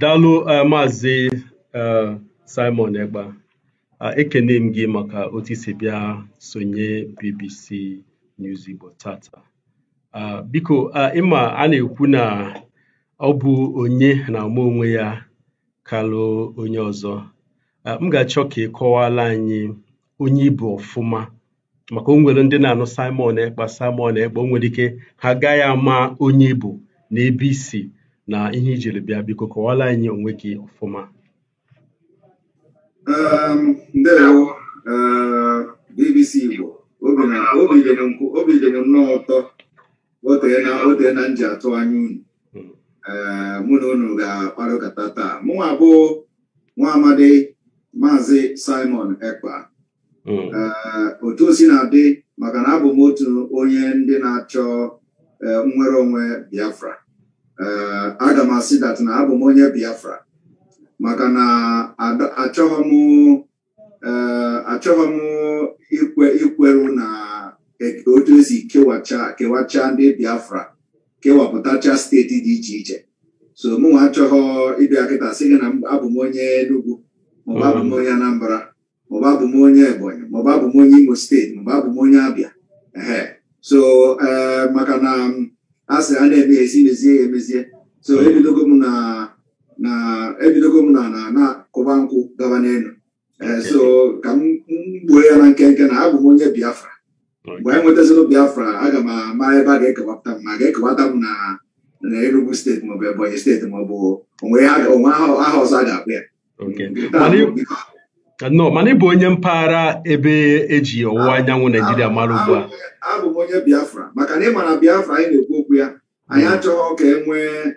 Daalụ um Maazị um Simon Ekpa, eh, ekene m gị maka otu si bịa sonye BBC News Igbo tata. Biko ịma a na-ekwu na ọ bụ onye na-ama onwe ya kalụ onye ọzọ. M ga-achọ ka ị kọwala anyị onye ibu ọfụma maka onwere ndị na-anụ Simon Ekpa Simon Ekpa onwere ike ha agaghị ama onye ibu na ebe isi na ihe ijiri bịa biko kọwala anyị onwe gị ọfụma ehm, ndewo ehm, BBC Igbo obi dị m nnọọ ụtọ otee na nji atụ anya unu ehm, mụ na unu ga-akparịkọta taa mụnwa bụ nwa amadi maazi Simon Ekpa Hmm. Eh, otu o si na-adị maka na abụ m otu onye ndị na-achọ eh, nnwere onwe Biafra eh, aga m asị dat na abụ m onye Biafra maka na achọghị m achọghị ikweru na e, otu esi kewacha kewacha ndị Biafra kewapụtacha steeti dị iche iche so mụnwa achọghị ịbịa kịta sị gị na abụ m onye Enugu maọbụ abụ m onye Anambra maọbụ abụ m onye Ebonyi maọbụ abụ m onye Imo steeti maọbụ abụ m onye Abịa ehe so eh, maka na asị mm, a na-eme ya esi mezie ya emezie so hmm. ebidogo m na na ebidogo m na na na-akụba nkwụ gaba n'elu eh, so ka m gbuo ya na nkenke na abụ m onye Biafra mgbe anyị nwetazịrị Biafra aga m ama ebe a ga-ekewapụta m ma ga-ekewata m na na Enugu steeti maọbụ Ebonyi steeti maọbụ onwe aha ọzọ a ga-akpụ ya nọ mana ị bụ onye mpaghara ebe eji ọwụwa ah, anyanwụ ah, naijiria ah, mara ugbu a abụ m onye biafra maka na ị ma na biafra anyị na-ekwu okwu ya anyị hmm. achọghị ka e nwee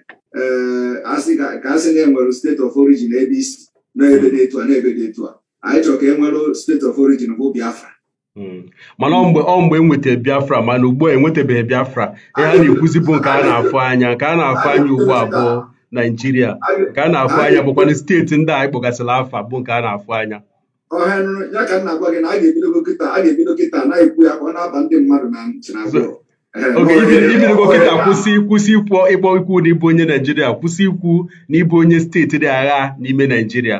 eh, ka asị na-enwere steeti of origin ebe isi n'ebe dị etu a n'ebe dị etu a anyị chọrọ ka e nwere steeti of origin bụ biafra hmm. mana ọ mgbe ọ mgbe enweta biafra mana ugbu a enwetabeghị biafra ihe a na-ekwuzi bụ nke a na-afụ anya nke a na-afụ anya ugbu abụọ naijiria nke a na-afụ anya bụkwanụ steeti ndị a anyị afa bụ nke a na-afụ anya ọha nrụ ya ka na-agwa gị na a ga-ebido kịta a ga-ebido kịta na-ekwu ya ka ọ na-aba ndị mmadụ na ntị na abụọ oge kịta kwụsị kwụsị ikwu ịkpọ ikwu na ịbụ onye naijiria kwụsị ikwu na onye steeti dị agha n'ime naijiria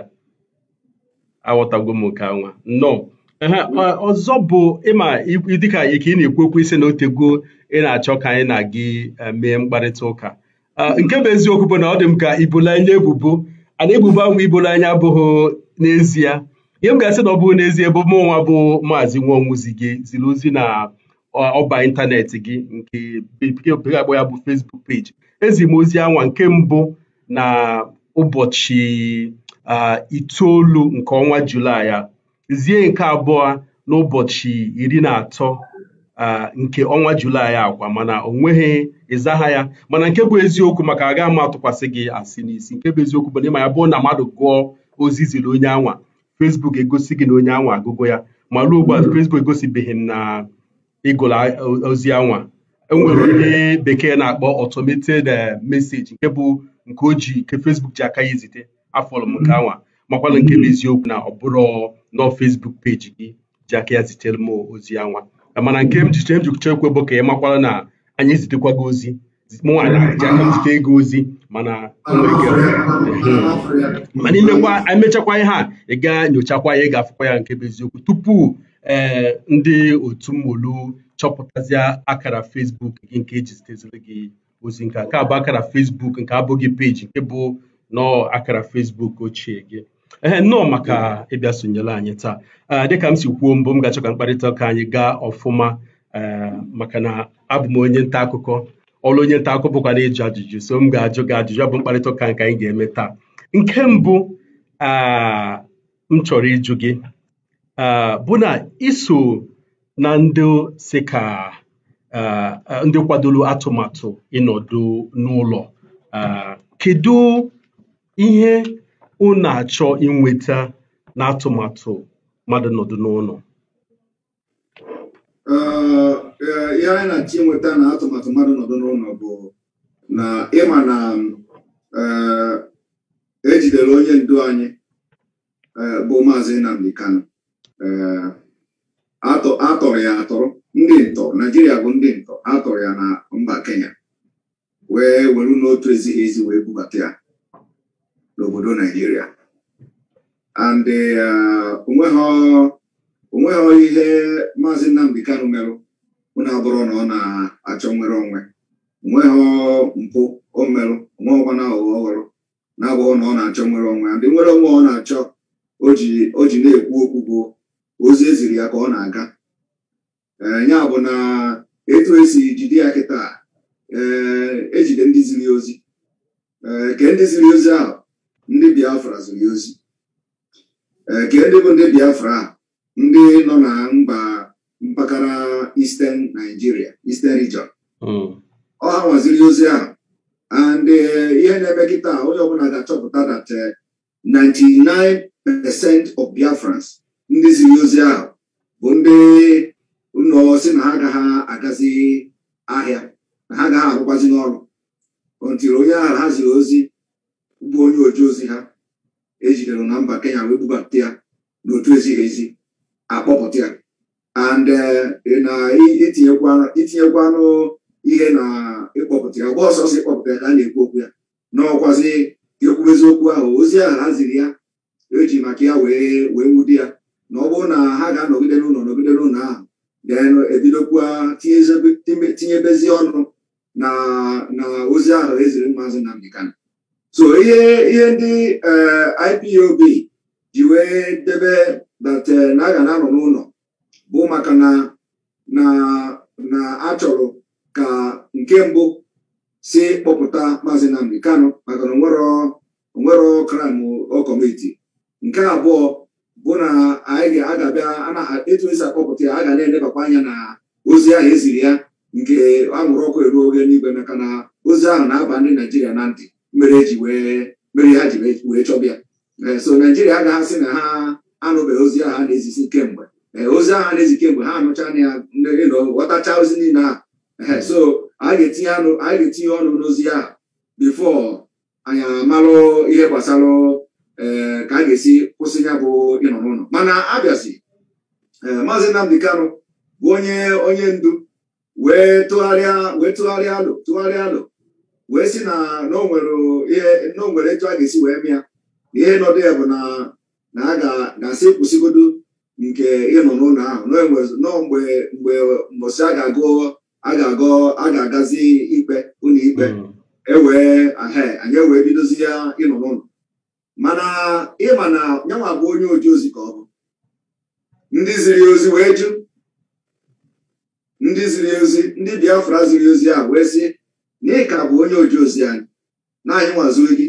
aghọtago m nke nwa nnọọ mm. ọzọ bụ ịma dịka ike ị na-ekwu okwu isi na otego ị na-achọ ka anyị na gị eh, mee mkparịta ụka ah, mm. nke bụ eziokwu bụ na ọ dị m ka ibola anya ebubo ana ebubo ahụ ibola anya abụghị n'ezie ihe m ga-asị na ọ bụrụ n'ezie bụ mụ nwa bụ maazị nwaọnwụzi gị ziri ozi na ọba ịntanetị gị nke bekee bekee akpọ ya bụ fesbuk page ezi m ozi anwa nke mbụ na ụbọchị itoolu nke ọnwa Julaị a zie nke abụọ n'ụbọchị iri na atọ nke ọnwa Julaị akwa mana o nweghị ịzagha ya mana nke bụ eziokwu maka agaghị m atụkwasị gị asị n'isi nke bụ eziokwu bụ na ịma ya bụ na mmadụ gụọ ozi ziri onye anwa Facebook egosi gị na onye anwa agụgo ya ma ruo ugbu a hmm. Facebook egosibeghị m na ịgụla ozi anwa enwere hmm. onye bekee na-akpọ automated eh, message nke bụ nke oji nke Facebook ji aka ya izite afọlụ m nke hmm. anwa makwala nke bụ eziokwu na ọ bụrụ nọ Facebook peji gị ji aka ya zitere m ozi anwa mana nke m ji bụ ka ị makwala na anyị zitekwa gị ozi mụnwa na-eji aka m ego ozi mana hmm. mana imekwa emechakwa ihe a ị ga nyochakwa ya ị ga-afụkwa ya nke bụ eziokwu tupu ee eh, ndị otu mmolu chọpụtazie akara Facebook gị nke eji ziteziri gị ozi nke nke bụ akara Facebook nke abụghị peji nke bụ nọọ akara Facebook ochie gị ee nnọọ maka ịbịa sonyela anyị taa eh, dịka m si kwuo mbụ m ga-achọ ka mkparịta ụka anyị gaa ọfụma eh, maka na abụ m onye nta akụkọ ọlụ onye nta akụkọ ajụjụ so m ga-ajụ gị ajụjụ ọ bụ mkparịta ụka nke anyị ga-eme taa nke mbụ m chọrọ ịjụ gị bụ na iso na ndị si ka ndị kwadoro atụmatụ ịnọdụ n'ụlọ kedu ihe na achọ inweta n'atụmatụ mmadụ nọdụ n'ụlọ ihe anyị na-achọ na atụmatụ mmadụ nọdụ n'ụlọ bụ na ịma na eh, ejidere onye ndu anyị eh, bụ maazị Nnamdi Kanu eh, atọrọ ya atọrọ ndị ntọ Naijiria bụ ndị ntọ atọrọ ya na mba Kenya wee were n'otu ezighị ezi wee bubata ya n'obodo Naijiria and onweghị ihe maazị Nnamdi Kanu merụ na abụrụ na ọ na-achọ nwere onwe nweghị mpụ o merụ nweọkwana aghụghọ ọhụrụ na-abụghị na ọ na-achọ nwere onwe ndị nwere onwe ọ na-achọ o ji na-ekwu okwu bụ ozi eziri ya ka ọ na-aga eh, ya bụ na etu esi jide ya kịta ejide eh, e ndị ziri ozi eh, ke ndị ziri ozi ahụ ndị biafra ziri ozi ke ndị bụ ndị biafra ndị nọ na mba mpaghara Eastern Nigeria Eastern region hmm. ọ ha nwaziri ozi ahụ and eh, ihe na-eme kịta onye ọbụla ga-achọpụta that 99 eh, percent of Biafrans ndị ziri ozi ahụ bụ ndị ụlọ si na ha agaghị agazi ahịa na ha agaghị arụkwazi n'ọrụ ntiri onye ahụ ha ziri ozi bụ onye oji ozi ha ejidere na mba Kenya wee bubata ya n'otu ezighị ezi akpọpụta ya and uh, na itinyekwanu ihe na ịkpọpụta ya ọgba ọsọsọ ịkpọpụta ya ka a na-ekwu okwu ya n'ọkwazi ekwu eziokwu ahụ ozi ahụ ha ziri ya eji maka ya wee wee nwudi ya na ọ bụrụ na ha ga-anọgide n'ụlọ nọgide n'ụlọ ahụ den ebidokwa tinyebezi ọnụ na na ozi ahụ eziri mmazụ na Kanu so ihe ihe ndị uh, IPOB ji wee debe that uh, na aga na-anọ n'ụlọ bụ maka na na achọrọ ka nke mbụ si kpọpụta maazị Nnamdi maka na onwero kram ọ kọmiti nke abụọ bụ na anyị ga-agabịa etu esi akpọpụta ya a ga na-elebakwa anya na ozi ahụ eziri ya nke anwụrụ ọkụ eruo oge n'igwe maka na ozi ahụ na-aba ndị Naijiria na ntị mere eji mere ha ji wee chọbịa eh, so Naijiria agaghasị na ha anụbeghị ozi ahụ a na-ezisi kemgbe Eh, ozi ahụ na-ezike mgbe ha anụcha na ya ghọtacha ozi niile a so a ga-etinye ọnụ n'ozi ya bifo anyị amalụ ihe gbasara eh, ka a ga-esi kwụsị ya bụ ịnọ n'ụlọ mana abịazi eh, maazị Nnamdi Kanu bụ onye onye ndu wee tụgharịa wee tụgharịa alụ tụgharịa alụ wee si na n'onwere etu a ga-esi wee mịa ihe nọdụ ya bụ na a ga-asị kwụsịgodo nke ịnọ n'ụlọ ahụ nọ mgbe mgbe mbọsị a ga-agụ a ga-agụ a ga-agazi ikpe ụlọ ikpe mm. ewee anyị ewee bidozi ya ịnọ n'ụlọ mana ịma na yanwa bụ onye oji ozi ka ọ bụ ndị ziri ozi wee jụ ndị ziri ozi ndị biafra ziri ozi a wee sị n'ihi bụ onye oji ozi anyị na anyị nwaziri gị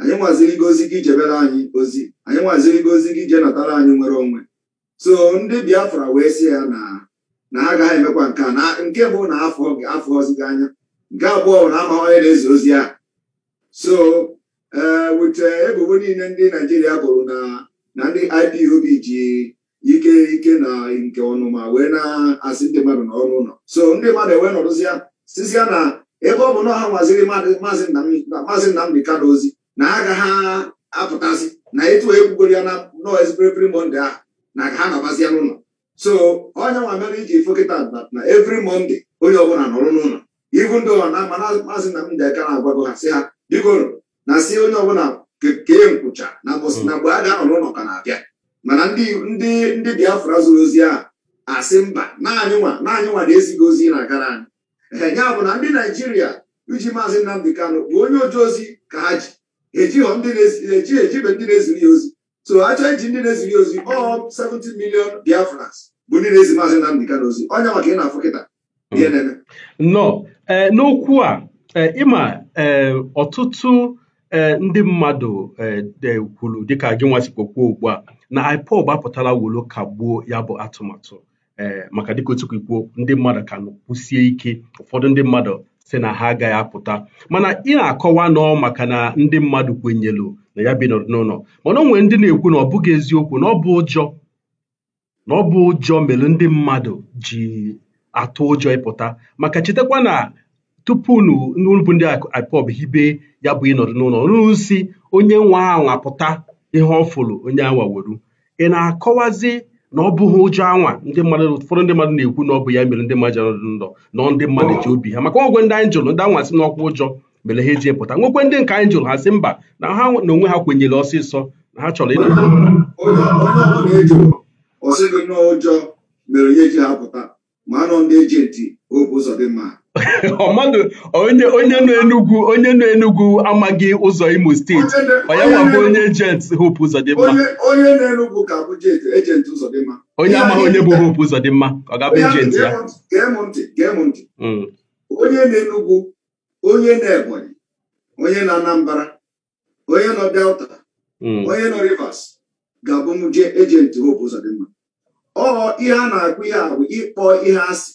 anyị nwaziri gị ozi gị jebere anyị ozi anyị nwaziri gị ozi gị jee natara anyị nwere onwe so ndị biafra wee sị ya na ha agaghị emekwa nke na nke bụ na afọ ọzụga anya nke abụọ na ama onye na-ezi ozi a so ee eh, eh, ebubo niile ndị naijiria bụrụ na ndị ipob ji ike ike na nke ọnụma wee na-asị ndị mmadụ n'ọnụ ụlọ so ndị mmadụ ewee nọrụzịa sizia na ebe ọ bụ na ha nwaziri maazị nnamdị na ozi na ha agaghị apụtasị na etu ekwugoro ya na nọ ezibiribiri monde ahụ na ha nọbazia n'ụlọ so onye nwa mere iji fokịta na evri mọnde onye ọbụla nọrụ n'ụlọ ibu ndị ọha na maazị Nnamdi Aka na-agwago ha si ha bikoro na si onye ọbụla kee nkwụcha na hmm. na mgbe a ga-anọ n'ụlọ ka na-abịa mana ndị Biafra zụrụ ozi a asị mba naanị nwa naanị nwa na-ezighị ozi na-agara anyị ee bụ na ndị naijiria iji maazị Nnamdi Kanu bụ onye oji ozi ka ha ji ejighọ ndị na-ejighị ejibe ndị na-eziri ya ozi so achọnji ndị na ezighị ozi ọ 70 million Biafrans bụ ndị na-ezi maazị Nnamdi Kanu ozi onye maka ị na-afụ kịta mm. ihe nọ e, n'okwu a e, ịma e, ọtụtụ ndị mmadụ kwuru dịka gị nwasikpokwu ugbu a na IPOB apụtala wolo kagbuo ya bụ atụmatụ maka dịka otu kwuo ndị mmadụ ka kwụsie ike ụfọdụ ndị mmadụ si na ha agaghị apụta mana ị na-akọwa nọ maka na ndị mmadụ kwenyelu na ya bi n'ụlọ mana o nwere ndị na-ekwu na ọ bụghị eziokwu na ọ bụ ụjọ na ọ bụ ụjọ mere ndị mmadụ ji atụ ụjọ ịpụta maka chetakwa na tupu n'ụlọbụ ndị IPOB hibe ya bụ ịnọdụ n'ụlọ n'usi onye nwe anwa pụta ihe ọ fụrụ onye anwa weru ị na-akọwazi na ọ bụghị ụjọ anwa ndị mmadụ ụfọdụ ndị mmadụ na-ekwu na ọ bụ ya mere ndị mmadụ jọrọ ndụ nọ ndị mmadụ ji obi ha maka ọgwụ ndị anyị jụrụ ndị anwa si n'ọkwa ụjọ mere ha eji epụta nwekwe ndị nke anyị jụrụ ha sị mba na ha na onwe ha kwenyere ọsịsọ na ha chọrọ ịna ọsịgị n'ụjọ mere ya eji ha pụta ma anọ ndị eji ejenti obu ụzọ dị mma onye nọ Enugwu onye nọ Enugwu amaghị ụzọ Imo steeti onye nwabụ onye ejent Hope Uzodimma onye nọ Enugwu ka bụ ejent Uzodimma onye amaghị onye bụ Hope Uzodimma ọ gabụ ejent ya hmm. onye nọ Enugwu onye nọ Ebonyi onye nọ Anambra onye nọ Delta hmm. onye nọ Rivers ga-abụ m jee ejent Hope Uzodimma ọ ihe a na-agụ ihe a bụ ịkpọ ihe asị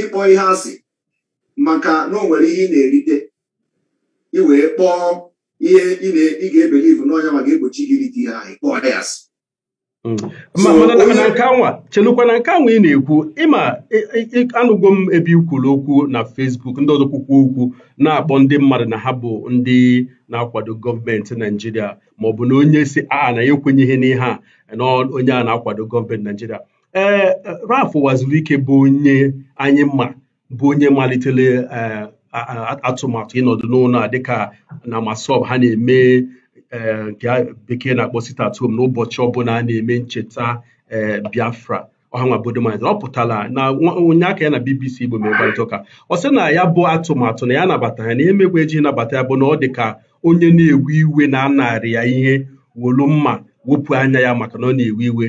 ịkpọ ihe asị maka na o nwere ihe ị na-erite ị wee kpọọ ihe ị ga-ebelivu n'ọnya ma ga-egbochi gị irite ihe anyị kpọọ ya hmm. asị mana nke anwa chelukwa na nke anwa ị na-ekwu ịma anụgo m ebe ikwuru okwu na fesbuk ndị ọzọ kwukwu okwu na-akpọ ndị mmadụ na ha bụ ndị na-akwado gọọmenti Naijiria maọbụ na onye si a na ya ekwenyeghị n'ihe a na onye a na-akwado gọọmenti Naijiria ee waziri ike bụ onye anyị mma. bụ onye malitere eh, atụmatụ ịnọdụ n'ụlọ a dịka na masob ha na-eme eh, nke bekee na-akpọ sit at ụbọchị n'ụbọchị ọbụla a na-eme ncheta eh, Biafra ọhanwa ọ pụtara na onye aka ya na BBC Igbo mere ụka ọ sị na ya bụ atụmatụ na ya nabata ya na emegbe eji nabata ya bụ na ọ dị ka onye na-ewe iwe na anarị ya ihe wolu mma wepụ anya ya maka na ọ na-ewe iwe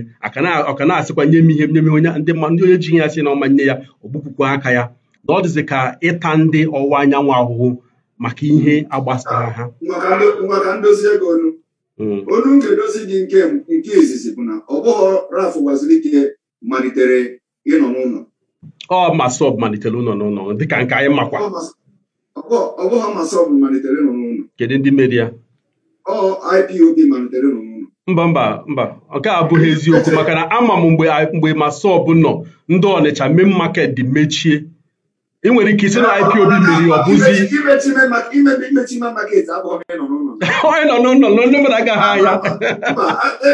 ọ ka na-asịkwa nye m ihe nye m onye ndị onye ji ya sị na ọma nye ya ọ aka ya na ọ dịzị ka ịta ndị ọwụwa anyanwụ ahụhụ maka ihe agbasara ha maka ndozi ego onu hmm. onu m ga-edozi gị nke nke izizi bụ na ọbụghọ bụghị raf gwazilike malitere ịnọ n'ụlọ ọ masọb malitere ụlọ n'ụlọ dịka nke anyị makwa ọbụghọ bụghị malitere ịnọ n'ụlọ kedu ndị mere ya ọ IPOB malitere ịnọ n'ụlọ mba mba mba nke a abụghị eziokwu maka na ama m mgbe mgbe nọ ndị Ọnịcha main market dị mechie ị nwere ike isi na IPOB mmeri ọ bụzi onye nọ n'ụlọ na ndị mmadụ agaghị ahịa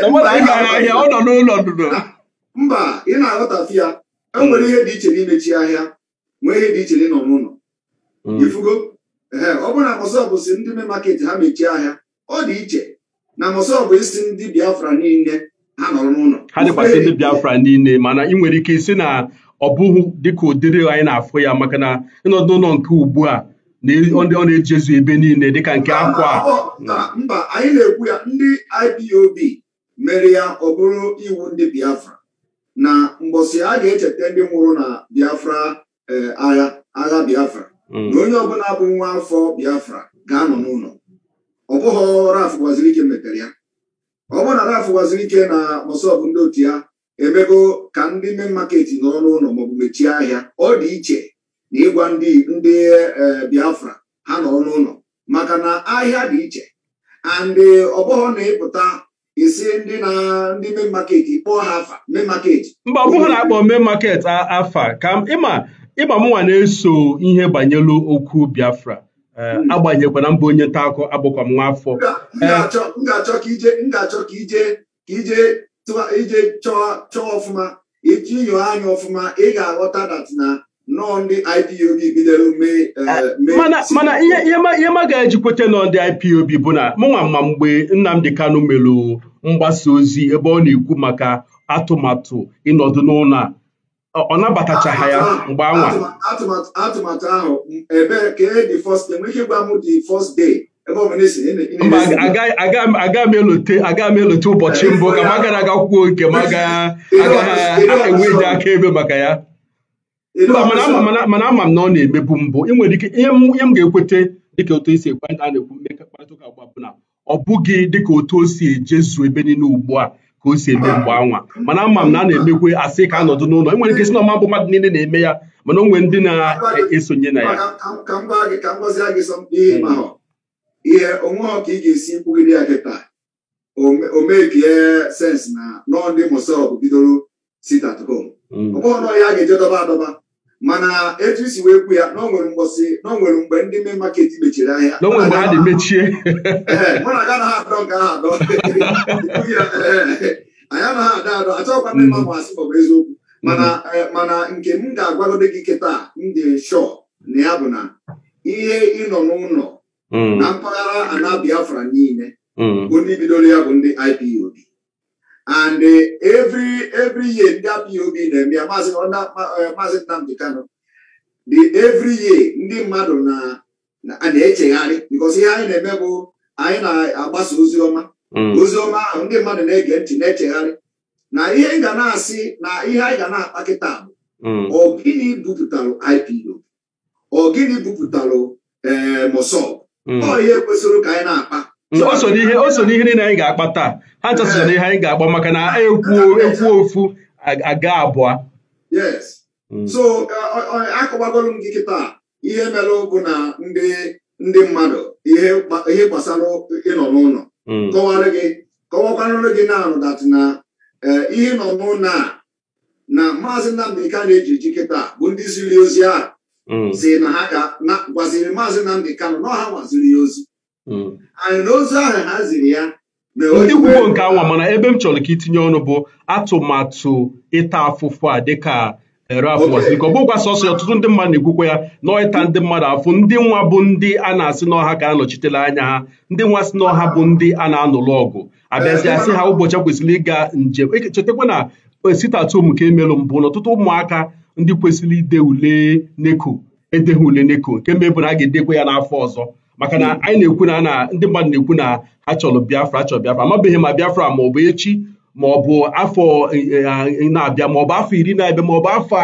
na mmadụ agaghị ahịa ọ nọ n'ụlọ ndụdụ e, mba ị na-aghọtafi ya enwere ihe dị iche na n'imechi ahịa nwee ihe dị iche na n'ịnọ n'ụlọ ifugo mm. ee ọ bụrụ na mọsọbụ si ndị me maketi ha mechie ahịa ọ dị iche na mọsọbụ isi ndị Biafra niile ha nọrọ n'ụlọ ha dịkwasị ndị Biafra niile mana ị nwere ike isi na ọ bụghị dịka ụdịrị anyị na-afụ ya maka na ịnọdụ ụlọ nke ugbu a na ọ na-ejezu ebe niile dịka nke akwa mba anyị na-ekwu ya ndị IPOB mere ya ọ bụrụ iwu ndị Biafra na mbọsi a ga-echeta ndị nwụrụ na Biafra eh, agha agha Biafra hmm. na onye ọbụla bụ nwa afọ Biafra ga-anọ n'ụlọ ọ bụghị Ralph Gwazirike metere ya ọ bụrụ na Ralph Gwazirike na bụ ndị otu ya emego ka ndị mee maketi n'ọnụ ụlọ maọbụ mechie ahịa ọ dị iche na ịgwa ndị ndị e, Biafra ha n'ọnụ ụlọ maka na ahịa dị iche andị e, ọbụghọ na-ịpụta isi ndị na ndị mee maketi kpọọ ha afa mee maketi mba ọ bụghị na-akpọ mee maketi afa ka ịma ịma mụnwa na-eso ihe banyelu okwu Biafra e, hmm. agbanyekwana mba onye nta akụ abụkwa m nwa afọ m ga-achọ ka ije ka ije tụba ije chọọ chọọ ọfụma itinyo anya ọfụma ị ga-aghọta dat na nnọọ ndị IPOB bidoro mee eh, ah, mana ihe ma ga-eji kweta nọ ndị IPOB bụ na mụnwa mma mgbe Nnamdi Kanu melụ mgbasa ozi ebe ọ na-ekwu maka atụmatụ ịnọdụ n'ụlọ a ọ nabatachaghị ya mgbe anwa atụmatụ ahụ ebe ka e dị first day nwe ike gwa m dị first day mgbe aga m elote ụbọchị mbụ ka m gara aga kwuo nke m agaghị aka akaebe maka ya mba mana ama m na ọ na-emebu mbụ nwere ike ihe m ga-ekweta dịka otu esi ekwe a na-ekwu mmekọ mkparịta ụka agba bụ na ọ bụghị dịka otu o si ejezu ebe niile ugbu a ka o si eme mgbe anwa mana ama m na a na-emekwe asị ka anọdụ n'ụlọ nwere ike si na ọma bụ mmadụ niile na-eme ya mana o nwere ndị na-esonye na ya ihe onwe ka ị ga-esi nkwugide ya kịta o mee ka na nọọ ndị bidoro sit at home hmm. ọ ya ga-eje dọba adọba mana etu isi wee kwu ya na onwere mgbọsị na mgbe ndị me maketi mechiri ahịa mechie mụ na aga naghị adọ nke ahụ adọ anyị anaghị adọ adọ achọghịkwa ndị mma hmm. masị ọ bụ eziokwu hmm. eh, mana nke m ga-agwagode gị kịta m dị shọ na ya bụ na ihe ị nọ n'ụlọ Mm. na mpaghara ana Biafra niile mm. ndị bidoro ya bụ ndị IPOB and eh, every every year ndị IPOB na-eme ya maazị eh, Nnamdi Kano the every year ndị mmadụ na-echegharị na e because ihe anyị na-eme bụ anyị na-agbasa ozi ọma mm. ozi ọma ahụ ndị mmadụ na-ege ntị na-echegharị na ihe ga na-asị na ihe anyị ga na-akpa kịta bụ ọ gịnị bupụtalụ IPOB ọ gịnị bupụtalụ ee eh, mosọb Mm. ọ ihe kwesịrị ka anyị na-akpa o so n'ihe niile anyị ga-akpa taa ha chọsịrị n'ihe anyị ga-akpa maka na ekwu eh. e ofu aga abụọ yes mm. so akọwagolu m gị kịta ihe merụ bụ na ndị mmadụ ihe gbasara ịnọ n'ụlọ mm. kọwara gị kọwakwarụrụ gị na-anụ na eh, ihe nọ n'ụlọ a na maazị Nnamdi Kanu na-eji ji kịta bụ ndị ziri ozi ahụ si mm. na ha gwaziri maazị Nnamdị Kano na ọha nwaziri ya ozi mm. anyị na ozu ahụ ha ziri ya ndị kwugbo nke anwa mana ebe m chọrọ ka itinye ọnụ bụ atụmatụ ịta afụfụ a dịka erafụ eh, ọ bụgwa sọsọ ọtụtụ ndị mmadụ na-ekwukwa ya na ịta ndị mmadụ afụ ndị nwa bụ ndị a na-asị n'ọha ka anọchitela anya ha ndị nwa si n'ọha bụ ndị a na-anụlụ ọgụ abịazi asị ha ụbọchị kwesịrị ịga njem chetakwa na eh, sitatum ka emelụ mbụ na ọtụtụ ụmụaka ndị kwesịrị ide ule neko edeghị ule neko nke mebụrụ a ga-edekwa ya n'afọ ọzọ maka na anyị na-ekwu na na ndị mmadụ na-ekwu na ha chọrọ Biafra chọrọ Biafra amabeghị ma Biafra ma ọ bụ echi ma ọ bụ afọ eh, eh, na-abịa ma ọ bụ afọ iri na-abịa ma ọ bụ afọ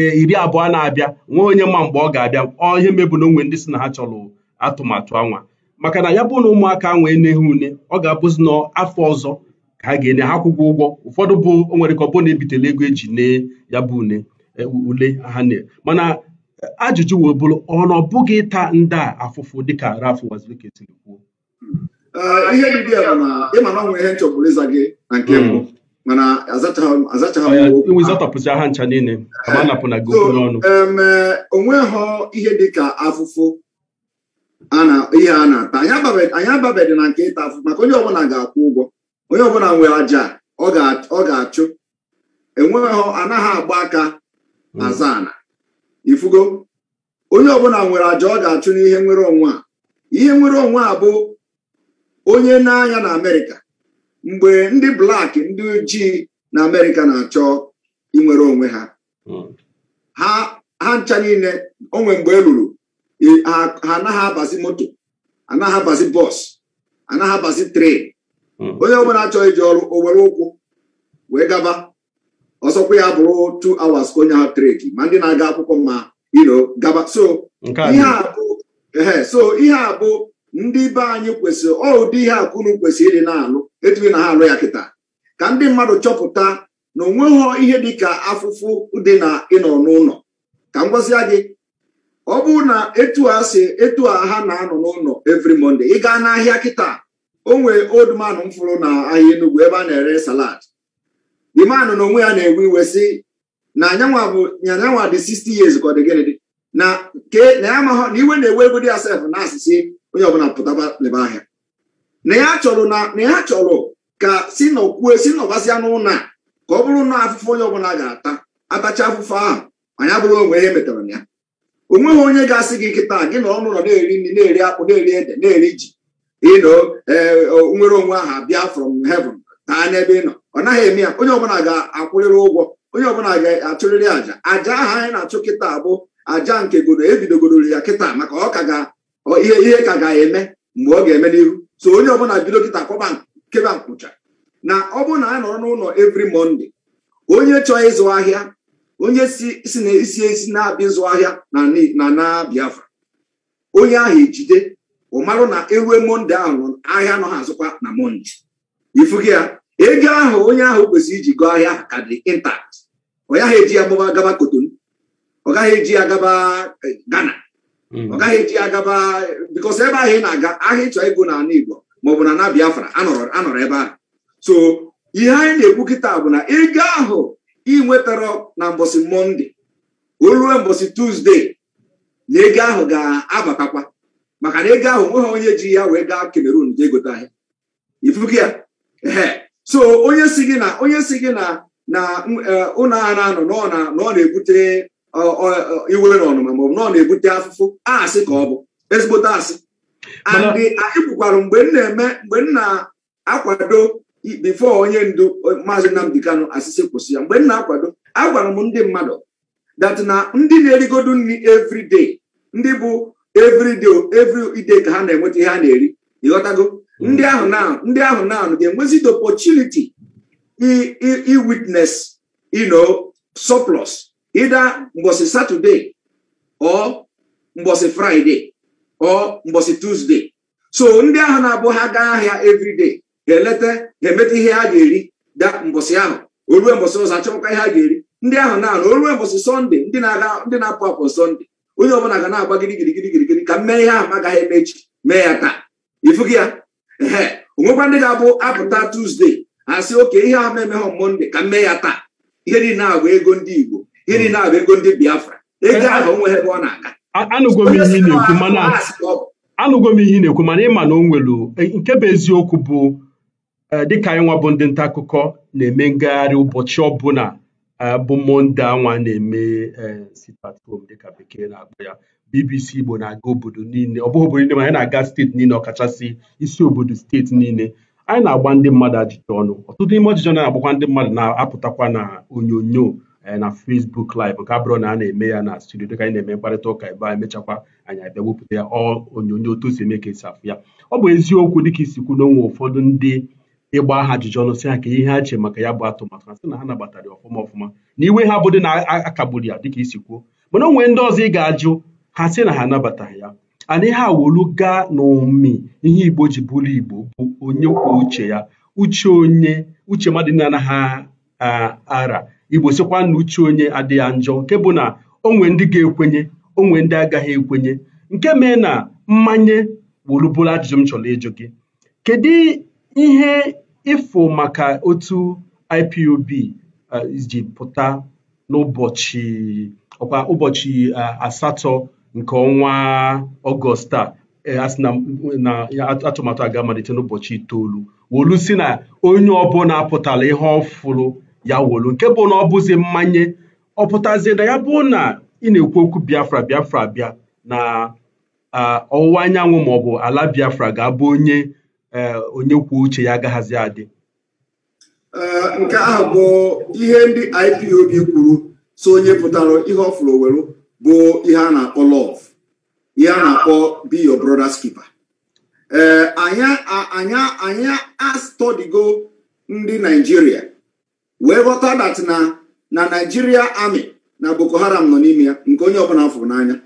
eh, iri abụọ na-abịa nwee onye ma mgbe ọ ga-abịa ọ ihe mebụ na onwe ndị si na ha chọrọ atụmatụ anwa maka na ya bụ na ụmụaka ahụ eneghị une ọ ga-abụzi n'afọ ọzọ ka ha ga-enye ha akwụkwọ ụgwọ ụfọdụ bụ o nwere ka ọ bụ na ebitela ego eji nee ya bụ une Eh, ule ha na mana eh, ajụjụ wee bụrụ ọnụ ọbụghị ịta ndị a afụfụ dịka Ralph Wazirika siri kwuo eh, ihe dị a bụ na ịma na ọ nwere ihe nchọgburu ịza gị na nke mbụ mm. mana azachapụzi e ha ncha niile anapụna gị okwu n'ọnụ onweghọ ihe dịka afụfụ ihe a na-ata anyị ababedị na nke ịta afụfụ maka onye ọbụla ga-akwụ ụgwọ onye ọbụla nwere aja ọ ga-achụ enweghọ anaghị agba aka azana mm. ifugo onye ọbụla nwere aja ọ ga-achụ n'ihe nwere onwe a ihe nwere onwe a bụ onye n'anya na amerịka mgbe ndị blak ndị ojii na amerịka na-achọ inwere onwe ha mm. ha ncha niile onwe mgbe e lụrụ e, ha anaghị abazi moto anaghị abazi bọs anaghị abazi tren mm. onye ọbụla chọrọ iji ọrụ owere ụkwụ wee gaba ọsọkwa ya bụrụ two hours ka onye ahụ treki ma ndị na-aga akwụkwọ mma iro gaba so ihe a bụ ehe so ihe a bụ ndị be anyị kwesịrị ọ ụdị ihe a kunu kwesịrị ịdị na-alụ etughị na ha alụ ya kịta ka ndị mmadụ chọpụta na onweghị ihe ka afụfụ dị na ịnọ n'ụlọ ka m gwazie gị ọ bụrụ na etu a si etu a ha na-anọ n'ụlọ evri monde ị gaa n'ahịa kịta o nwere old man m fụrụ na ahịa Enugu ebe a na-ere salad the man na onwe ya na-ewe iwe si na anyanwa bụ anyanwa dị 60 years ka ọ dị gịnị dị na ke na ya amaghọ na iwe na-ewe ego dị ya sef na asịsị onye ọbụla pụtaba leba ahịa na ya chọrọ na na ya chọrọ ka si nọkwuo si nọbasịa n'ụna ka ọ bụrụ na afụfụ onye ọbụla ga-ata atacha afụfụ ahụ anyị bụrụ onwe ya e metara na ya o nweghị onye ga-asị gị nkịta gị na ọnụụlọ na-eri nri na-eri akpụ na-eri ede na-eri ji ịnọ eh, nwere onwe ahụ abịa from heaven ha n'ebe ị nọ ọ naghị eme ya onye ọbụla ga-akwụrịrị ụgwọ onye ọbụla ga-achụrịrị àjà àjà ahụ anyị na-achụ kịta bụ àjà nke godo ebidogodoro ya kịta maka ọ ka ga ihe ihe ka ga-eme mgbe ọ ga-eme n'ihu so onye ọbụla bido kịta kwaba keba nkwụcha na ọ bụrụ na a nọrọ n'ụlọ evri mọnde onye chọọ ịzụ ahịa onye si na isi esi na-abịa ịzụ ahịa na na Biafra onye ahụ ejide ụmarụ na ewe monde ahụ ahịa nọ ha azụkwa na mọnde. ifu ya ego ahụ onye ahụ kwesịrị iji gụọ ahịa ka dị intact ọ gaghị eji ya mụba gaba Kotonu ọ gaghị eji ya gaba Ghana ọ gaghị eji ya gaba e, hmm. bikos ebe ahụ ị na-aga ahịa ịchọ ego na ala Igbo maọbụ na na Biafra anọrọ ebe ahụ so ihe anyị na-ekwu kịta bụ na ego ahụ ị nwetara na mbọsị mọnde o ruo mbọsị tuzdee na ego ahụ ga-abatakwa maka na ego ahụ nweghị onye ji ya wee gaa Cameroon jee gote ahịa ifuku ya so onye si gị na onye si gị na na e, ụlọ ara anọ na ọ na-ebute iwe na ọnụma maọbụ na na-ebute afụfụ asị ka ọ bụ ezigbote asị andị anyị kwukwara mgbe m na-eme mgbe m na-akwado bifo onye ndu maazị Nnamdi Kanu asịsị kwụsị ya mgbe m na-akwado agwara m ndị mmadụ dat na ndị na-erigodu nri everyday ndị bụ everyday every ka ha na-enweta ihe ha na-eri ịghọtago ndị ahụ na ndị ahụ na ga-enwezi the opportunity i soplus you know surplus either mgbọsị Saturday or mgbọsị Friday or so ndị ahụ na-abụ ha gaa ahịa evride ga-eleta ga-emeta ihe ha ga-eri da mbọsị ahụ orue mbosi ọzọ achọkwa ihe ha ga-eri ndị ahụ na orue mbosi sọnde ndị na-aga ndị na-apụ apụ sọnde onye ọbụla ga na-agba gịrịgịrịgịrịgịrị ka m mee ihe ahụ m agaghị emechi mee ya taa ịfụgị ya onwekwa ndị ga-abụ apụta tuzdee asị oke ihe ahụ memeghọ monde ka mee ya taa ihe niile agba ego ndị igbo ihe niile agba ego ndị biafra ego ahụ onweghị ebe ọ na-aga anụgo m ihe na-ekwu mana anụgo m ihe na-ekwu mana ịma na o nwelu e, nke bụ eziokwu bụ e, dịka anyị nwa bụ ndị nta akụkọ na-eme ngagharị ụbọchị ọbụla e, bụ monde anwa na-eme sit at dịka bekee na-akpọ ya BBC Igbo na-aga obodo niile ọ bụghị obodo niile ma anyị na-aga steeti niile ọkachasị isi obodo steeti niile anyị na-agba ndị mmadụ ajụjụ ọnụ ọtụtụ n'ime ọjụjụ na-agbakwa ndị mmadụ na-apụtakwa na onyonyo eh, na fesbuk Live nke abụrụ na a na-eme ya na studio dịka anyị na-eme mkparịta ụka ebe anyị mechakwa abịa wepụta ya onyonyo otu si eme ka esi afụ ya ọ bụ eziokwu dịka isi kwu na onwe ụfọdụ ndị ịgba aha ajụjụ ọnụ si ha ka ihe ha che maka ya bụ atụmatụ a sị na ha nabatara ya ọfụma ọfụma na iwe ha bụ na akagburu ya dịka isi kwuo mana onwe ndị ọzọ ị ga-ajụ ha sị na ha anabataghị ya ana ihe wolu gaa n'ụmị ihe igbo ji bụrụ igbo bụ onye kwuo uche ya uche onye uche mmadụ nna anaghị ara igbo sịkwa na uche onye adịghị njọ nke bụ na onwe ndị ga-ekwenye onwe ndị agaghị ekwenye nke mee na mmanye wolubụrụ ajụjụ m chọrọ ịjụ gị kedu ihe ịfụ maka otu IPOB ji pụta n'ụbọchị ọkwa ụbọchị asatọ nke ọnwa ọgọst a eh, asị atụmatụ amalite n'ụbọchị itoolu wolu si na onye ọbụla pụtara ihe ọfụrụ ya wolu nke bụ na ọ bụzi mmanye ọ pụtazie na ya bụ na ị na-ekwu okwu biafra biafra bịa na ọwụwa anyanwụ maọbụ ala biafra ga-abụ onye eh, onye kwuo uche ya agaghazi adị eh, nke ahụ bụ ihe ndị IPOB kwuru so onye pụtara ihe ọ welu bụ ihe a na-akpọ love ihe a na-akpọ be your brother's keeper ee anyị astọdigo ndị naijiria wee ghọta dat na na naijiria amị na boko haram nọ n'ime ya nke onye ọbụla fụrụ n'anya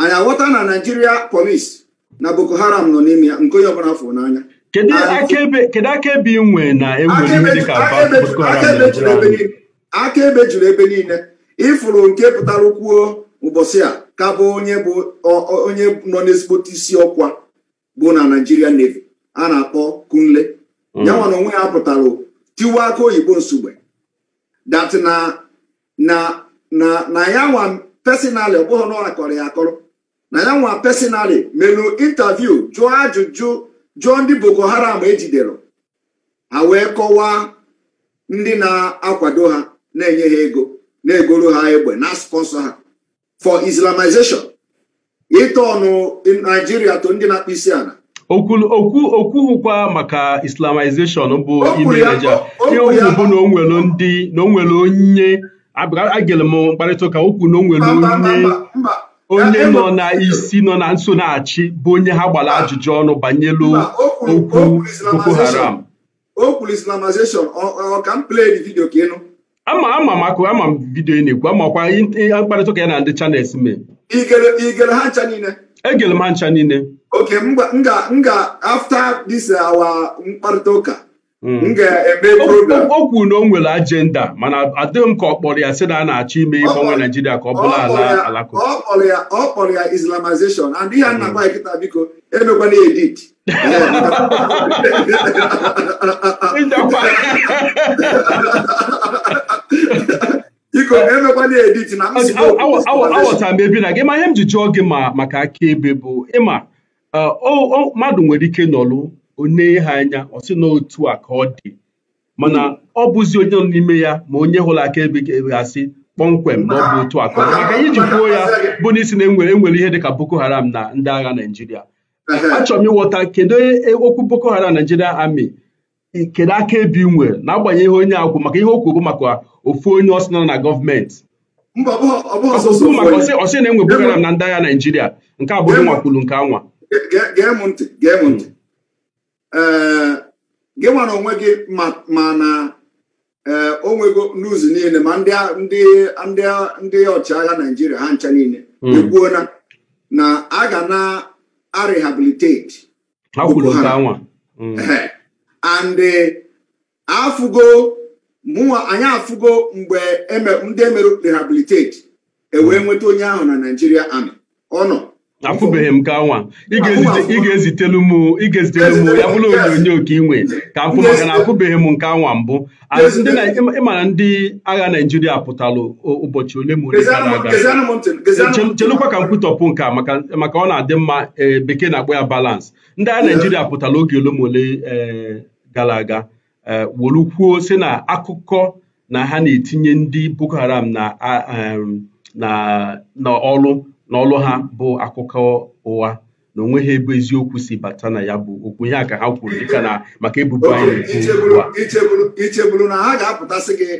anyị aghọta na naijiria polis na boko haram nọ n'ime ya nke onye ọbụla fụrụ n'anya kedu akaebe na e akaebe juru ebe niile ịfụrụ nke pụtara kwuo ụbọchị a ka bụ onye bụ onye nọ n'ezigbote isi ọkwa bụ na naijiria Navy a na-akpọ Kunle mm. yanwa na onwe ya pụtara tiwa aka oyibo nsogbe dat na na na ya nwa pesinali ọ na akọrọ ya akọrọ na ya nwa pesinali melu intaviu jụọ ajụjụ jụọ ndị Boko Haram ejidere ha wee kọwaa ndị na-akwado ha na-enye ha ego na-egoro ha egbe na spọnsọ ha for islamization ịta ọnụ naijiria to ndị na-akpụ isi ala okwughụkwa maka islamization bụ ime Naịjirịa ihe okwu bụ na onwere ndị na onwere onye agịlị m mkparịta ụka okwu na onwere onye nọ na isi nọ na nsonaachị bụ onye ha gbara ajụjụ ọnụ banyelu okwu Boko Haram o kwuru islamization ọ ka m play the video ka ịnụ ama ama maka ama m vidiyo ị na-ekwu amakwa mkparịta ụka ya na ndị chanels mee igere ha ncha niile egere m ha ncha niile oke m ga after this our mkparịta ụka hmm. m ga o kwuru na o nwere ajenda mana adịghị m ka ọ kpọrọ ya si na a na-achọ ime ịgbanwe naijiria ka ọ bụrụ ala alakụba ọ kpọrọ ya islamization and ihe nna hmm. gwa kịta biko emekwana edit aghọtara m ebe na gị ma ihe m ji jụọ gị ma maka akaebe bụ ịma uh, mmadụ nwere ike nọlụ onye ha anya ọ sị na a ka ọ dị mana hmm. ọ bụzi onye nọ n'ime ya ma onye hụrụ akaebe ga-asị kpọmkwem na ọ bụ otu aka ka maka iji kwuo ya bụ n'isi na enwere enwere ihe dịka Boko Haram na ndị agha Naịjirịa achọrọ m ịghọta kedu e, e, okwu Boko Haram Naịjirịa amị kedu akaebe nwere na agbanyeghị onye akwụ maka ihe o kwuru maka ofu onye ọsị nọ na gọọmenti maka ọsị na-enwe program na ndị agha naijiria nke abụghị nwakwulu nke anwa eh, gị nwere onwe gị ma na ee eh, onwego n'ụzọ niile ma ndị ọchịagha naijiria ha ncha niile ekwuona hmm. na a ga na arehabilitate hmm. eh, and afugo. mụnwa anyị afụgo mgbe e ndị emere rehabiliteti ewee nweta onye ahụ na naijiria amị ọ nọ akwụbeghị m ka nwa ị ga-ezitelu m ya bụrụ onyonyo ka ị nwee ka afụ maka na akwụbeghị m nke anwa mbụ ịmara ndị agha naijiria pụtara ụbọchị ole ma ole gara aga chelụkwa ka m kwutọpụ nke a maka ọ na-adị mma e, bekee na-akpọ ya balance ndị agha naijiria pụtara oge ole ma ole e, gara aga Eh, wolu kwuo sị na akụkọ na ha na-etinye ndị Boko Haram na n'ọlụ n'ọlụ ha bụ akụkọ ụwa na onwe ha ebe eziokwu si bata na ya bụ okwu ihe a ka ha kwuru dịka na maka ebubo anyị ichegburu na ha ga-apụtasị gị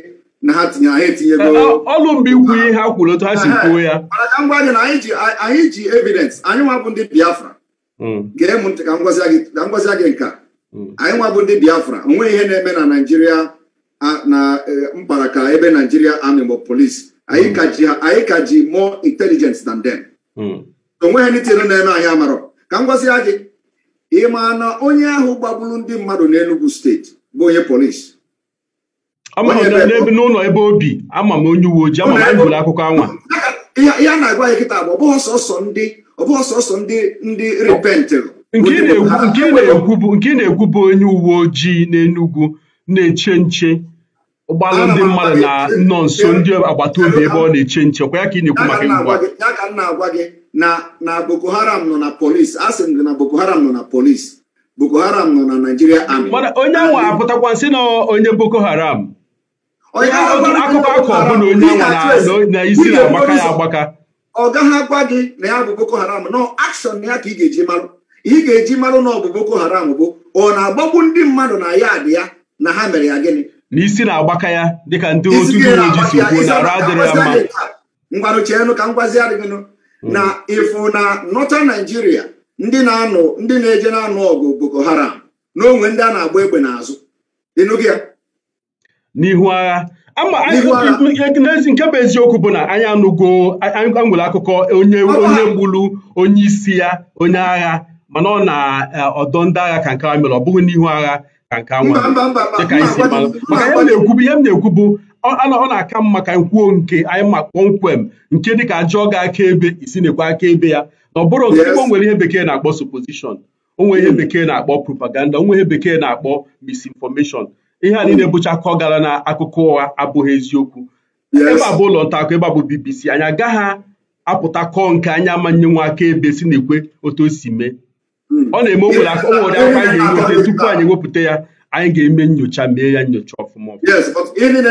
na ha tinye ha etinyego eh, ọlụ mgbe ikwu ihe ha kwuru otu ha si kwuo ya mana ka m gị na anyị ji evidence anyị nwa bụ ndị Biafra hmm. gee m ntị ka m gwazi gị nka Mm. anyị nwa bụ ndị biafra onwe ihe na-eme na naijiria na e, mkpara ka ebe naijiria army bụ polis mm. anyị ka ji more intelligence than them mm. ha anything na-eme anyị amarọ ka m gwazi gị ị ma na onye ahụ gbagburu ndị mmadụ n'Enugu steeti bụ onye polis n'ụlọ ebe obi ama m onye uwe ojii ama m anyị akụkọ anwa ihe a na-agwa ya kịta bụ ọbụghị sọsọ ndị ọbụghị sọsọ ndị ndị repentịrị nke na-ekwu bụ onye uwe ojii n'Enugwu na-eche nche ụgbọala ndị mmadụ na nọ nso ndị agbata obi ebe ọ na-eche nche kwa ya ka ị na-ekwu maka ngwa ya m na-agwa gị na Boko Haram nọ na polis a m gị na Boko Haram nọ na polis Boko Haram nọ na Naijiria amị onye ahụ apụtakwa nsị na onye Boko Haram akụkọ akọ bụ na onye ahụ na isi na-agbaka ya agbaka ọ gaghị agwa gị na ya bụ Boko Haram nọ akshọn ya ka ị ga-eji marụ ị ga-eji marụ na ọ bụ boko haram bụ ọ na-agbagbu ndị mmadụ na ya dị ya na ha mere ya gịnị n'isi na-agbaka ya dịka ndị otu uwe ojii si kwuo na arụ adịrị mma ngwanụ cheenụ ka ngwazi adịghịnụ hmm. na ịfụ na nọta naijiria ndị na-anụ ndị na-eje na-anụ ọgụ boko haram na onwe ndị a na-agba egbe n'azụ ịnụghị ya n'ihu agha nke bụ eziokwu bụ na anyị anụgo anyị nwere akụkọ onye onye onye isi ya onye agha mana ọ na eh, ọdọ ndị agha ka nke a mere ọ bụghị n'ihu agha ka nke a nwere dịka maka ihe m na ekwubu ihe m na ọ na-aka mma ka nkwuo nke anyị ma kpọmkwem nke dịka ajọ ga aka ebe isi na-ekwe aka ebe ya na ọ bụrụ nke ọ nwere ihe bekee na-akpọ supposition o nwere ihe bekee na-akpọ propaganda o nwere ihe bekee na-akpọ misinformation ihe a niile bụcha akọ gara na akụkọ ụgha abụghị eziokwu ebe a bụ ụlọ nta akụkọ ebe a bụ BBC anyị agaghị apụta kọọ nke anya manye nwa aka ebe si na-ekwe otu o si mee ọ na-eme okwu na onwere aka anyị ga-eweta tupu anyị wepụta ya anyị ga-eme nyocha mee ya nyocha ọfụma ọfụma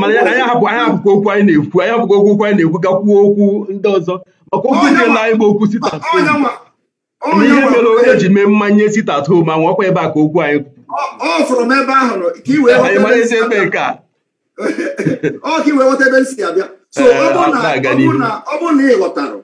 mana anyị ahapụkwa okwu anyị na-ekwu anyị ahapụkwa okwu okwu anyị na-ekwu ga kwuo okwu ndị ọzọ maka okwu nke na anyị bụ okwu sit at home na ihe mere onye ji mee mmanye sit at home anwụ ọkwa ebe a ka okwu anyị ọ ka iwee ebe m si na ị ghọtara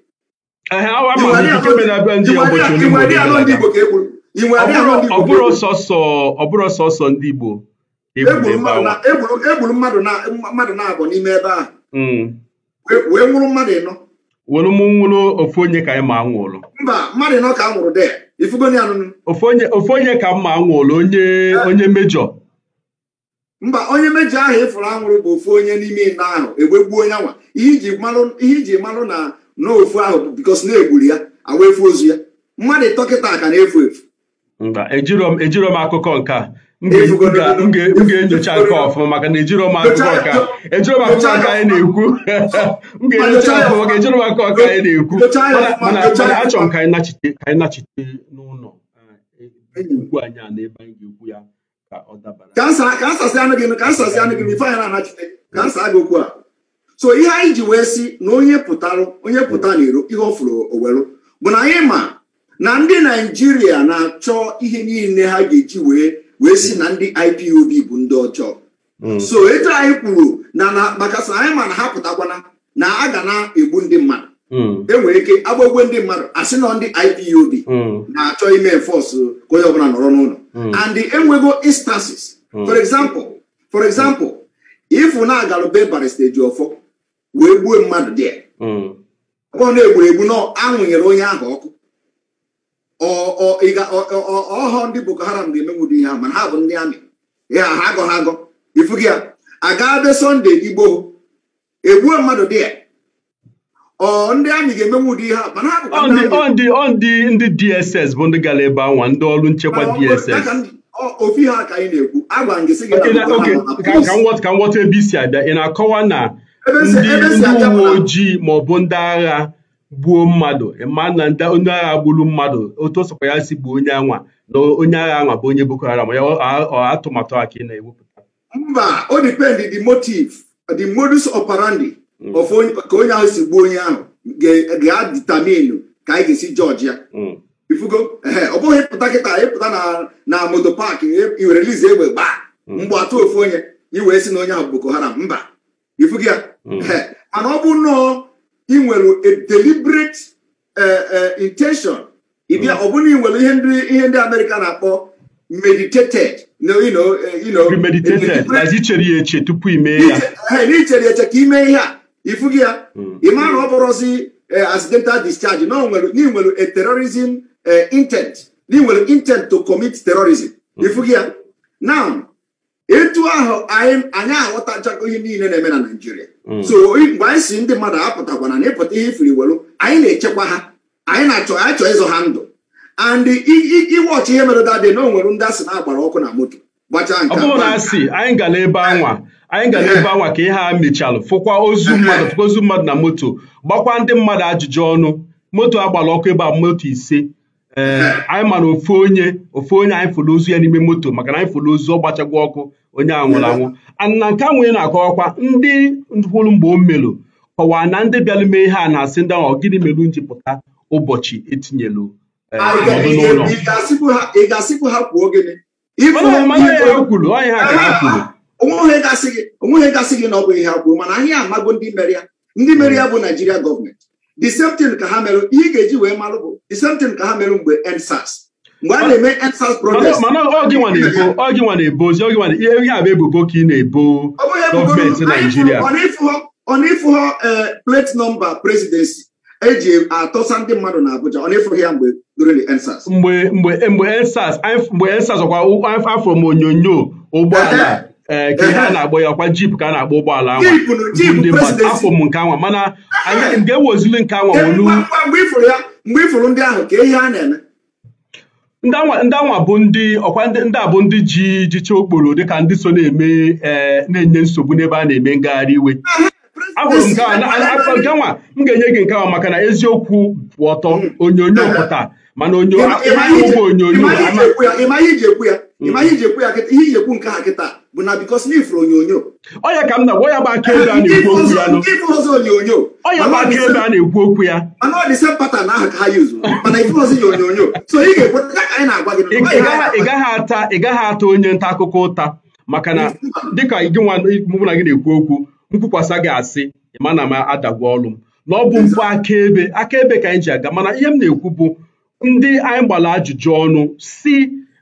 E ọbụrụ e sọsọ ọbụrụ sọsọ ndị Igbo e egburu mmadụ na agọ n'ime ebe ahụ. Hmm. wee nwụrụ mmadụ ịnọ Wụrụ m nwụrụ ofu onye ka anyị ma anwụrụ mba mmadụ ịnọ ka anwụrụ de ifugo ya anụnụ ofu onye ka mma anwụrụ onye eh. onye mejọ mba onye mejọ ahụ ịfụrụ anwụrụ bụ ofu onye n'ime ịnọ ahụ egbegbuo onye nwa ihe iji malụ na n'ofu ofu ahụ bikos na-egburu ya awa efu ozu ya mmadụ dọkịta ka na-efu efu ejiro m akụkọ nke a m ga-enyocha nke ọfụma maka na ejiro m akụkọ nke a ejiro m akụkọ nke anyị na-ekwu m ga-enyocha ọfụma ejiro m akụkọ nke anyị na-ekwu mana achọrọ m ka anyị nachite n'ụlọ ukwu anyị a ebe anyị ga-ekwu ya ka ọ dabara kansa anụ gị ife anyị na-anachite kansa aga okwu a so ihe anyị ji wee si na onye pụtarụ onye pụta n'iro ihe ọ fụrụ owelu bụ na anyị ma na ndị naijiria na-achọ ihe niile ha ga-eji wee wee si na ndị IPOB bụ ndị ọjọọ hmm. so etu anyị kwuru na maka sa anyị ma na ha pụtakwana na a ga na-egbu ndị mmadụ hmm. enwere ike agbagwe ndị mmadụ asị na ndị IPOB hmm. na-achọ ime enforce ka onye ọbụla nọrọ n'ụlọ and enwego instances for example for example ifu na-agalụbe barista ọfọ. wee gbuo mmadụ dị hmm. ọ na-egburu egbu na anwụnyere onye ahụ ọkụ ọhọ ndị boko haram ga-emenwudo ihe ahụ mana ha bụ ndị amị ya ha agọ ha agọ ifugi ya aga sọnde igbo egbuo mmadụ dị ọ ndị amị ga-emenwe ụdị ihe a mana ha bụkwa ndị DSS bụ ndị gara ebe anwa ndị ọrụ nchekwa DSS ofi ha ka ị na-ekwu agwa m gị sị gị ka m ghọta ebe isi abịa ị na-akọwa na ndị uwe ojii maọbụ ndị agha gbuo mmadụ ma na onye agha gburu mmadụ otu ọsọkwa ya si gbuo onye anwa na onye agha anwa bụ onye Boko Haram ya atụmatụ a ka ị na-ewepụta mba o dipendị the motive the modus operandi mm. ka onye ahụ si gbuo onye ahụ ga aditaminu ka anyị ga-esi jọji ya mm. ifugo ọ bụghị pụta kịta ịpụta na moto paakị i were lize egbe gbaa mm. mgbe atụ ofu onye iwee si na onye ahụ Boko Haram mba ifugi ya mana ọ bụ nnọọ ị nwere a deliberate eh, eh, intention ịbịa mm. ọ bụrụ na ị nwere ihe ndị ihe ndị Amerịka na-akpọ meditated eh, premeditated na ichere ya eche tupu ime ya n'ichere eche ka ime ihe a ifugi ya mm. ị mara na ọ bụrụzi accidental discharge na ị nwere a terrorism intent na ị nwere intent to commit terrorism ifugi mm. ya now etu ahụ anyị aghọtachago ihe niile na-eme na naijiria mm. so mgbe anyị si ndị mmadụ apụtakwana na ịpụta ihe ifiri welu anyị na-echekwa ha anyị na-achọ achọ ịzụ ha ndụ and iwọchị ihe mere dadị na onwere ndị asị na-agbara ọkụ na moto gbachaa nke ọ bụrụ na asị anyị gara ebe anwa anyị gara ebe anwa ka ihe ha mechalụ fụkwa ozu mmadụ fụkwa ozu mmadụ na moto gbakwa ndị mmadụ ajụjụ ọnụ moto agbara ọkụ ebe a moto ise Eh, anyị mara ofu onye ofu onye anyị fụrụ ozu ya n'ime moto maka na anyị fụrụ ozu ọ gbachagwa ọkụ onye a nwụrụ anwụ ana nke a nwunye na-akọwakwa ndị hụrụ mgbe o melụ kọwaa na ndị bịara mee ihe a na-asị ndị ahụ gịnị melụ ji pụta ụbọchị etinyelu eh, ah, n'ụlọ kwuru onye ha ka ha ah, kwuru onweghị gasị gị na ọ bụ ihe ha mana anyị amago ndị mere ya ndị mere ya bụ naijiria gọọmenti di same tin ka ha merụ ihe ị ga-eji wee marụ bụ same tin ka ha merụ mgbe EndSARS mgbe a na-eme EndSARS protest mana ihe ebubo ka ị na-ebo eh, plate nọmba presidensi eji atọsa ndị mmadụ na Abuja ọ na ya mgbe during mgbe mgbe mgbe EndSARS mgbe ọkwa afọ ụgbọala ee eh, ka ihe a na agba ya ọkwa jip ka a na-agba ụgbọala anwa ndị mmadụ afọ m nke anwa mana anya eh. nke wozili nke anwa wolu ndị anwa bụ ndị ọkwa ndị a bụ ndị ji jicha okporo dịka ndị so na-eme eh, na-enye nsogbu n'ebe a na-eme ngagharị iwe ahụrụ nke nwa m ga-enye gị nke anwa maka na eziokwu bụ ọtọ hmm. onyonyo pụta mana onyonyo onyonyo ihe iji ekwu ya ihe iji ekwu nke ha kịta bụ na bikos na ifuru onyonyo ọya ka m na ya bụ aka ebe a na-ekwu okwu ya ifuru ọzọ onyonyo ọya bụ aka ebe a na-ekwu okwu ya mana ọ dị sem na aha ka ha yuzu mana ifuru ọzọ ya onyonyo so ị ga-ekwe ka anyị na-agwa gị ị gaghị ata ị gaghị ata onye nta akụkọ ụta maka na dịka gị nwa na gị na-ekwu okwu nkwukwasa gị asị ma na m adagwa ọlụ m na ọ bụ mpụ akaebe akaebe ka anyị ji aga mana ihe m na-ekwu bụ ndị anyị gbara ajụjụ ọnụ si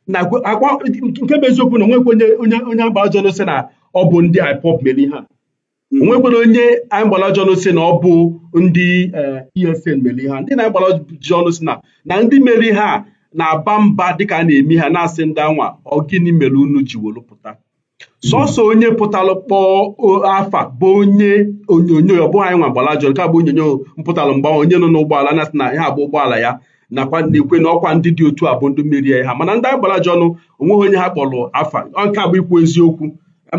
na akwa nke bụ na onwekwe onye onye agba ajọlụ si na ọ bụ ndị IPOB mere ihe a hmm. onwekwere onye anyị gbara si na ọ bụ ndị EFN eh, e mere ihe a ndị na-agbara ọjọnụ si na na ndị mere ihe a na-aba mba dịka a na-eme ha na-asị ndị anwa ọ gịnị mere unu ji wolu pụta hmm. sọsọ onye pụtalụ kpọọ afa bụ onye onyonyo ọ bụghị anyị nwa gbara ajọnụ ka bụ onyonyo mpụtalụ mgbanwe onye nọ n'ụgbọala na-asị na ihe abụ ụgbọala ya nakwa na-ekwe na ọkwa ndị dị otu a bụ ndị merie ha mana ndị agbara ji ọnụ onweghị onye ha kpọrọ afa nke bụ ikwu eziokwu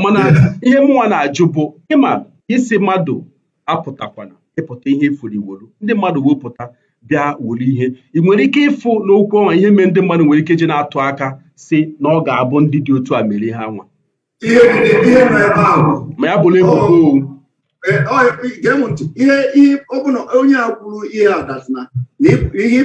mana ihe mụnwa na-ajụ bụ ịma isi mmadụ apụtakwana ịpụta ihe ifuru iwolu ndị mmadụ wepụta bịa wuru ihe ị nwere ike ịfụ n'okwu ọnwa ihe mee ndị mmadụ nwere ike ji na-atụ aka si na ọ ga-abụ ndị dị otu a merie ha nwa ma ya bụrụ ebubo gee m ntị ihe ọbụla onye a kwuru ihe adatna na ihe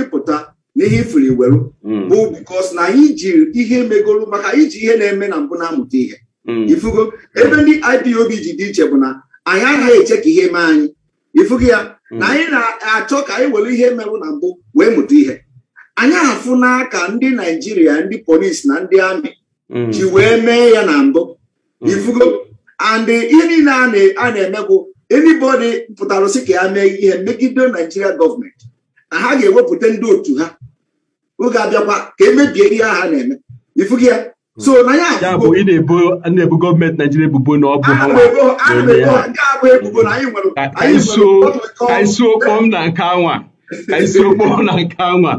ịpụta na ihe ifiri weru hmm. bụ bikos na anyị jiri ihe megolu maka iji ihe na-eme na mbụ na-amụta ihe hmm. ifugo ebe ndị IPOB ji dị iche bụ na anyị agaghị eche ka ihe mee anyị ifugo ya hmm. na anyị na-achọ ka anyị were ihe merụ na mbụ wee mụta ihe anyị afụ n'aka ndị naijiria ndị polisi na ndị amị ji wee mee ya na mbụ ifugo and ihe niile a na-emegwụ anybody pụtara si ka ya mee ihe megide naijiria gọọmenti na ha ga-ewepụta ndị otu ha oge abịakwa ka emebie ihe ha na-eme ifughị ya so na ya bụ ị na-ebo gọọmenti naijiria ebubo na ọ bụ isiokpom na nke anwa ka isiokpom na nke anwa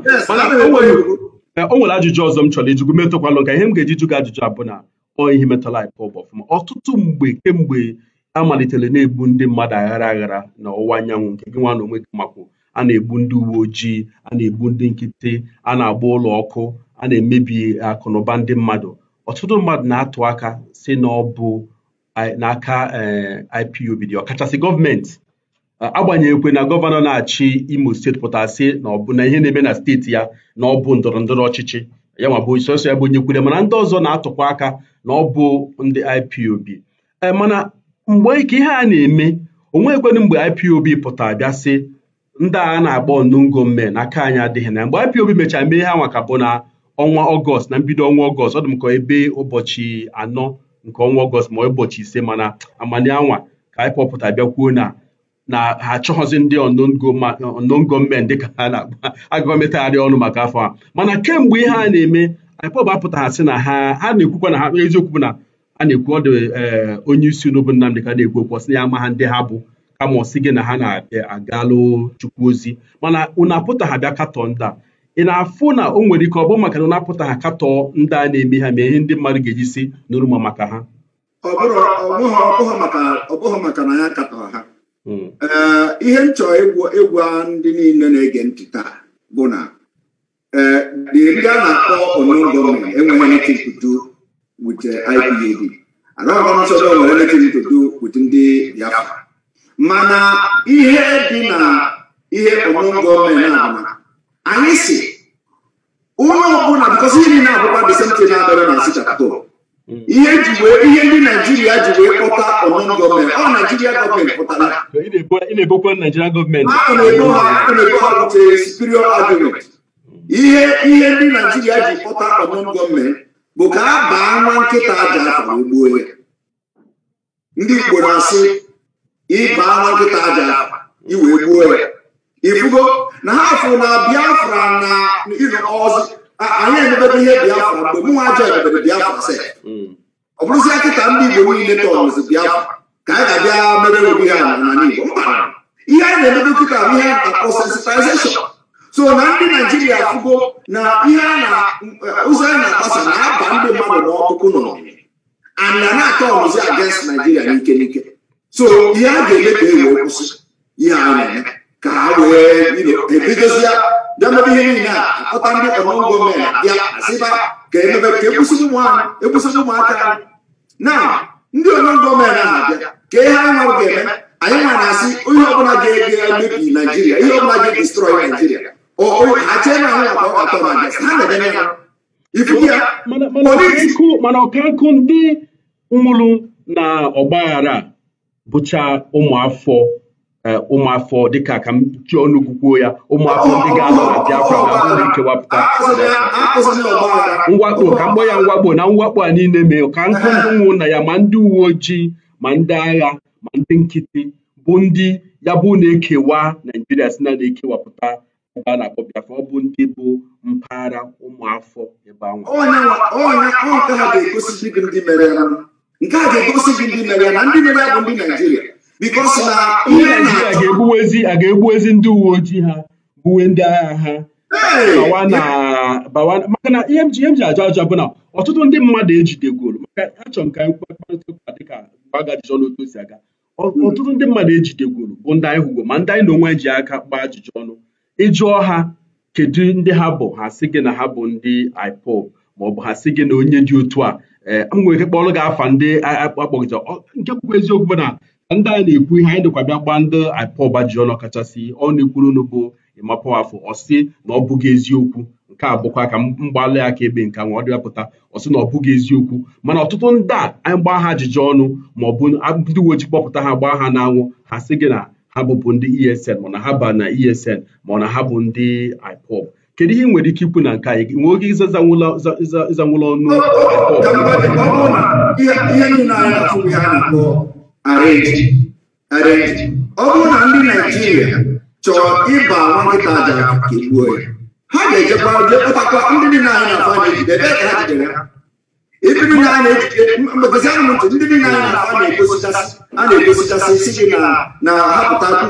o nwere ajụjụ ọzọ m chọrọ ijugwu metụkwalụ nka ihe m ga-eji jụ ajụjụ abụ na ọ ihe metụla anyị ọtụtụ mgbe kemgbe a malitere na-egbu ndị mmadụ aghara aghara na ọwụwa anyanwụ nke gị nwa na onwe gị makwu a na-egbu ndị uwe ojii a na-egbu ndị nkịtị a na-agba ụlọ ọkụ a na-emebi akụ ndị mmadụ ọtụtụ mmadụ na-atụ aka si na ọ bụ eh, n'aka eh, IPOB dị ọkachasị gọọmenti agbanyeghịkwe na gọvanọ na-achị Imo steeti pụtara na ọ bụ na ihe na-eme na steeti ya na ọ bụ ndọrọ ndọrọ ọchịchị ya nwa bụ sọsọ ya bụ onye kwule mana ndị ọzọ na-atụkwa aka na ọ bụ ndị IPOB eh, mana mgbe ka ihe a na-eme onweghịkwenụ mgbe IPOB pụtara bịa sị ndị a na-akpọ nungo mme na aka anyị adịghị na mgbe IPOB mechara mee ihe a nwaka bụ na ọnwa ọgọst na mbido ọnwa ọgọst ọ dị m ka ebe ụbọchị anọ nke ọnwa ọgọst ma ụbọchị ise mana amani anwa ka IPOB pụtara bịa kwuo na na ha achọghọzi ndị unknown gọọmenti dịka ha na-agba agụgọmetagharị ọnụ maka afọ a mana kemgbe ihe a na-eme IPOB apụtagha sị na ha ha na-ekwukwa na ha eziokwu bụ na a na-ekwu ọ dị eh, onye isi unu bụ Nnamdị ka na-ekwu okwu ọsị ya amaha ha ndị ha bụ kama ọsị gị na ha na-agalụ eh, chukwu ozi mana unu apụtagha bịa katọ ndị a ị na-afụ na o nwere ike ọ bụ maka na na-apụtagha katọ ndị a na-eme ha ma ihe ndị mmadụ ga-eji si nụrụ ma maka ha ọ bụghị maka na ya ha ee eh, ihe m chọrọ egwu ndị niile na-ege ntị taa bụ na ee dịrị a na-akpọ onon gọọmenti enweghị anything to do with IPOB arọgọnsọdọ nwere anything to do with ndị Biafra mana ihe dị na ihe onon gọọmenti na anyị si onye ọbụla bikọsi ihe na abụkwa disenti na-adọrọ na asịchapụtụ Mm. ihe ihe ndị naijiria ji wee kpọta ọnọn gọọmenti ọ naijiria gọọmenti pụtara na-ebokwa naijiria gọọmenti a na-ebo ha butere superior argument ihe ihe ndị naijiria ji kpọta ọnọn gọọmenti bụ ka a baa nwa nkịta aja afọ ugbuo ya ndị igbo na-asị ịbaa nwa nkịta aja afọ iwee gbuo ya ifugo na ha afọ na abịa biafra na ịnọ ọzọ anyị emebebe ihe biafra mgbe mụ nwa ajọ emebere biafra sef mm. ọ bụrụzi akịta ndị igbo niile tọrọzi biafra ka anyị ga-abịa mere obi ha n'ala igbo ihe anyị na-emebe kịta bụ ihe akpọ so na ndị naijiria afụgo na ihe eh, ụzọ anyị na-akpasa na-aba ndị mmadụ n'ọkụkụ nọ and na na-atọ ọnụzi against naijiria n'ike n'ike so ihe a ga-eme ewe kwụsị ihe anyị na-eme ka ha wee ebidozie bịa mebe ihe niile a kpọta ndị ọmụmụ gọọmenti bịa asịba ka emebe ka e e ekwusi ụmụaka ụmụaka na ndị ọmụmụ gọọmenti ahụ abịa ka ihe anyị nwa ga-eme anyị nwa na-asị ihe ọbụla ga-emebi naijiria ihe ọbụla ga-edistrọị naijiria ha chee na akpa ọkatọ na ha na-eme ya ifuku ya mana ọkankụ ndị nwụrụ na ọgbaghara bụcha ụmụafọ Eh, ụmụafọ dịka ka m ji ọnụ kwukwuo ya ụmụafọ ndị ga-anọ na Biafra na-abụ ndị nkewapụta mwakpo ka mkpọ ya mwakpo na mwakpo a niile mee ka nkụ ndị ụmụnna ya ma ndị uwe ojii ma ndị agha ma ndị nkịtị bụ ndị ya bụ na-ekewa Naijiria si na na-ekewapụta ebe a na-akpọ Biafra ọ bụ ndị bụ mpaghara ụmụafọ ebe ahụ nke a ga-egosi gị ndị mere ya na ndị Naijiria Uh, uh, a ga-egbuwezi ndị uwe ojii ha gbuwe ndị agha ha maka na ihe m ji ajụ ajụ bụ na ọtụtụ ndị mmadụ ejidegoro maka achọrọ m ka anyị kparịta ụka dịka agha ajụjụ n'otu o si aga hmm. ọtụtụ ndị mmadụ ejidegoro bụ ndị anyị hụgo ma ndị anyị na onwe ji aka kpaa ajụjụ ọnụ ịjụọ ha kedu ndị ha bụ ha sị gị na ha bụ ndị IPOB maọbụ ha sị gị na onye dị otu a eh, nwere ike kpọrọ gị afa ndị akpọgịta nke kwukwa eziokwu na ndị anyị na-ekwu ihe anyị dịkwa bịa gbaa ndị IPOB ji ọnụ kachasị ọ na-ekwuru unu bụ ịmapụ afọ na ọ bụghị eziokwu nke a bụkwa ka mgbalị akaebe nke nwa ọ dịwapụta ọsị na ọ bụghị eziokwu mana ọtụtụ ndị a anyị gbaa ha ajụjụ ọnụ ma ọ bụ ndị uwe ojii kpọpụta ha gbaa ha n'anwụ ha sị gị na ha bụbụ ndị ESN mana ha ba na ESN na ha bụ ndị IPOB kedu ihe ị nwere ike ikwu na nke anyị nwee oge ịzanwụla ọnụ IPOB arrest arrest ọ bụrụ na ndị naijiria chọọ ịba nwankịta ajara dị ya ha ga-ejekwa jee ndị dị anyị na-afọ anya ejide ebe ha jidere ha ibi na-ejide mgbebezi ntụ ndị niile anyị na-afọ a na-egosichasị si gị na na hapụta ha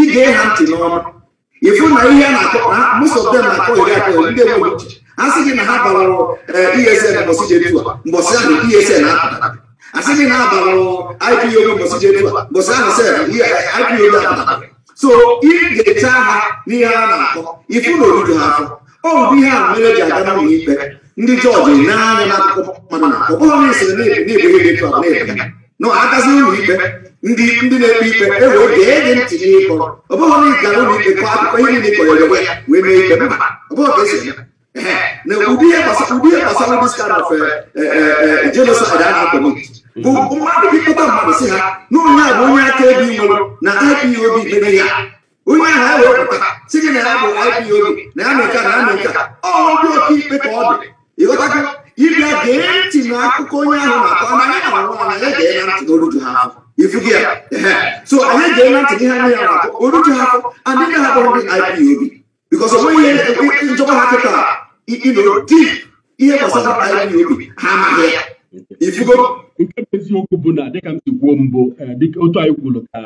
ige ha ntị ịfụ na ihe a na-akọ iri akọ ndị uche sị gị na ha eh, e ahụ e na apụtara asịghị na abalụ ipo mbọchị mbọchị ahụ sef ipo apụta so ị ga-eche ha n'ihe a na-akọ e ifu e e na oriju ha afọ ọ bụ ihe a mere ji aga n'ụlọ ikpe ndị jọji na-anya n'akụkọ mmadụ na ọ bụghị na esere na-ebu ihe dị tụọ na-ebe na agazi ụlọ ikpe ndị ndị na-ekpe ikpe e wee gee gị ntị n'ịkọ ọ bụghị na ị gara ụlọ ikpe kọọ akụkọ ihe niile kọrọ ewe wee mee ikpe mba ọ bụghị ka esi eme na ụdị ihe gbasara ụdị skandal jenoside a na-akọ n'otu mmadụ bipụta mmadụ si ha na onye a bụ onye aka ebi nwere na ipob mere ya onye ahụ a wepụta si gị na ya bụ ipob na ya meka na ya meka ọhụrụ ndị oke ikpe ka ọ dị ịghọtago ịbịa gee ntị na akụkọ onye ahụ na-akọ na anyị ahụ nwa ya gee na ntị na oluju ha afọ ifugi ya so anyị gee na ntị gị ha nye ya na oluju ha afọ adịghị ha bụrụ ndị ipob bikọs ọ nweghị ihe njọba ha kịta na ụdị ihe gbasara ipob ha amaghị ya nke bụ eziokwu bụ na dịka m si kwuo mbụ e, otu anyị kwuru ka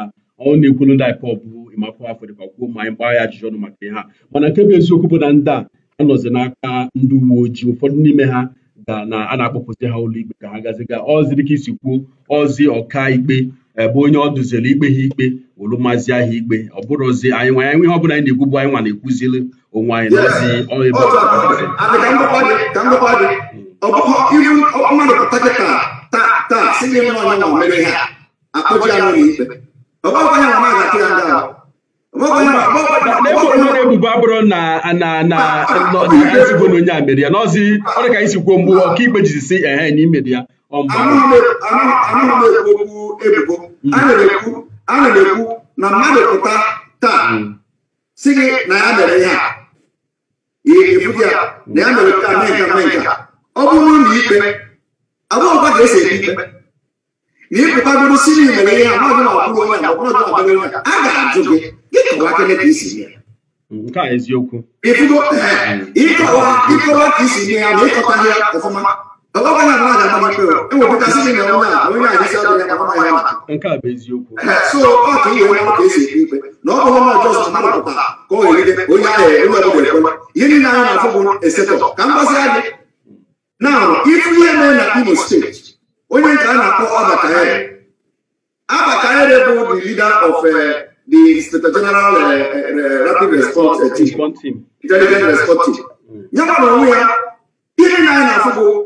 ọ na-ekwuru ndị anyị pọp bụ ịmakwa afọ dịkwa kwuo ma anyị gbaa ya ajụjụ ọnụ maka ihe a mana nke bụ eziokwu bụ na ndị a anọzi n'aka ndị uwe ojii ụfọdụ n'ime ha ga na a na-akpọpụzi ha ụlọ ikpe ka ha gaziga ozi dịka isi kwuo ozi ọka ikpe ebe onye ọ duziri ikpe ha ikpe wụrụ mazi ikpe ọ bụrụzi anyị nwa anyị ihe ọ bụla anyị na-ekwu bụ anyị nwa na-ekwuzili onwe anyị na ozi ebe Opo yu yu o ma no ta ta ta ta si ni no no me ha. Apo ja no ni Opo ko nya ma ga ti anda. ebubo abụrụ na na na ezigbo na onye a mere ya n'ọzi ọ dị ka anyị si kwuo mgbe ọkaikpe jiri si ehe na imere ya ọmgbe a na-ekwu na mmadụ pụta taa si gị na ya mere ihe a na ya mere ya na ya mere nke a mee nke a mee nke ọ bụrụ na ikpe agwụkwa ka esi ekpe ikpe na ịpụta bụrụ si na imere ihe amaghị na ọbụrụ onye na ọbụrụ na ọbụrụ onye a ga-ajụ gị gị kọwa kele ka isi ya nke a eziokwu ịfụgo ịkọwa ịkọwa ka isi nye ya na ịkọta ya ọfụma ọgọgọ na mmadụ amaghị ikpe ewepụtasị gị na onye a onye a jisi adịghị akpama ya maka nke a bụ eziokwu so ọ ka ihe onye ka esi ekpe ikpe na ọ bụrụ na ọjọọ sọ mmadụ pụtara ka ọ ghere onye ahụ onye ọbụla ekwe ihe niile anyị na-afụ bụ esetọ ka mgbasị adị na ifu ihe na Imo steeti onye nke a na-akpọ Abakayere Abakayere bụ the leader of uh, the State General uh, uh, Rapid Response Team Response Team ya na onwe ya ihe na anyị na-afụ bụ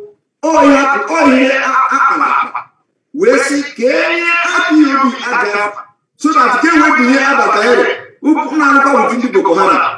wee sị ka enye ihe obi aga so na nke wepụ ihe Abakayere ụkwụ na ndị Boko Haram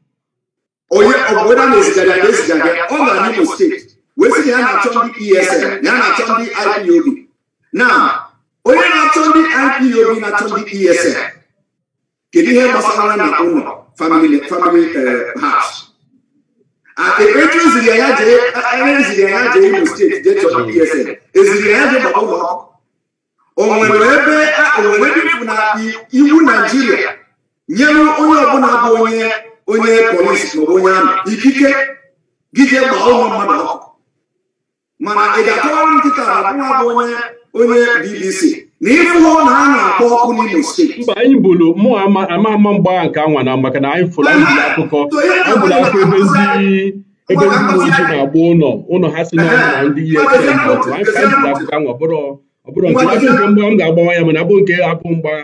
onye ọbụla na-ezigara ya ezigara ọ steeti wee na ya na-achọ ndị e ya na-achọ ndị IPOB na onye na-achọ ndị IPOB na-achọ ndị ESN kedu ihe gbasara na ụlọ family eziri ya jee Imo steeti jee chọrọ ndị eziri e ya jee gbaba ụlọ ebe onwere iwu na Naịjirịa nyere onye ọbụla bụ onye onye polisi ma onye amị ikike gị jee ụmụ mmadụ ọkụ mana ị ga-akọwara nkịta abụọ bụ onye onye bbc na ịfụhụ na a na-akpọ ọkụ n'ime steeti mba anyị bụrụ mụ ama ama mgbagha nke anwa na maka na anyị fụrụ akụkọ abụrụ akụkọ ebe ndị ebe ndị ojii na-agba ụlọ ụlọ ha si n'ọnụ na ndị ihe anyị fụrụ akụkọ anwa ọ bụrụ nke m ga-agbawa ya mana abụ nke abụ mgbagha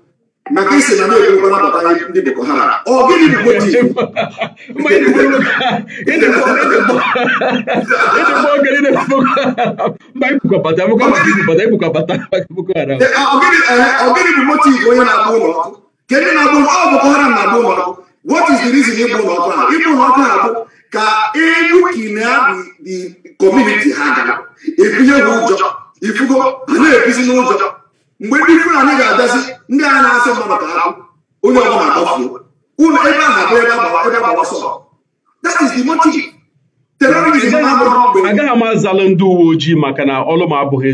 maka isi na na-ekwekwa nabata ndị boko haram ọ gịnị bụ motiv ọgịnị bụ e, motiv onye na-agba ụlọ ọkụ ndị na-agba ụlọ ọ boko haram na-agba ụlọ ọkụ what ụlọ ọkụ ha ụlọ ọkụ ha bụ ka edukina the community ha ụjọ ifugo na-ebizi n'ụjọ mgbe ndị fulani ga-agazi ndị a na asị mmadụ ka onye ọbụla ụlọ ebe a na-abụ ebe ebe agbawa sọ agaghị m azalụ ndị uwe ojii maka na ọlụ m abụghị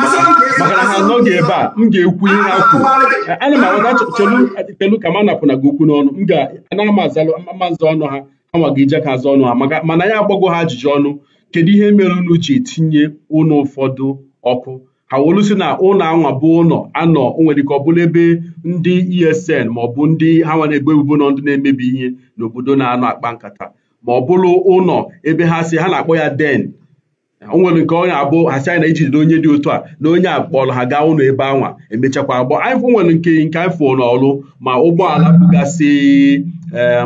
maka na ha anọghị ebe a m ga-ekwu ihe ha kwuru ana m awada chelu ka ma gị okwu n'ọnụ m ga-anaghị m azalụ mazụ ọnụ ha ije ka azụ ọnụ ha mana ya agbago ha ajụjụ ọnụ kedu ihe mere unu ji ụfọdụ ọkụ ha wolusi na ụlọ anwa bụ ụlọ anọ o nwere ike ọ bụla ebe ndị esn ma ọ bụ ndị ha nwa na-egbu ebubo nọ ndị na-emebi ihe n'obodo na-anọ akpa nkata ma ọ bụrụ ụlọ ebe ha si ha na-akpọ ya den o nwere nke ọ abụ ha anyị na ijidere onye dị otu a na onye a kpọrọ ha gaa ụlọ ebe anwa emechakwa agbọ anyị nwere nke nke anyị fụ n'ọrụ ma ụgbọala bugasị eh,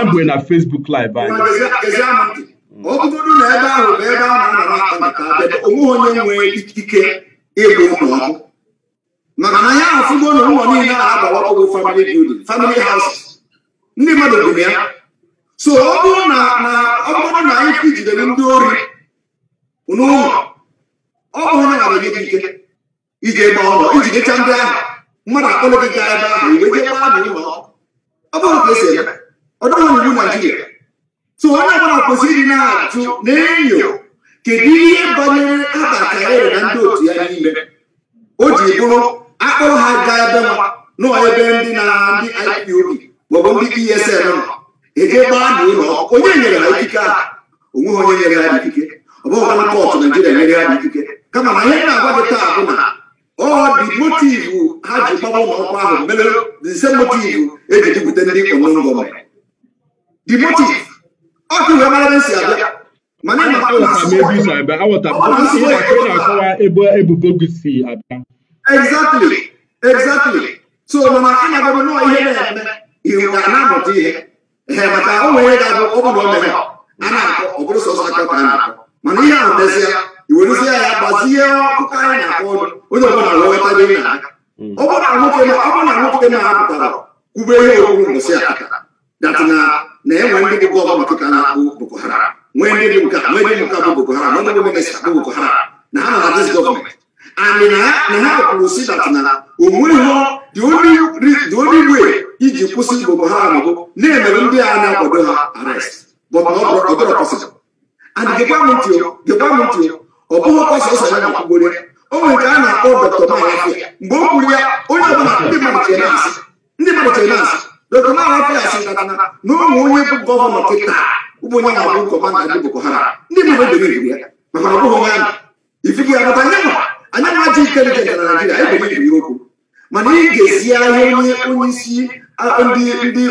abụghị na fesbuk live anyị ọ bụgodu na ebe ahụ bụ ebe a na-anọrọ onwe onye nwee ike ịgba ụlọ ọkụ maka na ya afụgo na ụlọ niile a na-agbawapụgo family building family house ndị mmadụ bụ ya so ọ bụrụ na na ọ bụrụ ike jidere ndị ori n'ụlọ ọ bụrụ na arụ gị ike iji gba ụlọ ijidecha ndị ahụ mmadụ akpọlụ gị gaa ebe ahụ iwe jee gbaa na ụlọ ọ bụrụ ka esi eme ọ dịghị iwu Naịjirịa so onye ọbụla kwesịrị ịdị na-ajụ na-enyo kedu ihe banyere abata ere na ndị otu ya n'ime o ji bụrụ akpọrọ ha gaa ebe nwa nọọ ebe ndị na ndị IPOB maọbụ ndị ESN nọ eje gbaa na ụlọ onye nyere ha ikike ahụ onweghị onye nyere ha ikike ọ bụghị ọbụla kọtụ Naijiria nyere ha ikike kama na ihe na-agwa gị taa bụ na ọ dị motivu ha ji gbawa ụlọ ọkwa ahụ mere dị motivu eji jupụta ndị ọnụngọ mere dị motiv na-akọwa ebe ebubo gị si abịa exactly exactly so na-agbago ihe na-eme iwu na-amụta ihe ee maka o nwere ga-abụ ọbụna o a na-akọ sọsọ aka ka a na-akọ mana ihe ahụ mezie iwerezie ya gbazie ọkụkọ anyị na-akpọ onye ọbụla dị na ọ bụrụ na nwoke na-apụtara kwube ihe owuwu data na na-enwe ndị bụ ọgba ka na-akpụ Boko hara nwee ndị bụ ka bụ Boko Haram ndị bụ bụ Boko hara na ha na dis gọọmenti and na ha kwuru si dat na onweghị the only way iji kwụsị Boko bụ na-emere ndị a na-akwado ha na ọ bụrụ m ntị m ntị ọ bụghị na o nwere nke a na-akpọ dọkịta onye ọbụla dọkịta na-arapụ ya sị nkata na ụmụ onye bụ gọvanọ kịta ụmụ onye na-abụ kọmanda ndị boko haram ndị bụ ebere ibu ya maka ọ bụghị onye ifike ya bata anya anya nwa ji ike nke na naijiria ebere ibu okwu mana ị ga-esi ahịa onye onye isi ndị ndị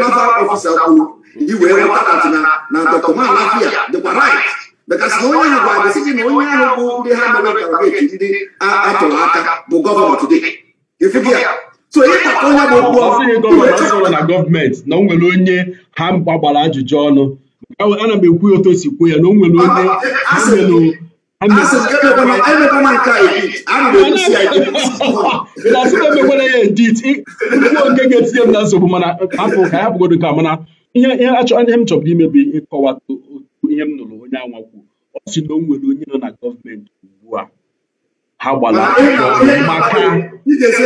naval ọfisa kwuru iwee nweta atị na dọkịta na-arapụ ya dịkwa right bekasị na onye ha gwara gị na onye ahụ bụ ndị ha mere karageti ndị atụrụ aka bụ gọvanọ today ifike ya onye ịtaka onye na gọọmenti na o nwere onye ha gbagbara ajụjụ ọnụ ana m ekwu si kwuo ya na o nwere onye e ya edit nke ga-etinye m na nsogbu mana hapụ ka ka mana ihe m imebi ihe m nụrụ onye anwa kwuo ọ si na o nwere onye nọ na gọọmenti ha gbara maka m ga-ege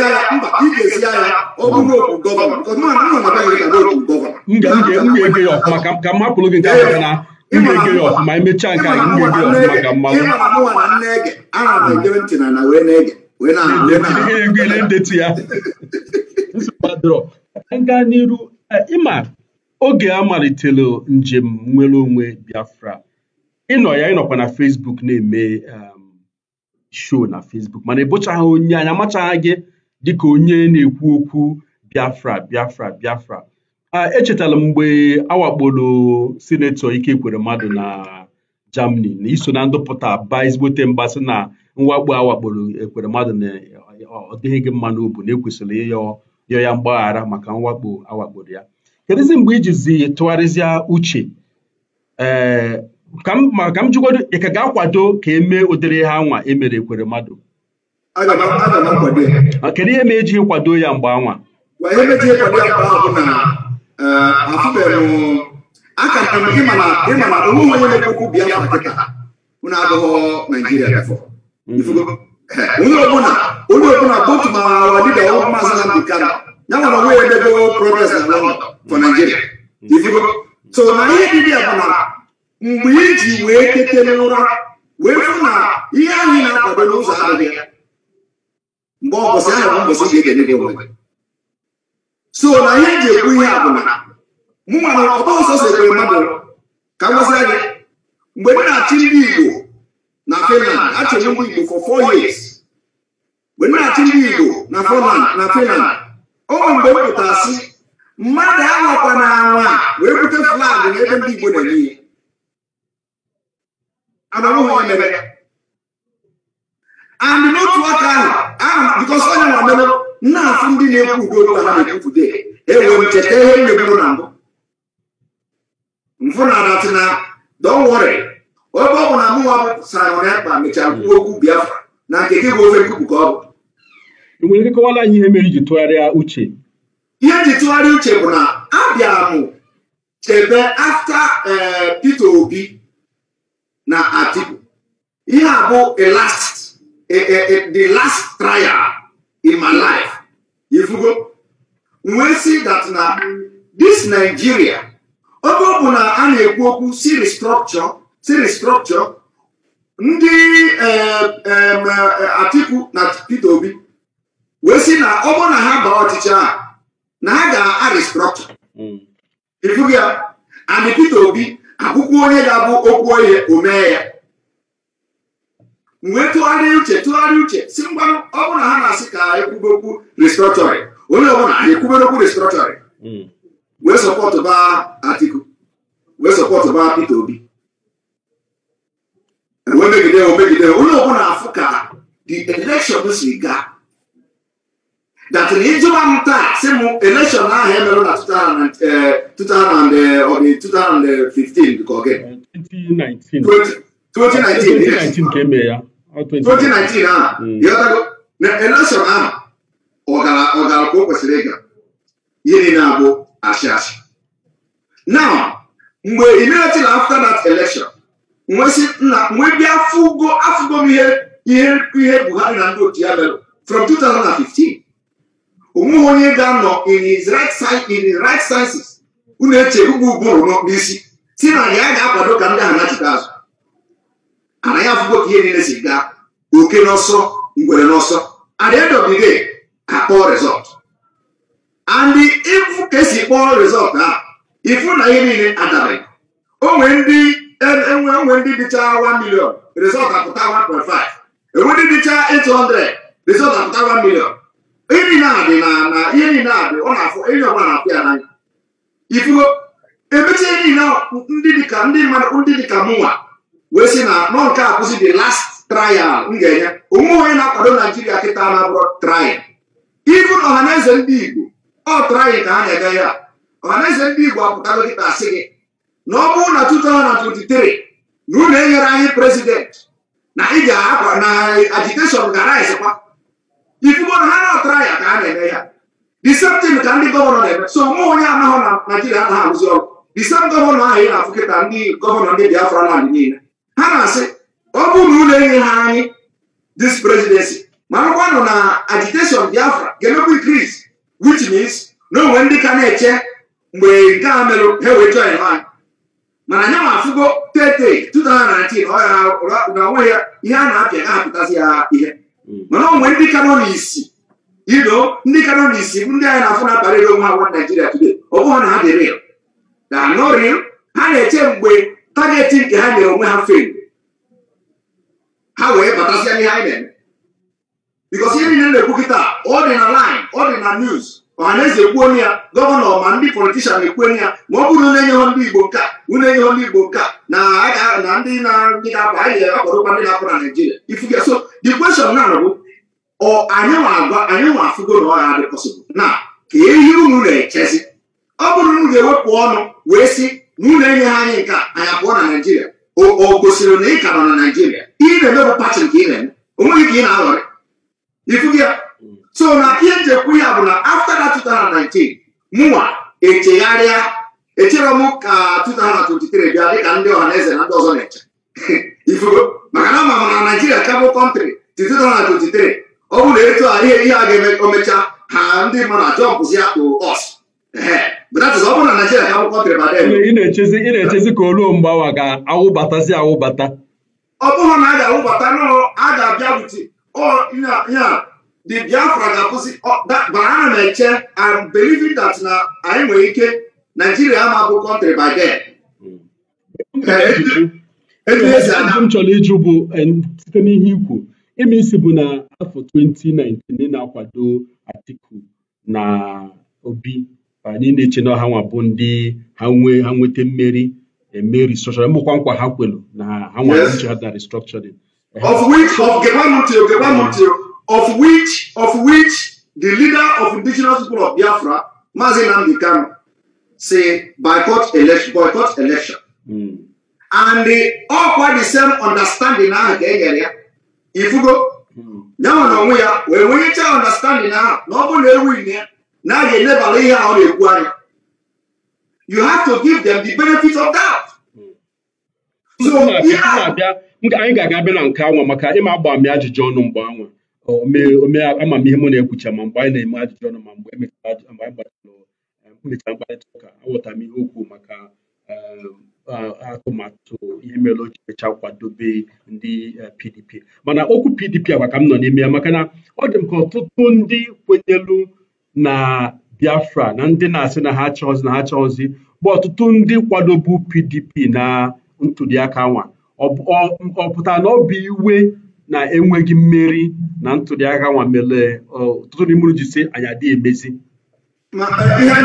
ya ọfụma ka m hapụrụ gị nke ahụ na m ga-ege ya ọfụma emechaa nke anyị m ga-ege ya ọfụma ka mmanwụ ndetu ya gaa n'iru ịma e, oge a malitere njem nwere onwe Biafra ịnọ ya ịnọkwa na Fesbuk na-eme um, show na Facebook mana ịbụchaghị onye anya amachaghị gị dịka onye na-ekwu okwu Biafra Biafra Biafra echetala m mgbe awakporo sinetọ kwere mmadụ na Germany na iso na ndụpụta baa ezigbote mba sị na mwakpo awakporo ekwere mmadụ na ọ dịghị gị mma n'obu na ekwesịrị ịyọ ya mgbaghara maka mwakpo awakporo ya kedụzi mgbe ijizi uche eh, ka m jikwado ị ka ga-akwado ka emee ụdịrị ha anwa emere ekwere mmadụ ah, kedu ihe ma ejighị kwado ya mgbe anwa e eh, m onye na mm-hmm. eh, onye ọbụla ma maazị na. ya nwere onwe ya na London for Nigeria mm-hmm. so na ihe dibia bụ mgbe iji wee kete n'ụra wee fụ na ihe anyị na-akwado n'ụzọ adịghị ya mgbe ọbọchị ahụ mbọchị ga-egenye gị nwe so na ihe eji ekwu ihe a bụ na mụ nwa na ọtọ nsọ so ekwere mmadụ ka ngwazia gị mgbe m na-achị ndị Igbo na Finland achịrị ndị Igbo for four years mgbe m na-achị ndị Igbo na Finland na Finland ọ bụ mgbe m pụtara sị mmadụ anwakwa na anwa wee bute flag n'ebe ndị Igbo na-enye and n'otu aka ahụ bikọs onye nwa mere nna afụ ndị na-ekwu udo ụta na ekwude ewe m cheta ihe nyegburu na mbụ mfụ na adati na don't worry ebe ọ bụ na mụnwa bụ sarịrị akpa mechaa kwuo okwu biafra na nke gị bụ ofe nkuku ka ọ bụ nwere kọwara anyị ihe mere iji tụgharịa uche ihe ji tụgharịa uche bụ na abịara m chebe afta eh, Peter Obi na Atiku ihe a bụ a last a a the last trial in my life ifugo wee si that na this Nigeria oge ọ bụ na a na-ekwu okwu si restructure si restructure ndị eh, eh, Atiku na Peter Obi wee si na ọ bụrụ na ha baa ọchịchị a na ha ga-a restructure ifugo hmm. ya and Peter Obi akwụkwọ onye ga-abụ okwu ohe o mee ya wee tụgharịa uche tụgharịa uche si mgbanụ ọ bụrụ na ha na-asị ka anyị kwube okwu restructuring onye ọbụla anyị kwubere okwu restructuring hmm. wee sọpọtụ ba Atiku wee sọpọtụ ba Peter Obi wee megide omegide onye ọbụla afụ ka the election si gaa That ni ijọba m taa election ahụ emere in 2015 ka ọ gị 2019 ka emee ya 2019 a ịghọtago na election ahụ ọ gara ọ gara ka now we immediately after that election we nna nwe bịa afụgo afụgo m ihe ihe Buhari na ndị from 2015 onweghị onye ga-anọ in his right side in unu eche ugbu ụbụrụ n'isi si na ya ga-akwado ka ndị ahụ nachite azụ ana ya afụgo ka ihe niile si gaa oke n'ọsọ ngwere n'ọsọ at the end of the ka kpọọ rezọt and ịfụ na ihe niile onwe ndị enwe e ndị dịcha 1 million apụta 1.5 enwe ndị dịcha 800 apụta 1 million ihe dị na na ihe a dị ọ na-afụ na ya n'anya ifugo emechi ihe niile ndị dịka ndị mmadụ ndị dịka mụnwa wee sị na nọ nke a kwụsị the last trial m ga-enye onwe onye na-akwado naijiria kịta na-abụrụ trial na ọhaneze ndị igbo ọ trial ka ha na-ege ya ọhaneze ndị igbo apụtago dịka asị gị na ọ bụrụ na 2023 na unu enyere anyị prezident na ị ga-akwa na agiteshọn ga-araizikwa ifugo na ha na-atara ya ka ha na-eme ya diseptin ka ndị gọvanọ na-eme so mụ onye anaghị na naijiria anaghị arụzi ọrụ disem gọvanọ ahụ ị na-afụ kịta ndị gọvanọ ndị biafra naanị niile ha na-asị ọ bụ na ụlọ enye ha anyị dis presidency ma akwụkwọ na agitation biafra ga-emekwa increase which na onwe ndị ka na-eche mgbe nke a merụ ha wee join ha mana anya ma afụgo tete 2019 ọ ya na onwe ya ihe a na-apịa ga-apụtasị ya ihe Mm. mana onwe ndị ka nọ n'isi iro ndị ka nọ n'isi ndị anyị na-afụ na akparịrị onwe agwọ naijiria today ọ bụghị na ha dị real na no ha na-eche mgbe tageti nke ha nyere onwe ha fel ha wee batasịa n'ihe anyị na-eme bikos ihe niile na-ekwu kịta ọ dị na line ọ dị na news ọhaneze ekwuonu ya gọvanọ ma ndị politishan ekwuonu ya ma ọ bụrụ na enyeghọ ndị igbo nke a unu enyeghọ ndị igbo nke a na na ndị na-ndị na-apụ anyị akpọrọkwa ndị na-apụ na naijiria ifuge so the question na bụ anyị nwa agwa anyị nwa afụgo na ọ ha dị pọsịbụl na ka ehi unu na-echezi ọ bụrụ na unu ga-ewepụ ọnụ wee sị na unu enyeghị anyị nke a anyị pụọ na naijiria o gosiri na ị ka nọ na naijiria ị na-emebụ pati nke ị na-eme onweghị ka ị na-aghọrị ifuge ya so na ihe m ya bụ na after that 2019 mụnwa echegharịa echere m ka 2023 bịa dịka ndị ọha na eze na ndị ọzọ na-eche ifugo maka na ama m na naijiria kabụ kọntrị ti 2023 ọ bụrụ na etu a ihe ihe a ga-emecha ha ndị mmadụ ajọ mpụzi ya to us ị na-echezi ka oluo mgbawa ga-awụbatazi awụbata ọ bụrụ na a ga-awụbata a ga-abịa ihe a the biafra ga-akwụsị mana ana m eche am believing that na anyị nwere ike naijiria ama bụ kọntrị by then m chọrọ ịjụ bụ site n'ihe ikwu ime isi bụ na afọ 2019 na-akwado Atiku na Obi anyị na-eche na ọha nwa bụ ndị ha nwee ha nweta mmeri eme restructuring bụkwa nkwa ha kwelu na ha nwa nche ha na restructuring of which of gebanụtio gebanụtio of which of which the leader of indigenous people of Biafra, Mazi Nnamdi Kanu, say boycott election, boycott election. Mm. And they all quite the same understanding ahụ ka e nyere ya ifugo ya na onwe ya wee nwenyechaa understanding ahụ na ọ bụla ewu ya na a ga-elebara ihe ahụ na-ekwu anya you have to give them the benefit of that. so ihe anyị ga-aga bịa na nke anwa maka ịma agba m ajụjụ ọnụ mgbe anwa omee amamihe m na-ekwucha ma mgbe anyị na-eme ajụjụ ọnụ ma mgbe mmecha e e, mkparịta ụka aghọtara m ihe okwu maka e, atụmatụ ihe mere o ji mecha kwadobe ndị PDP mana okwu PDP agwa ka m nọ n'ime ya maka na ọ dị m ka ọtụtụ ndị kwenyelu na Biafra na ndị na-asị na ha chọzi na ha chọzi bụ ọtụtụ ndị kwadobu PDP na ntụliaka nwa ọ pụtara na ọ bụ iwe na-enweghị mmeri na ntụliaka nwa mere ọtụtụ n'ime unu ji si anyị adị emezi e, ihe a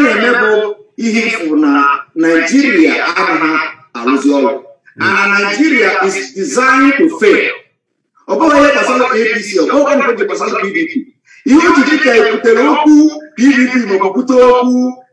na-eme bụ ihe ịfụ na naijiria anaghị arụzi ọrụ and naijiria is designed to fail ọ bụghị ihe gbasara apc ọ bụghị nke ji gbasara pdp ihe ojiji ka ebutere okwu pdp maọbụ ọ okwu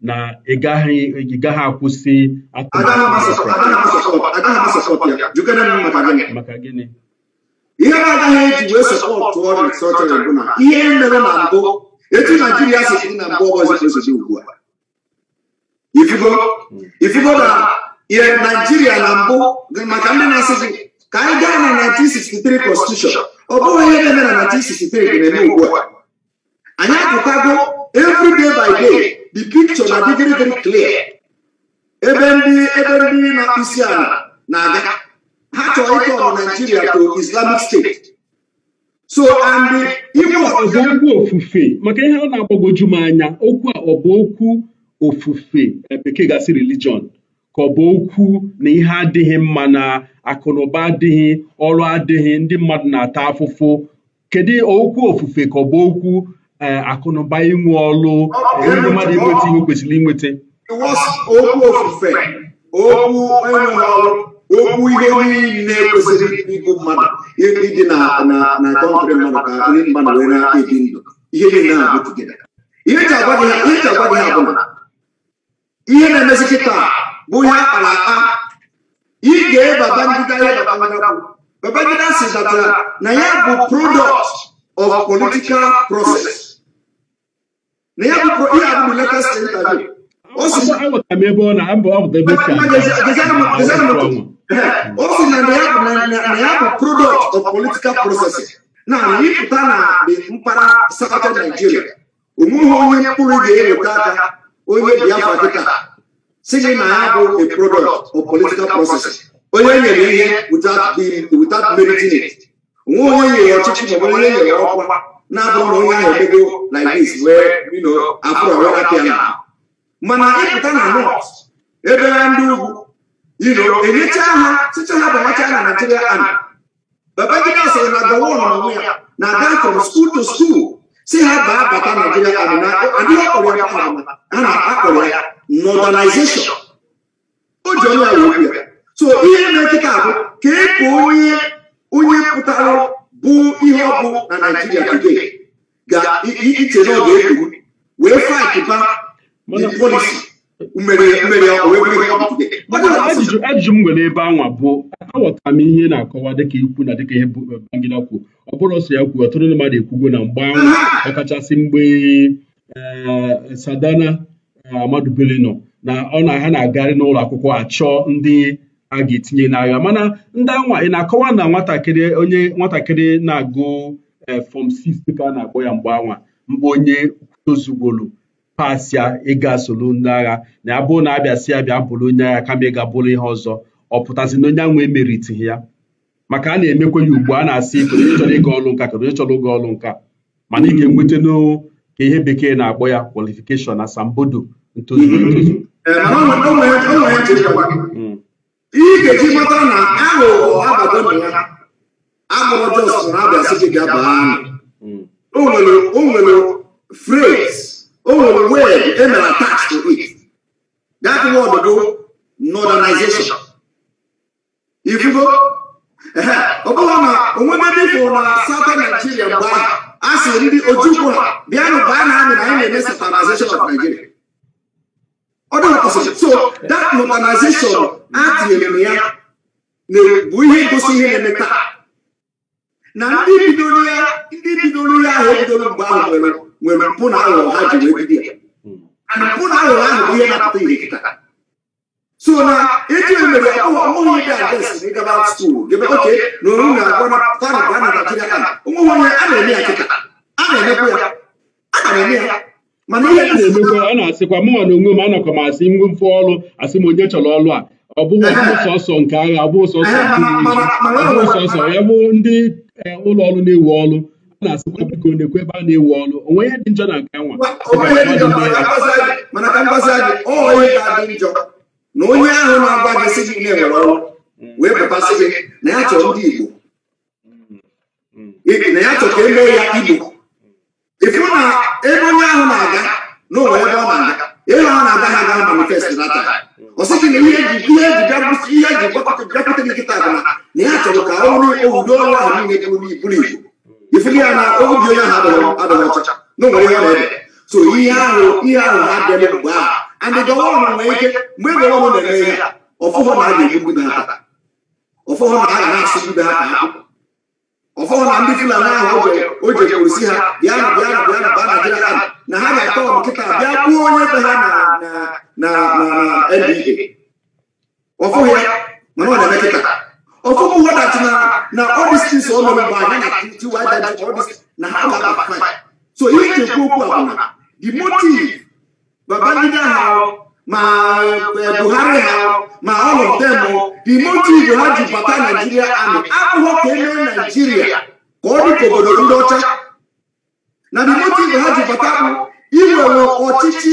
na ịgaghị ịgaghị akwụsị maka gịnị ihe na-agaghị eji wee sọpọtụ ọrụ sọtọrọ bụ na ihe mere na mbụ etu naijiria sịsị na mbụ ọbọchị esozi ugbu a ifigo ifigo na ihe naijiria na mbụ maka ndị na-asị ka anyị gaa na 1963 constitution ọ bụghị ihe na-eme na 1963 ga-eme ugbu a anyị apụtago every day by day the picture na adịgịrị very clear ebe ndị ebe ndị na isi ala na-aga ha chọrọ ịtọ ọrụ Nigeria to Islamic State so and okwu ofufe maka ihe ọ na-agbagoju m anya okwu a ọ bụ okwu ofufe bekee gasị religion ka ọ bụ okwu na ihe adịghị mma na akụnụba adịghị ọrụ adịghị ndị mmadụ na-ata afụfụ kedu okwu ofufe ka ọ bụ okwu akụ na ụba inwe ọlụ enweghị mmadụ inweta ihe o kwesịrị inweta okwu ofufe okwu enweghị ọrụ okwu ihe niile kwesịrị ịbụ mmadụ ịdị na na kọntrị mmadụ ka ndị mmadụ wee na-ebi ndụ ihe niile na-abụ ihe ji agwa gị ha bụ na ihe na-emezi kịta bụ ihe akpara aka ị ga-eba bandida ihe babangida babangida si na ya bụ product of political process na ya bukọ ihe abụ latest interview o si na na ya bụ product of political processing na ịpụta na mpaghara southern Nigeria omume onye mkpụrụ ga-eweta aka onye Biafra dịka si gị na ya bụ a product of political processing onye nyere ihe without meriting it onwe onye nyere ọchịchị ma onye nyere ọkwa Nah, abụrụ yang onye ahụ like this wee afro wee apịa na mana ịpụta na Ya ebe dulu. You know, ini cara, secara sịcha ha bawacha na naijiria ami babagida sịrị na gawa ọnọnwụ ya na ada from school to school si ha baa bata naijiria ami na adịghị ọkpọrọ ya kpara a na-akpọrọ ya northernization o so ini na kita, abụ ka e ka bụ ihe ọ bụ na naijiria today iche na ọ ga-ekwu wee faịtịba polisi ajụjụ ajụjụ m nwere ebe anwa bụ aghọtara m ihe na-akọwa dịka ikwu na dịka ihe eh, bagida kwuo ọ bụrụ ọsọ ya kwuo ọtụtụ ndị mmadụ ekwugo na mgbe anwa ọkachasị mgbe eh, sadana eh, amadubele nọ na ọ na ha na-agarị n'ụlọ akwụkwọ achọ ndị a ga-etinye n'agha mana ndị anwa ị na-akọwa na nwatakịrị onye nwatakịrị na-agụ e, fọm 6 ka a na-akpọ ya mgbe anwa mgbe onye tozugwolu pasịa ịga solu ndị agha na ya bụrụ na abịa sị ya bịa bụrụ onye agha kama ịga bụrụ ihe ọzọ ọ pụtasị na onye anwa emeritighị ya maka a na-emekwa ya ugbu a na-asị kedu onye chọrọ ịga ọrụ nka kedu onye chọrọ ịga ọrụ nka mana ị ga-enweta ka ihe bekee na-akpọ ya kwalifikeshọn asambodo ntozu ntozu ga-eji mata na aghụghọ abago na ya agụrụ jọs na abịa site gị abaa ahụ o nwere phrase o nwere word e mere to it that word do ifugo ọ na onwebe dịfụ na southern Nigeria mgbe ahụ a sị ndị ojukwu bịanụ baa na amị na anyị na-eme satanization of Nigeria ọ ọdụ ọkpọsị so that modernization a tinyere ya bụ ihe ngosi ihe na-eme taa na ndị bidoro ya ndị bidoro ya ahụ ebidoro mgbe ahụ nwere nwere mpụ na aghụghọ ha ji wee bido ya na mpụ na aghụghọ ahụ bụ ihe na-apụta ihe taa so na eji emere ọmụghị dị adres na ịgaba skuul gebe oke na oru na-agwa na fara ga na naijiria a onwe onye a na-eme ya kịta a na-emekwa ya a na-eme ya mana na-emekwa ọ na-asịkwa mụnwa na onwe m anọkọ m asị nwe mfe ọrụ asị m onye chọrọ ọrụ a ọ bụghị sọsọ nke agha ọ bụghị sọsọ sọsọ ya bụ ndị eh, ụlọ ọrụ na-ewu ọrụ a na-asịkwa biko na ebe a na-ewu ọrụ onwe ihe dị njọ na nke nwa na ya chọrọ ka e mee ya Igbo ịhụ na ebe onye ahụ na-aga na onwe ebe ọ na-aga ebe ọ na-aga ha aga manifest na taa ọ sịghị na ihe ji bụsi ihe ji bịakwute gị nkịta bụ na ya chọrọ ka ọ bụrụ ewudo ọrụ ahụ niile bụrụ iburu ibu ifili ya na obi onye ahụ adịghị ọcha na onwere ihe na-ede so ihe ahụ ihe ahụ ha bịara mgbe ahụ andị gọvanọ nwere ike mgbe ebe ọrụ na-eme ya ọfụfụ na a ga-egbu na ata ọfụfụ na a ga na-asụ gbu na aka ọfọwụ na ndị fulani ahụ o jekwuru si ha bịa na bịa na bịa na baa naijiria ahụ na ha ga-akọ nkịta bịa kwuo onye be ha na na na nda ọfụghị ya mana ọ na-eme kịta ọfụghị wedat na na ọdịstis ọnọmba anya na tiwa na ha ga-aba so ihe nchekwa e okwu abụna the motive babangida ahụ ma eh, Buhari ha ma all of them oh, the motive ha ji bata Naijiria amị abụghọ ka emee Naijiria ka ọ dịka obodo ndị ọcha na the motive ha ji bata bụ iwewe ọchịchị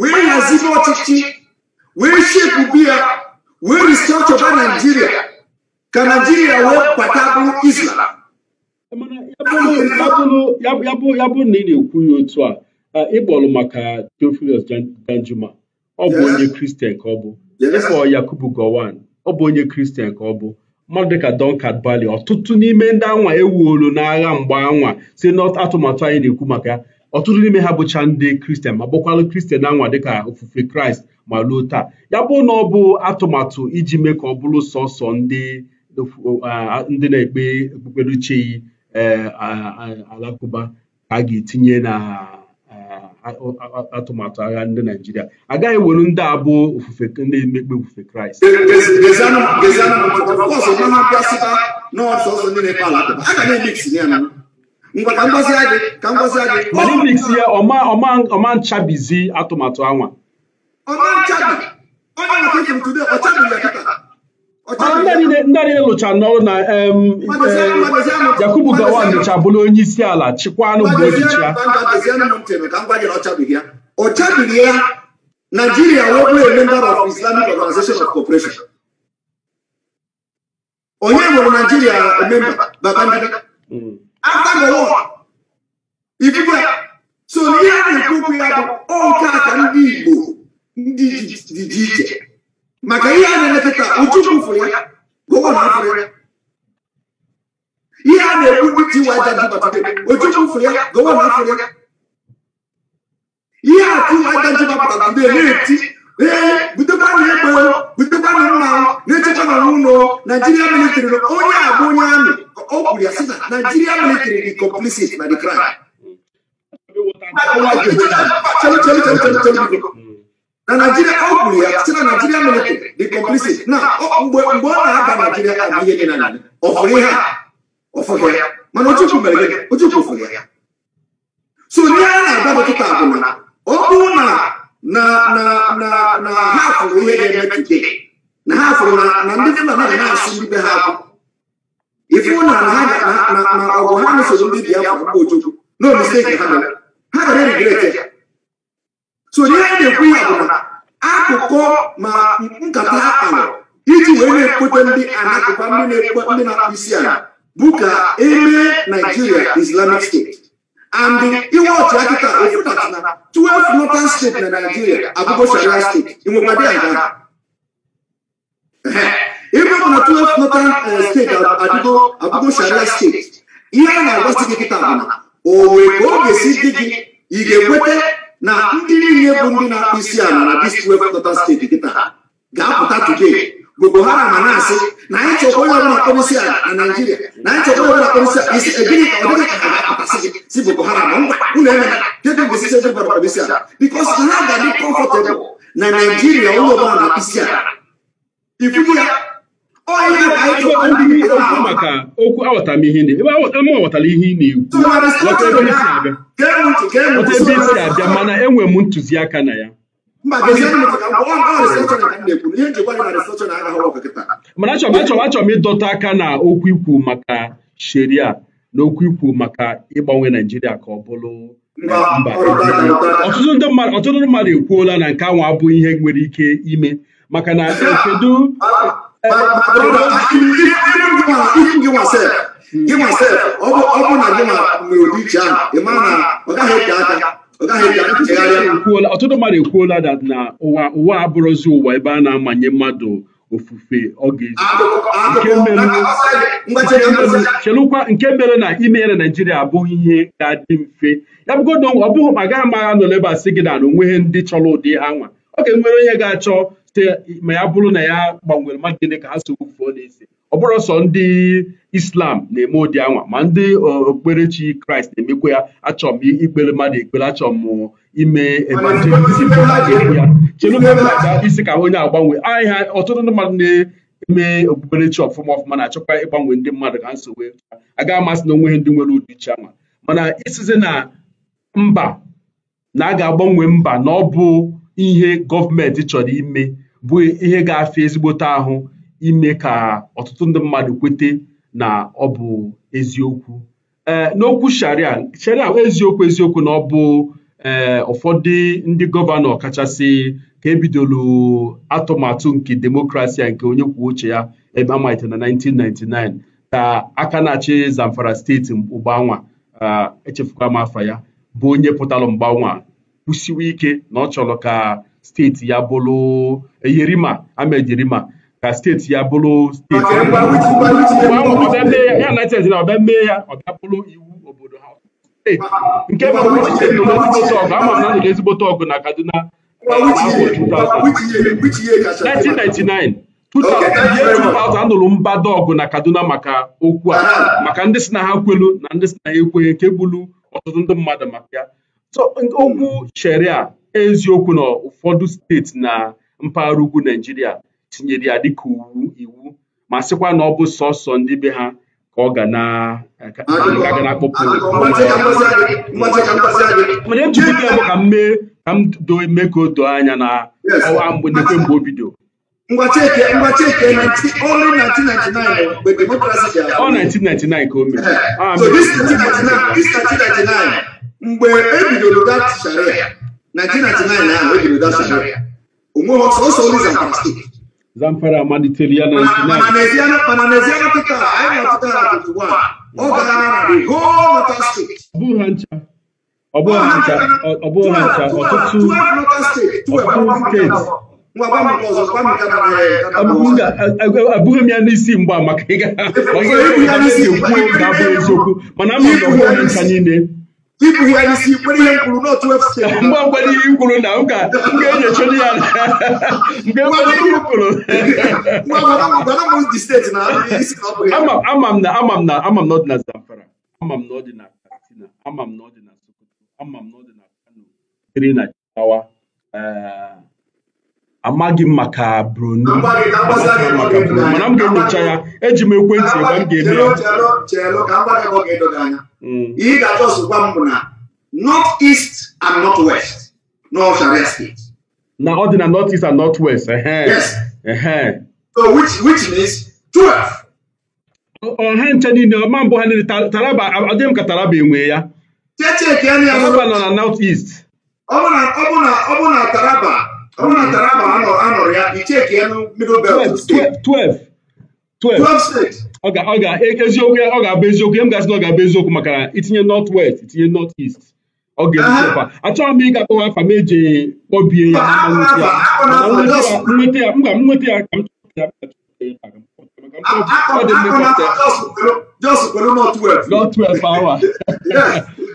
wee hazibe ọchịchị wee shepụ ya wee ọchọba Naijiria ka Naijiria wee bata bụ Islam ya bụ na ị na-ekwu ya otu a ịkpọrọ maka Theophilus Danjuma ọ bụ onye kristian ka ọ bụ ịkpọ yakubu gowan ọ bụ onye kristian ka ọ bụ mmadụ dịka Duncan Bali ọtụtụ n'ime ndị anwa ewuolu n'agha mgbe anwa si n'atụmatụ anyị na-ekwu maka ya ọtụtụ n'ime ha bụcha ndị kristian ma bụkwalụ kristian anwa dịka ofufe kraịst ma luo taa ya bụ na ọ bụ atụmatụ iji mee ka ọ bụrụ sọsọ ndị uh, na-ekpe okpukperechi eh, alakụba ka a ga-etinye na atụmatụ agha ndị naijiria agaghị were ndị abụ ofufe ndị emekpe ofufe kraịst mix ya ọma nchabizi atụmatụ anwa ọma nchabi onye nwoke tụrụ tude ọchabizi ya ndị na-elụcha n'ọrụ na Yakubu Gowon nụcha bụrụ onye isi ala chịkwanụ mgbe ochichi ya ọ ya Nigeria onye nwere Nigeria member so ihe a na-ekwu ya bụ ọ ka ndị Igbo ndị dị iche maka ihe a na-emepụta Ojukwu fụrụ ya Gowon fụrụ ya ihe a na-ekwu ndị Tiwa Ajani Ojukwu fụrụ ya Gowon fụrụ ya ihe a Tiwa Ajani gbapụtara mgbe na-eti ee butekwana egbe butekwana mma na-echekwa na n'ụlọ Naijiria militrị onye a bụ onye amị o kwuru ya sị na Naijiria militrị dị complicit na the crime na nigeria ọ gwụrụ ya site na nigeria military dị complicit na mgbe ọ na-aba naijiria adịghị gị na nanị ọfụrụ ihe a ya mana ochukwu mere gị ochukwu fụrụ ya so ihe a na-agaba kịta bụ na ọ bụrụ na na na na na ha fụrụ ihe ga-eme tude na ha fụrụ na ndị fulani na-asụ ndị ha akwụ ifu na na na na ọgụ ha nụsoro ndị biafra bụ ochukwu na omisi ha mere ha gara erigrete ya so n'ihe a na-ekwu ya bụ na akụkọ ma nkata ha kpara iji wee na-ekpota ndị anakụkwa ndị na-ekpota ndị na-akpụ isi ala bụ ka eme Nigeria Islamic State and iwe ọchị akịta ofutat na 12 northern state na Nigeria abụgo sharia steeti inwekwadị aga ebe bụ na twelve northern eh, steeti abụgo sharia steeti ihe a na-agwasị gị kịta bụ na o wee ka ọ ga-esi dị gị ị ga-ekweta na ndị niile bụ ndị na-akpụ isi ala na distrikt wepụta steeti kịta ga-apụta today Boko Haram ma na-asị na anyị chọkwa onye ọbụla akpọrọ isi ala na Naịjirịa na anyị chọkwa onye ọbụla akpọrọ isi ala isi egịnị ka ọ dịghị ka ha ga-apụtasị gị si Boko Haram ngwa unu emela kedu mgbe sisi ebe gbara isi ala bikos ha ga-adị kọmfọtebụl na Naịjirịa onye ọbụla na-akpụ isi ala ifugo ya okwu maka okwu aghọtara m ihe aghọtara ihe ị na-ekwu ghọta ebe isi abịa mana enwere m ntụziaka na ya mana achọ achọrọ achọ m ịdọta aka na okwu ikwu maka sheria na okwu ikwu maka ịgbanwe naijiria ka ọ bụrụ mba ọtụtụ mmadụ ekwuola na nke ahụ abụghị ihe nwere ike ime maka na kedu But brother, even even gị nwasef gị nwasef ọ bụ na gị nwere ụdị iche ahụ ị mara na ọ gaghị eke aka ọtụtụ mmadụ ekwuola dat na ụwa ụwa abụrụzi ụwa ebe a na-amanye mmadụ ofufe ọ ga-eji nke mere na imere naijiria abụghị ihe ga-adị mfe ya bụgodo ọ bụghị ma gaghị amagha nọ n'ebe a sị gị na na onweghị ndị chọrọ ụdị ha nwa ọ ga-enwere onye ga-achọ ma ya bụrụ na ya gbanwere mmadụ gịnị ka ha so wufuo na-ese ọ bụrụ sọ ndị islam na-eme ụdị anwa ma ndị okpukperechi kraịst na-emekwa ya achọ m ikpere mmadụ ekpere achọ m ime evangelizim ya chere isi ka onye agbanwe ahịa ọtụtụ ndị mmadụ na-eme okpukperechi ọfụma ọfụma na-achọkwa ịgbanwe ndị mmadụ ka nso wee aga amasị na onweghị ndị nwere ụdị iche anwa mana isizi na mba na a ga-agbanwe mba na ọ bụ ihe gọọmenti chọrọ ime bụ ihe ga-afịa ezigbote ahụ ime ka ọtụtụ ndị mmadụ kwete na ọ bụ eziokwu e, n'okwu sharia sharia eziokwu eziokwu na ọ bụ e, ụfọdụ ndị gọvanọ kachasị ka ebidolu atụmatụ nke demokrasi nke onye kwuo uche ya ebe amalite na 1999 ka aka na-achị Zamfara steeti mgbanwa e, echefukwa m afa ya bụ onye pụtalụ mgbanwa kwụsiwe ike na ọ chọrọ ka steeti ya bụrụ eyirima amejirima ka steeti ya bụrụ steeti ya na steeti na ọbịa mee ya ọ bụrụ iwu obodo ha nke bụ na ezigbote ọgụ na Kaduna 1999 2000 anụrụ mbado ọgụ na Kaduna maka okwu a maka ndị si na ha kwelu na ndị si na ha ekweghị nke gburu ọtụtụ ndị mmadụ maka ya okwu sheria eziokwu na ụfọdụ steeti na mpaghara ugwu nigeria tinyere ya dịka iwu ma sịkwa na ọ bụ sọsọ ndị be ha ka ọ ga na-akpọpụ ka mee ka m do eme ka o doo anya na ọwa mgbe nekwe mgbe o bido ọ 1999 ka o mere ah, mgbe ebidoro e dat sharia 1999 na wey dey that scenario omo also only zamfara state. zamfara maniteria 99. mananesiana mananesiana tuta ayi na tuta na twenty one all na the whole northern state. ọbụ ha ncha ọbụ ha ncha ọbụ ha ncha ọtụtụ ọtụtụ abụghị m ya n'isi mgba maka ịga ọ abụ eziokwu mana ama ụlọ ncha niile ibugharị isi kpere ihe mkpụrụ n'otu efusi mgbe mgbede ihe kwuru na ụka ga-enyechori e ya mgbe mgbede ihe kwuru ama m na ama m na ama m na ọ dị na zamfara ama m na ọ dị na ama m na ọ sokoto ama m na ọ dị na kano siri na jigawa eh, amaghị m maka Bruno mana m ga-enyocha ya eji m ekwentị egbe m ga-eme ya ga hmm. bụ na and west na ọ dị na north and north west which means ọha nche niile ọma mbụ ha niile taraba ọ dị m ka taraba enwe ya taraba nọ na north east ọ bụ na taraba eziokwu ọ ga-abụ eziokwu ya m gasị na ọ ga-abụ eziokwu maka itinye north west itinye north east ọ ga-eziokwa achọghị m ịga akpọwa afa m eji kpọbie ya nweta ya mba m nweta ya ka m chọpụta ya north west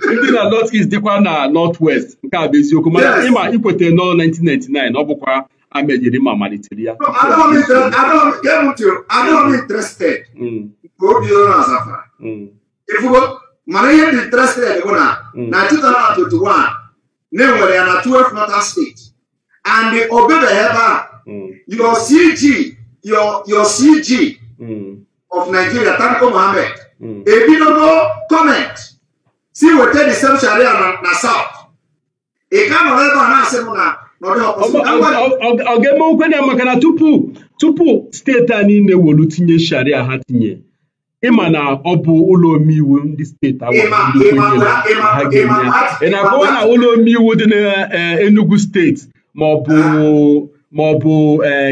ndị na north east dịkwa na north west nke a bụ eziokwu mana ịma ikweta nọ 1999 ọ bụkwa amejiri ma malitere ya mm. mm. mana ihe dị interested bụ na mm. na 2021 na-enwere ya na 12 northern state and o bebeghị ebe a your cg your, your cg of nigeria tanko mohammed ebidogo comment si weta disem sharia na na saut ị ka nọrọ ebe a na-asị m na ọ ga-eme nkwenye maka na tupu tupu steeti a niile wolu tinye sharia ha tinye ịma na ọ bụ ụlọ omeiwu ndị steeti awa ị na-akọwa na ụlọ omeiwu dị n'Enugu e, steeti ma ọ bụ ah. ma ọ bụ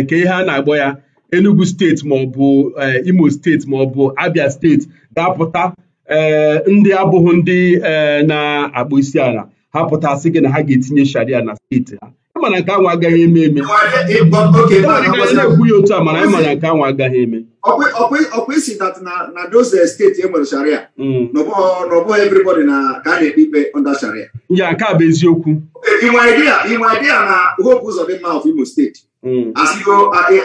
nke ihe a na-agbọ ya Enugu steeti ma ọ bụ e, Imo steeti ma ọ bụ Abia steeti ga-apụta Eh, ndị abụghị ndị eh, na-akpụ isi ala ha pụtasị gị na ha ga-etinye sharia na steeti ha ịmana nke anwụ agaghị eme eme na-ekwu ya otu a mana ịma na nke anwụ agaghị eme ọkwa isi na doze eh, steeti enwere sharia mm. n'ọbụghị everybody na ka a na-ekpe ikpe onda sharia ya nke a bụ eziokwu inwe idea na hope ụzọ dị mma of Imo steeti mm. asigo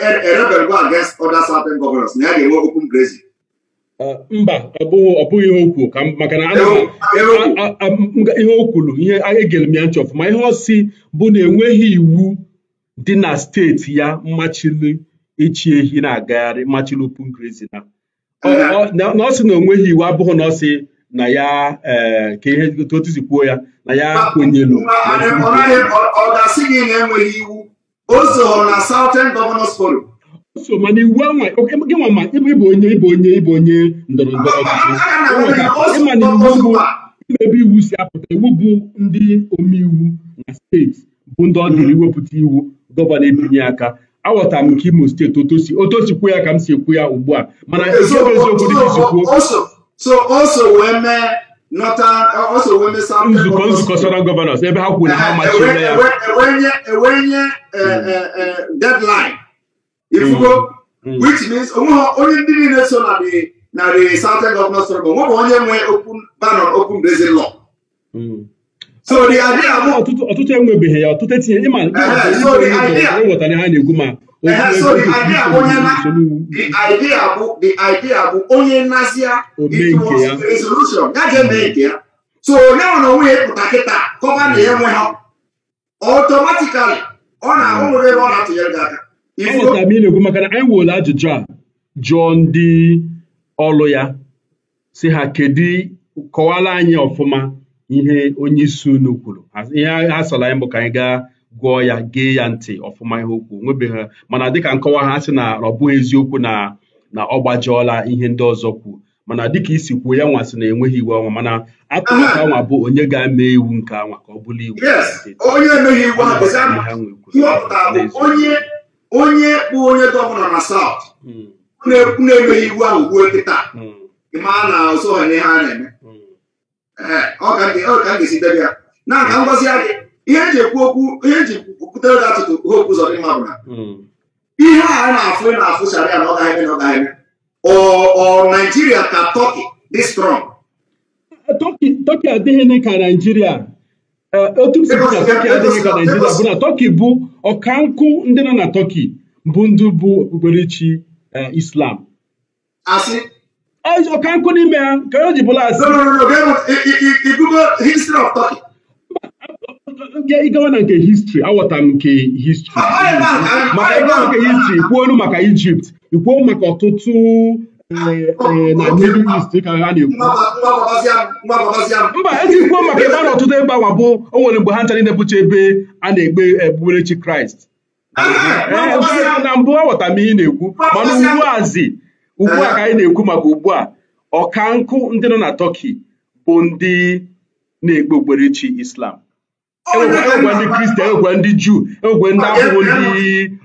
erebelgo against ọda southern governors na ya ga-enwe open grazing mba ọ bụghị ihe okwu ka maka na ihe o kwuru ihe egere m ya ntị ọfụma ihe ọsị bụ na enweghị iwu dị na steeti ya mmachili ịchị ehi na-agagharị mmachili upungrizi na ọ sị na onweghị iwu abụghị na ọ na ya ka ihe otuzi kwuo ya na ya kwenyelu ọ ga-asị gị na enweghị iwu o so na Southern Governors Forum so mana iwu anwa gị nwa ma ịbụ onye ịbụ onye ịbụ onye ndọrọ ndọrọ ọchịchị ịmana iwu bụ mmebi iwu si apụta iwu bụ ndị omeiwu na steeti bụ ndị ọ dịrị mhm. iwepụta iwu gọvanọ ebinye aka aghọtara m nke imo steeti otosi otosikwu ya ka m si ekwu ya ugbu a mana eziokwu eziokwu nzukọ nzukọ sọrọ gọvanọs ebe ha kwuru na ha amachiela ya ifugo which means onye ndị niile so na the na the southern governor struggle nwe bụ onye nwe open banon open brazil law mm. so the idea bụ ọtụtụ enwebeghị ya ọtụtụ etinye ịma ịghọtara ha na ma nazia resolution ya ga-eme nke ya so onye nwe onwe ya kịta kọba na ya nwe ha ọ na anyị na-ekwu maka na anyị were ajụjụ a jụọ ndị ọlụ ya si ha kedu kọwara anyị ọfụma ihe onye isi unu kwuru ihe ha sara anyị bụ ka anyị gaa gụọ ya gee ya ntị ọfụma ihe okwu nwebeghị mana dịka nkọwa ha sị na ọ bụghị eziokwu na na ọ gbajọọla ihe ndị ọzọ kwuo mana dịka isi kwuo ya nwasị na enweghị iwu ọnwa mana atụrụ ka nwa bụ onye ga-eme iwu nke anwa ka ọ bụrụ iwu onye kpụ onye gọvanọ na saut hmm. na-emeghị iwu ahụ ruo kịta hmm. ma na ọzọ ha na-eme hmm. ọ ka ga-esi debe ya na nka ngozi ya dị ihe eji ekwu okwu ihe eji kwutere gị atụtụ hopu zọrọ mma bụ na ihe a na-afụ ị na-afụ sharia na ọ gaghị eme na ọ gaghị eme ọ naijiria ka tọki dị strọng tọki adịghị ka naijiria E, otu si na tọki adịghị ka naijiria bụ na tọki bụ ọkankụ ndị nọ na tọki bụ e, ndị bụ okpukperechi islam ọkankụ n'ime ha ka o ji bụla ịgawa na nke histri awọta m nke histri maka ịgawa nke histri kwuolu maka ijipt ikwuo maka ọtụtụ na Middle East ka ha na-ekwu mba ezigbo maka ebe a n'ọtụtụ ọtụtụ ebe awa bụ o nwere mgbe ha nchara ịnepụcha ebe a na-egbe egbuberechi Kraịst na mbụ aghọta m ihe na-ekwu mana ugbuazi ugbu a ka anyị na-ekwu maka ugbu a ọka nkụ ndị nọ na Tọki bụ ndị na-egbe okpukperechi Islam enwekwa e ndị Kristian enwekwa ndị Juu enwekwa ndị abụghị ndị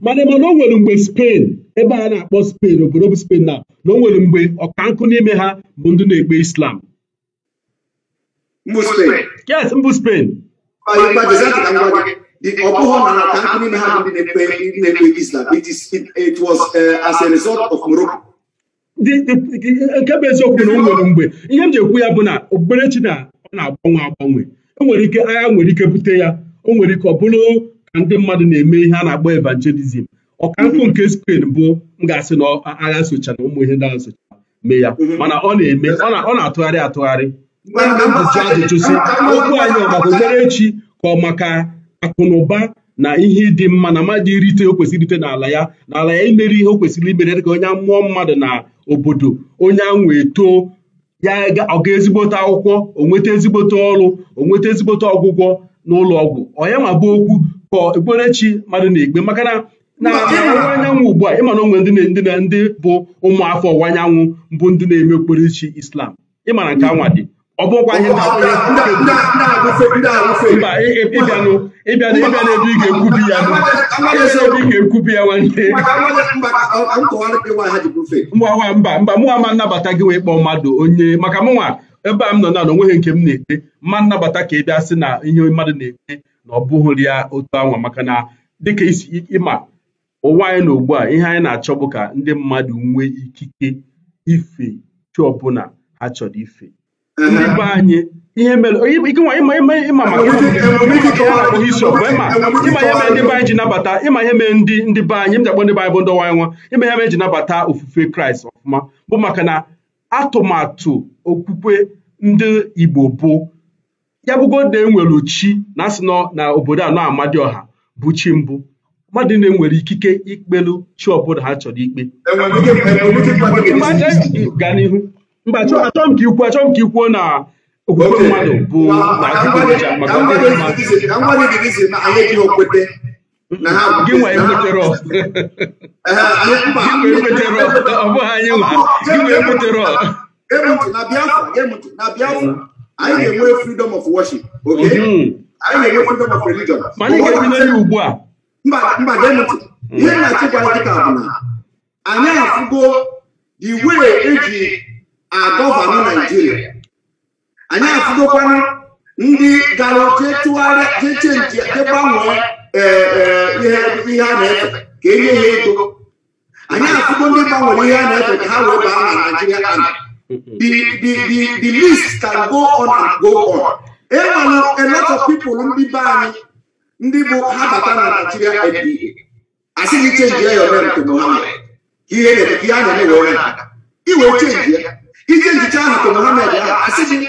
mana mana o nwere mgbe Spain ebe a na-akpọ Spain obodo bụ Spain na na o nwere mgbe ọkankụ n'ime ha bụ ndị na-ekpe Islam mbụ Spain yes mbụ Spain ọ bụghị na ọkankụ n'ime ha bụ ndị na-ekpe Islam it was eh, as a result of Morocco nke bụ eziokwu na o nwere mgbe ihe m ji ekwu ya bụ na okpukperechi na ọ na-agbanwe agbanwe o nwere ike agha nwere ike bute ya o nwere ike ọ bụrụ ndị mmadụ na-eme ihe a na-akpọ evangelism ọkankụ nke Spain bụ m ga-asị na agha na ụmụ ihe ndị agha sochara mee ya mhm. mana ọ na-eme ọ na-atụgharị atụgharị ajụjụ ajụjụ si okwu anyị ọ maka okpere echi ka ọ maka akụnụba na ụba na ihe ịdị mma na mmadụ irite o kwesịrị irite n'ala ya n'ala ya imere ihe o kwesịrị imere dị ka onye mmụọ mmadụ na obodo onye anwụ eto ya ọ ga ezigbote akwụkwọ onweta ezigbote ọrụ onweta ezigbote ọgwụgwọ n'ụlọ ọgwụ ọya ma bụ okwu kpọọ okpukperechi mmadụ na-ekpe maka na ọwụwa anyanwụ ugbu a ịmana onwe ndị ndị bụ ụmụafọ ọwụwa anyanwụ bụ ndị na-eme okpukperechi Islam ịmana nke anwa dị ọ bụrụkwa ihe ịbịa n'ebe ị ga-ekwubi ya ebe ị ga-ekwubi ya nwanne mba mba mba mụnwa ma nnabata gị wee kpọọ mmadụ onye maka mụnwa ebe a m nọ na na onweghị nke m na-ete ma nnabata ka ị bịa sị na ihe mmadụ na-ete na ọ bụghị ya otu anwa maka na dịka isi ịma ụwa anyị na ugbu a ihe anyị na-achọ bụ ka ndị mmadụ nwee ikike ife chi ọbụla ha chọrọ ife ndị be anyị ihe mere ịma maka ịma isi ọgụ ịma ihe mere ndị be ji nabata ịma ihe mere ndị ndị be anyị m ndị be anyị bụ ndị ọwa anyị nwa ịma ihe mere ji nabata ofufe kraịst ọfụma bụ maka na atụmatụ okwukwe ndị igbo bụ ya bụgodi na enwere chi na asị na obodo anọ ọha bụ chi mbụ mmadụ na-enwere ikike ikpelu chi ọbụla ha chọrọ ikpe gaa n'ihu mba achọm ka ikwu achọghị m ka ikwuo na okwukwe mmadụ bụ gị nwa ekwetere ọ bụghị anyị nwa gị nwa ekwetere ọ anyị na-enwe freedom of worship oke anyị na-enwe freedom of religion ugbu a mba gee ntị ihe na-achịkwara dịka bụ na anyị afụgo the way eji agọvanụ naijiria anyị afụgokwana ndị gara jetụgharị jechenji jegbanwee eh, eh, ihe a na-efe ka enye ha ego anyị afụgo ndị gbanwere ihe a na-efe ka ha wee baa na naijiria ana the, the, the, the list can go on and go on. Enwere a lot of ndị be anyị ndị bụ ha bata na Nigeria IPA asị gị chenjie ya ome nke ihe a na-eme were aka iwe chenjie ahụ ahụ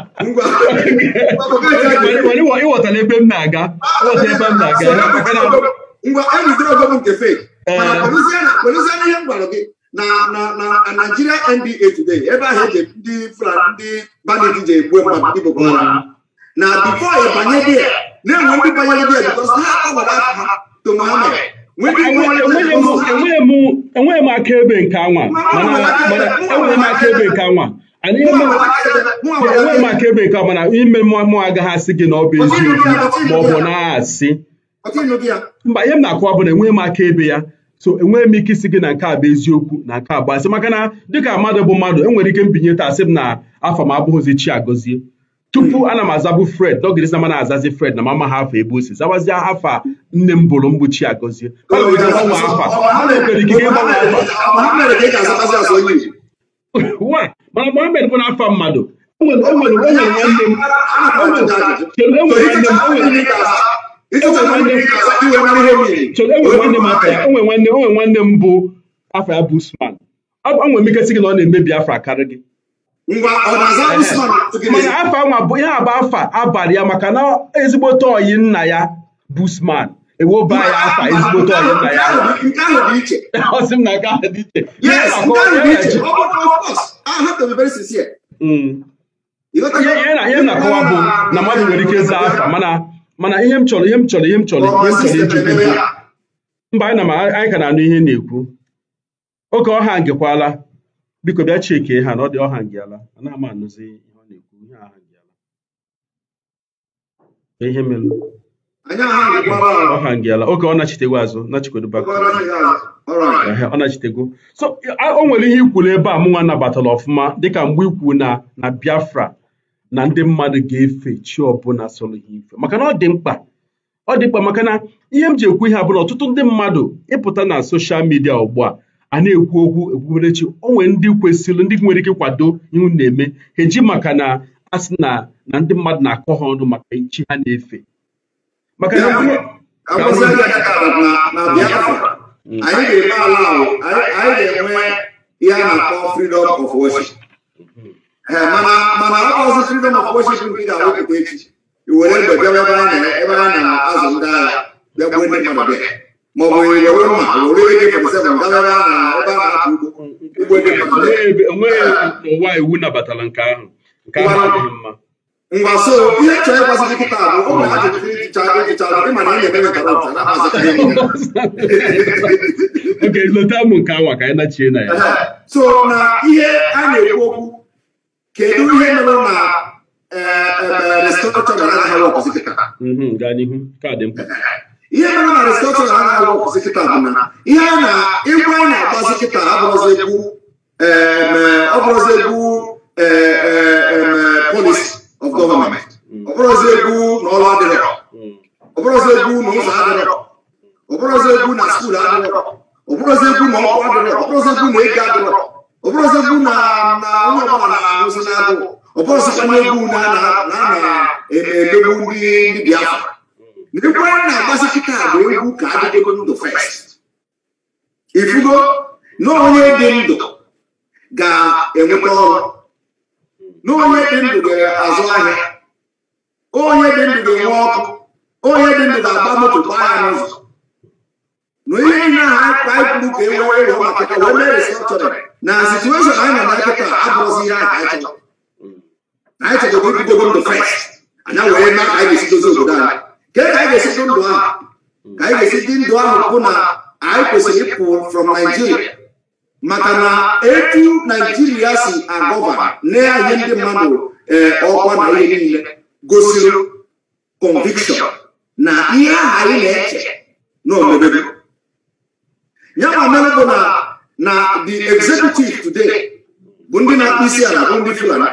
ịghọtala ebe m na-aga ngwa Mgbe ogo nke fake eh. kwedozie na ihe m gwara gị na na Nigeria NDA today ebe ahụ eji ndị Fulani ndị bandit ji egbu mmadụ ndị na na-enwe ndị banyere dị because ha agwara ha to Mohammed enweghị m enweghị m akaebe nke anwa ana ihe nwe maka ebe nke mana ime mmụọ agaghị asị gị na ọ bụ eziokwu ma ọ bụ na-asị mba ihe m na-akụwa bụ na enweghị m aka ebe ya so enweghị m ike isi gị na nke a bụ eziokwu na nke a bụ asị maka na dịka mmadụ bụ mmadụ enwere ike mbinye taa asị m na afọ m abụghịzi chi agọzie tupu ana m azabụ fred dọgịrịsị ma na-azazi fred na mama ha afọ ebe o si zawazie afa nne m bụrụ mgbu chi agọzie nwere ịgbanwe afa mana Mohammed bụ n'afọ mmadụ enwere nwanne m enwere nwanne onwe nwanne m bụ afọ ya bụ Usman ọ m ike sị gị na ọ na-emebi afọ akarị gị mana afọ nwa bụ ihe bụ afọ abalị ya maka na ezigbote oyi nna ya bụ Usman ewoba ya afa ezigbote ọyị nna ya ọsị m na nke ahụ dị iche mm. ihe na-akọwa bụ na mmadụ nwere ike zaa afa mana ihe m chọrọ ihe m chọrọ ihe m chọrọ ihe m chọrọ iji bụ mba anyị na anyị ka na-anụ ihe na-ekwu oge ọha ngekwala biko bịa chekee ha na ọ dị ọha ngeala anaghị m anụzi ihe ọ na-ekwu ihe ọha ngeala ihe mere ọ ha oge ọ nachitego azụ ọ nachitego so o nwere ihe ikwuru ebe a mụnwa nabatara ọfụma dịka mgbe ikwu na na Biafra na ndị mmadụ ga-efe chi ọbụla sọrọ ha ife maka na ọ dị mkpa ọ dị mkpa maka na ihe m ji ekwu ihe abụrụ ọtụtụ ndị mmadụ ịpụta na soshal midia ugbu a a na-ekwu okwu ekwuberechi o nwere ndị kwesịrị ndị nwere ike kwado ihu na-eme ha eji maka na a sị na na ndị mmadụ na-akọ ha ọnụ maka chi ha na-efe maka na na Biafra anyị ga-enwe ihe a na-akpọ freedom of worship mana ọzọ freedom of worship nke ị ga-awepụta echi iwere mgbe bịa ebe a na-azụ ndị agha ma ọ bụ were mma were na ebe a na ugbo ugbo ngwa so ihe chọọ ịgwazi gị kịta bụ ụmụ ha jiri hicha hicha ịma na ị eu eme nkata ụcha na Okay, lota ụmụ nke awa ka anyị nachie na ya so na ihe a na-ekwu okwu kedu ihe mere na ihe mere na restọtọn ha na-arụ ọkwụsị kịta bụ na ihe a na egwu a na-akpazi kịta abụrụzi egwu ọ bụrụzi egwu polisi of government mm. ọ bụrụzi egwu na ọrụ adịrọ mm. ọ bụrụzi egwu na ụzọ adịrọ ọ bụrụzi egwu na skuul adịrọ ọ bụrụzi egwu na ọkụ adịrọ ọ bụrụzi egwu na ego adịrọ ọ bụrụzi egwu na onye ọbụla na-arụzi na-adụ ọ na egwu na na na-emegbu ndị ndị biafra mm. na egwu anyị na-agbasi kịta bụ egwu ka adịdego ndụ fest ifugo na onye dị ndụ ga-enweta ọrụ na onye dị ndụ ga-azụ ahịa onye dị ndụ ga-enwe ọkụ onye dị ndụ ga-agba moto gbaa ya n'ụzọ na ihe ihe a ka anyị kwuru ka e wee were maka ka wee mee restructuring na situeshọn anyị nọ na kịta abụrụzi ihe anyị chọrọ anyị chọrọ ka ebidogo ndụ fes anya wee mee ka anyị ga-esi dozi obodo anyị ka ka anyị ga-esi dị ndụ ahụ ka anyị ga-esi dị ndụ ahụ bụ na anyị kwesịrị ịpụ from Nigeria maka na etu naijiria si agọba na-enye ndị mmadụ eh, ọkwa na ihe niile gosiri conviction na ihe aha anyị na-eche na ya ma mere na the executive today bụ ndị na-akpụ isi ala bụ ndị fulani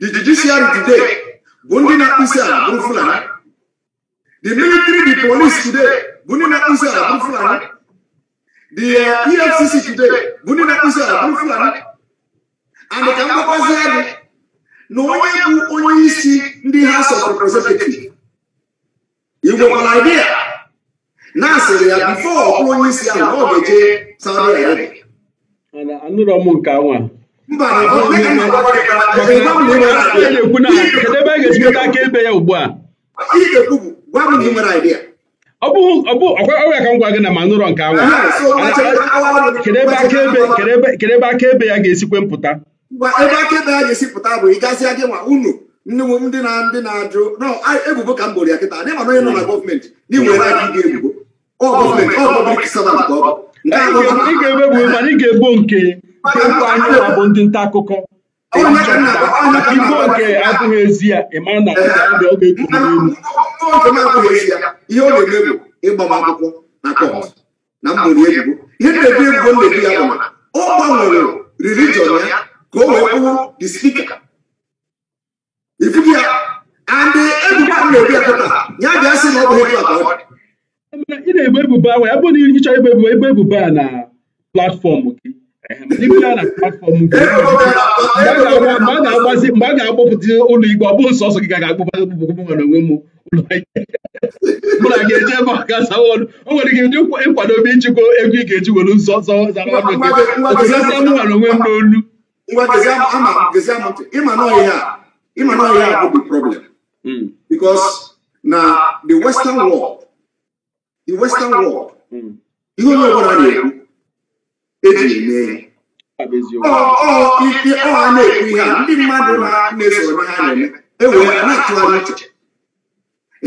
the judiciary today bụ ndị na-akpụ isi ala bụ fulani the military the police today bụ ndị na-akpụ isi ala bụ fulani The uh, EFCC e today, Bunina Kusa, Bufulani, and the Kamapazani, na onye bụ onye isi ndị House of Representatives. Igwe nwere idea na asịrị ya bifo ọkụ onye isi ahụ ọ ga-eje Saudi Arabia. Anụrọ m nke anwa. Mba, na-ekwu na kedụ ebe a ga-ejikọta aka ebe ya ugbu a. Ihe ga-ekwu bụ gwa m na ị nwere idea. ọgwara ka m gwa gị na manụrọ nke anwụ kedu ebe akaebe ya ga-esikwe mpụta ebe akaebe ya ga-esi pụta bụ ịgazịa gị nwa unu ndị ndị na ndị na-ajụ ebubo ka m gboro ya kịta dịma onye nọ na gọọmenti n'iwere aka gị ebubo ọ gọọmenti ọ pọblik savant ọ ị ga-ebebu mana ị ga-ebo nke nke nkwa anyị bụ ndị nta akụkọ ibo nke abụghị ezi ya ịma na ọ ga-ekwu n'elu njem akwụghị isi ya ihe ọ na-eme bụ ịgba m akwụkwọ na kọt na mgbori ihe na-ebi ebubo na-ebi ya bụ ọ gbanwere ka o wee bụrụ the ya andị ebubo a na-ebi ya kọta ya bịa sị na ọ bụghị kọta ọ ị na-ebo ebubo ahụ ya bụ na ebubo a na platfọm mgbe a ga-akpọpụta ụlọ ikpe ọ bụghị ọsọ gị ga-akpọpụta nwere onwe m mụ na ga-eje ebe ọ ga azawa ọnụ o nwere gị ndị nkwadobe ijikwa ego ị ga-eji were nzọ zara ọnụ gị otụlata nwere onwe m n'olu na the western world the western world ihe onye ọbụla na-ekwu eji eme ike ọha na-ekwu ihe ndị mmadụ na-eso onye ha na-eme ewee na-atụgharị uche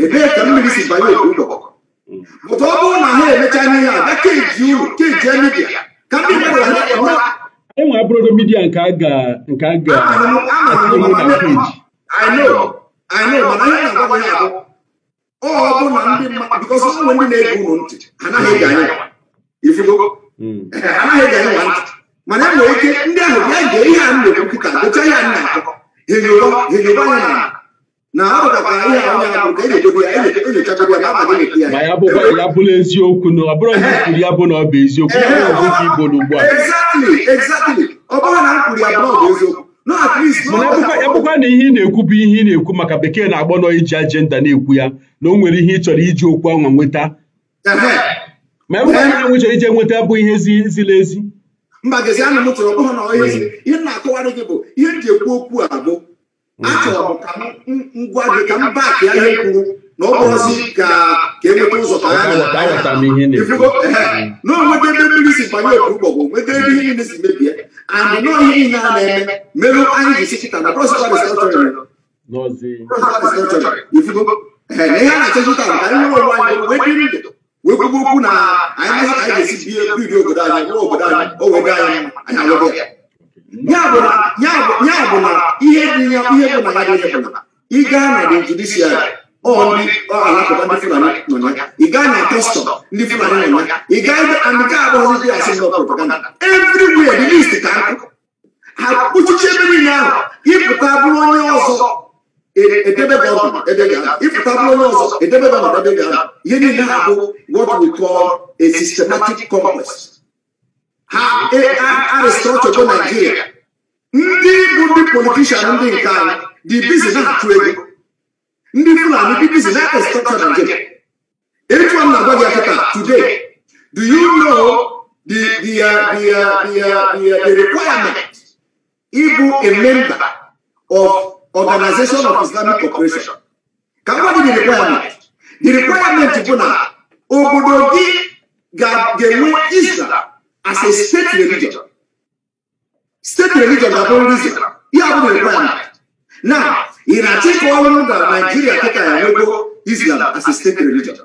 ebee ka mmiri si banye otu ụlọ bụta ọ bụrụ na ha emecha ihe a ga keji uru keji midia ka ndị mmadụ ha enwe abụrụdo midia nke a ga nke a ga na peji mana ihe na-agwa ya abụ ọ bụ na ndị mmadụ bikọsọ ndị na-ege unu ntị anaghị ege anya ifugo amaghị ntị mana e nwere ike ndị ahụ bịa gee ihe a m na nkịta ya nna ya na ọ bụtakwara ihe a onye ka ya ya na ya ma ya bụkwa ya bụrụ eziokwu na ọ bụrụ na ya bụ na ọ bụ eziokwu ya bụrụ ọgụgụ igbo n'ugbu a ọ bụrụ na m kwuru ya ọ bụ eziokwu na ihe ị na-ekwu bụ ihe ị na-ekwu maka bekee na-agbọ nọ iji ajenda na-ekwu ya na o nwere ihe ị iji okwu ahụ nweta ma ebe onye nwe chọrọ ije nweta bụ ihe ziri ezi mba gezi ana m chọrọ ọbụghị na onye ezi ihe na-akọwarị gị bụ ihe m ji ekwu okwu a bụ achọrọ m ka m ngwa gị ka m baak ya ihe kwuru na ọ bụrụzi ka ka e nweta ụzọ ka ya na onweta ebe mmiri si banye otu ụgbọgwụ nweta ebe ihe niile si mebie and nọọ ihe niile a na-eme merụ anyị ji sikịta na prọsịtarịs ihe a na-achọzụta ka anyị nwere onwe anyị nwee dị ndụ wekwu na anyị ihe anyị ga-esi bie biri obodo anyị nwa obodo anyị o anyị anyị alụgo ya bụ na ihe dị ya ihe bụ na ya bụ na ị na the judiciary ọ alakụba ndị Fulani nọ ya ị na kọstọm ndị Fulani nọ ya ị ebe and nke ndị asị ndị propaganda everywhere the list ka nkụ ha kpuchiche ebe niile ahụ ịpụta bụrụ onye ọzọ edebe Bible ebe ga if Pablo knows edebe Bible ebe ga ihe niile ha bụ what we call a systematic conquest ha aristrọchọ bụ Nigeria ndị bụ ndị politishan ndị nke anyị dị bizi na-achụ ego ndị Fulani dị bizi na aristrọchọ Nigeria etu m na-agwa gị akata today do you know the the uh, the uh, the, uh, the, uh, the requirement ịbụ a member of Organization of Islamic Cooperation ka mmadụ dị requirement dị requirement bụ na obodo gị ga-enwe Islam as a state religion state religion ga-abụ nri Islam ihe abụ requirement na ị na-achị ka ọrụ na Naijiria kịta ya nwego Islam as a state religion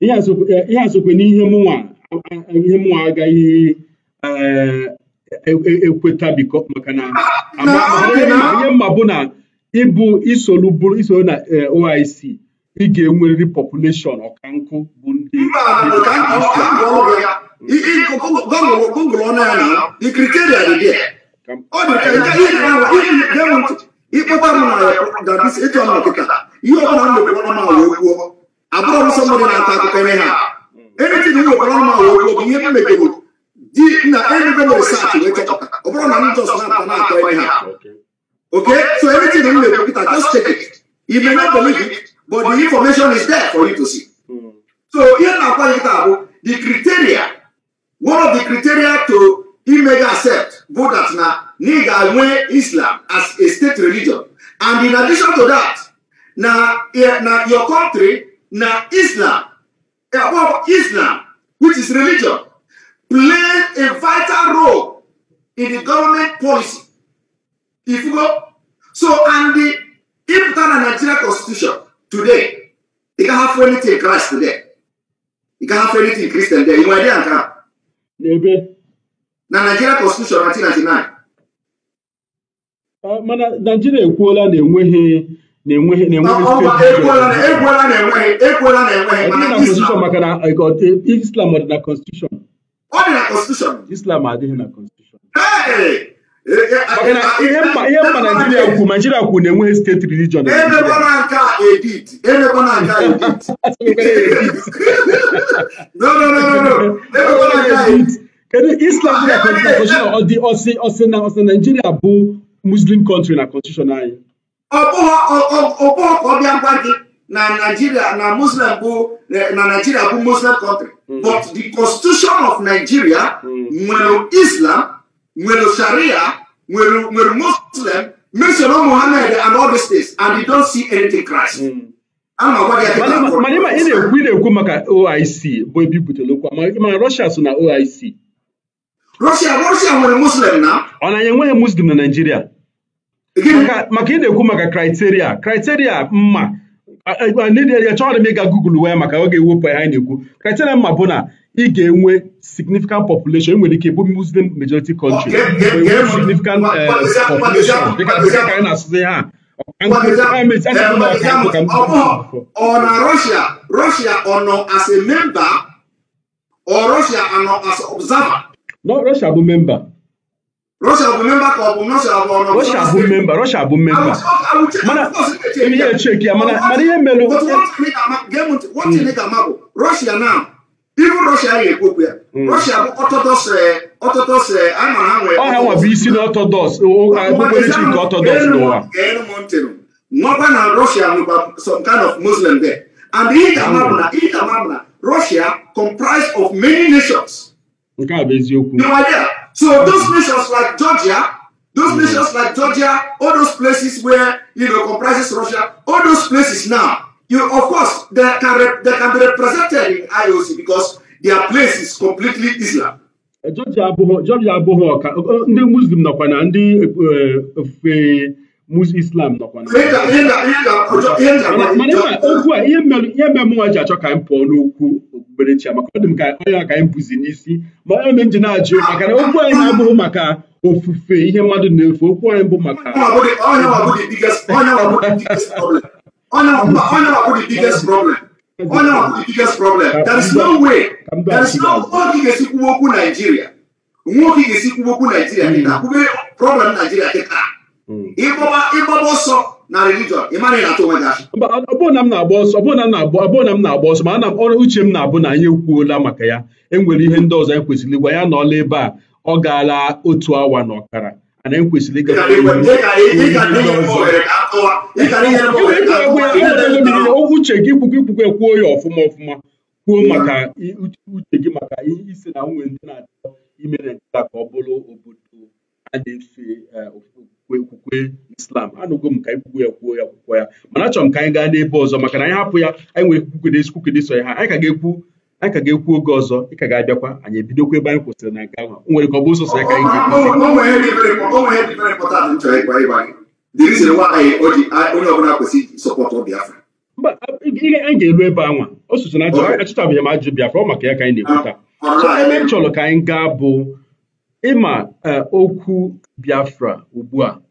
ihe a sokwe n'ihe mụnwa aga ihe ekweta biko maka na ihe mma bụ na ịbụ isolu bụ isolu na OIC ị ga-enwerịrị population ọka nkụ bụ ndị ịkpọtara ịchọ nọ kịta ihe ọnụ ma na-ata akụkọ ihe ha eritin m wekwara ọnụ wee kwuo bụ ihe m megoro di na everybody research wee chọpụta ọ bụrụ na m just na-ata na-atọ ihe a okay so everything m na-ekwu kịta just check it you may not believe it but the information is there for you to see so ihe na-akwa nkịta bụ the criteria one of the criteria to imega accept bụ that na na ị ga-enwe islam as a state religion and in addition to that na na your country na islam islam which is religion played a vital role in the government policy. If you go, so and the Ibutan and Nigeria constitution today, you can have anything in Christ today. You can have anything in Christian there. You idea can. Maybe. Na Nigeria constitution 1999. Uh, mana nigeria ekwuola na enweghị na-enweghị na-enweghị ekwuola na enweghị maka na Islam dị na constitution ọ dị na constitution islam adịghị na constitution ihe mma naijiria kwu naijiria kwu na-enweghị steeti religion emekwana nke edit emekwana nke edit no no no no emekwana nke a edit kedu islam dị na constitution ọ dị ọsị ọsị na ọsị naijiria bụ muslim country na constitution anyị ọ bụghị ka ọ bịa gwa gị na Nigeria na Muslim bụ eh, na Nigeria bụ Muslim country mm. but the constitution of Nigeria mm. nwere Islam nwere Sharia nwere nwere Muslim mention Muhammad and all the states and they don't see anything Christ. Mm. mana ma ị na-ekwu ị na-ekwu maka OIC bụ ebe ibutere okwu ma Russia so na OIC Russia Russia nwere Muslim na ọ na ya enweghị Muslim na Nigeria maka ị na-ekwu maka kriteria kriteria mma ndị ya chọrọ m ịga Google wee maka oge ga-ewepụ na-ekwu kriteria mma bụ na ị ga-enwe significant population enwere ike bụ muslim majority country enwe significant population anyị na ọ bụ memba. Russia bụ memba ka ọ bụ Russia bụ ọnụ Russia bụ memba hmm. Russia bụ memba mana ihe echeki ya mana mana ihe melụ bụ Russia na ibu hmm. Russia ga-ekwekwu eh, eh, ya oh, oh, oh, eh, Russia bụ ọtọdọs ọtọdọs a mara ha nwere ọha nwa bụ isi na ọtọdọs okpukperechi nke ọtọdọs n'ụwa nwakwa na Russia nwekwa some kind of Muslim there and ihe ga-ama na hmm. ihe ga-ama na Russia comprised of many nations nke a bụ eziokwu So those nations like Georgia, those mm. nations like Georgia, all those places where you know comprises Russia, all those places now, you of course they can they can be represented in IOC because their place is completely Islam. Georgia abụghị Georgia abụghị ọka ndị Muslim nakwa na ndị eh, eh, islam nọkwa na ihe a ihe mere mụnwa ji achọ ka anyị pụọ n'okwu okpukperechi maka ọ dị m ka onye ka anyị bụzi n'isi ma ji na-ajụ maka na okwu anyị na-abụghị maka ofufe ihe mmadụ na-efu okwu anyị bụ maka nwoke ga-esi okwu Naijiria dị na problem Naijiria dị taa Hmm. ịgbaba ọsọ na religion ị mara na onwe gị na m na-agba ọsọ ọbụụ m na-agba ọsọ ma ana ọrụ uche m na-abụ na anyị ekwuola maka ya enwere ihe ndị ọzọ anyị e kwesịrị ya na ọla ebe a ọ gaala otu awa na ọkara ana ekwesịrị uche gị ikwukwe ikwukwe ekwuo ya ọfụma ọfụma kwuo maka uche gị maka isi na nwunye ndị na-achọ imere nkịta ka ọ bụrụ obodo a na-efe eh, okwukwe islam anụgo m ka anyị kwukwe ya kwuo ya akwụkwọ ya mana achọrọ m ka anyị gaa n'ebe ọzọ maka na anyị hapụ ya anyị nwere kwukede isi kwukede sọ ya ha anyị ka ga-ekwu anyị ka ga-ekwu oge ọzọ ị ka ga-abịakwa anyị ebidokwa ebe anyị kwụsịrị na nke ahụ nwere ka ọ ya ka anyị ga-ekwu anyị a o m ajụ ọ maka ya ka anyị na ekwuta ebe ka anyị gaa bụ ịma e, okwu Biafra ugbu a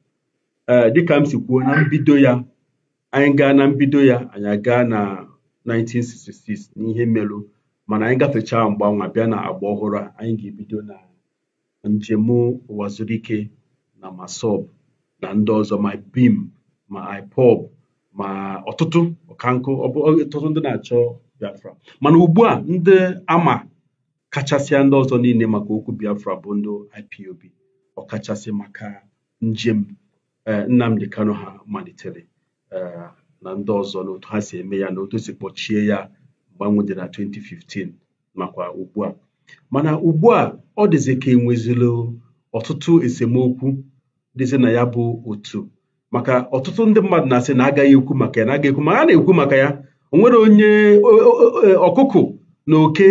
e, dịka m si kwuo na mbido ya anyị gaa na mbido ya anyị gaa na 1966 n'ihe merụ mana anyị gafechaa mgbanwe bịa na agba ọhụrụ a anyị ga-ebido na njem ụwa na masọb na ndị ọzọ ma bim ma ipob ma ọtụtụ ọkankụ ọtụtụ ndị na-achọ Biafra mana ugbu a ndị ama kachasịa ndị ọzọ niile maka okwu Biafra bụ ndị IPOB ọkachasị maka njem eh, Nnamdi Kanu ha malitere eh, na ndị ọzọ na otu ha si eme ya na otu si kpọchie ya mgbanwe dị na 2015 nakwa ugbu a mana ugbu a ọ dịzị ka enwezilo ọtụtụ esemokwu dịzi na ya bụ otu maka ọtụtụ ndị mmadụ na-asị na agaghị ekwu maka ya na agaghị ekwu ma a na-ekwu maka ya onwere onye ọkụkụ na oke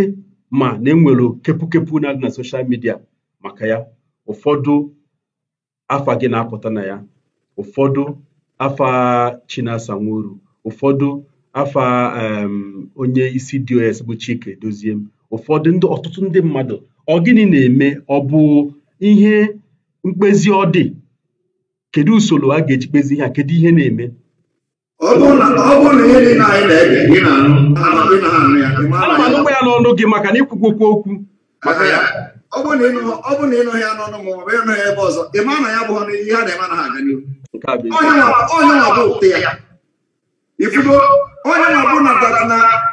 ma na enwere kepụkepụ na-adị na soshal midia maka ya ụfọdụ afa gị na-apụta na ya ụfọdụ afa Chinasa Nworu ụfọdụ afa onye isi DOS bụ Chike Doziem ụfọdụ ndị ọtụtụ ndị mmadụ ọ gịnị na-eme ọ bụ ihe mkpezi ọ dị kedu usoro a ga-eji kpezi ihe a kedu ihe na-eme ọ bụ na ihe na anyị na-ege gị na-anụ n'ọnụ gị maka na ikwukwokwu okwu ọ bụ na ịnụghị ya n'ọnụ ma ọ bụ ịnụghị ebe ọzọ ị ma na ya bụ ihe a na-eme na ha aga n'ihu onye nwa bụ ya ifugo onye nwa bụ na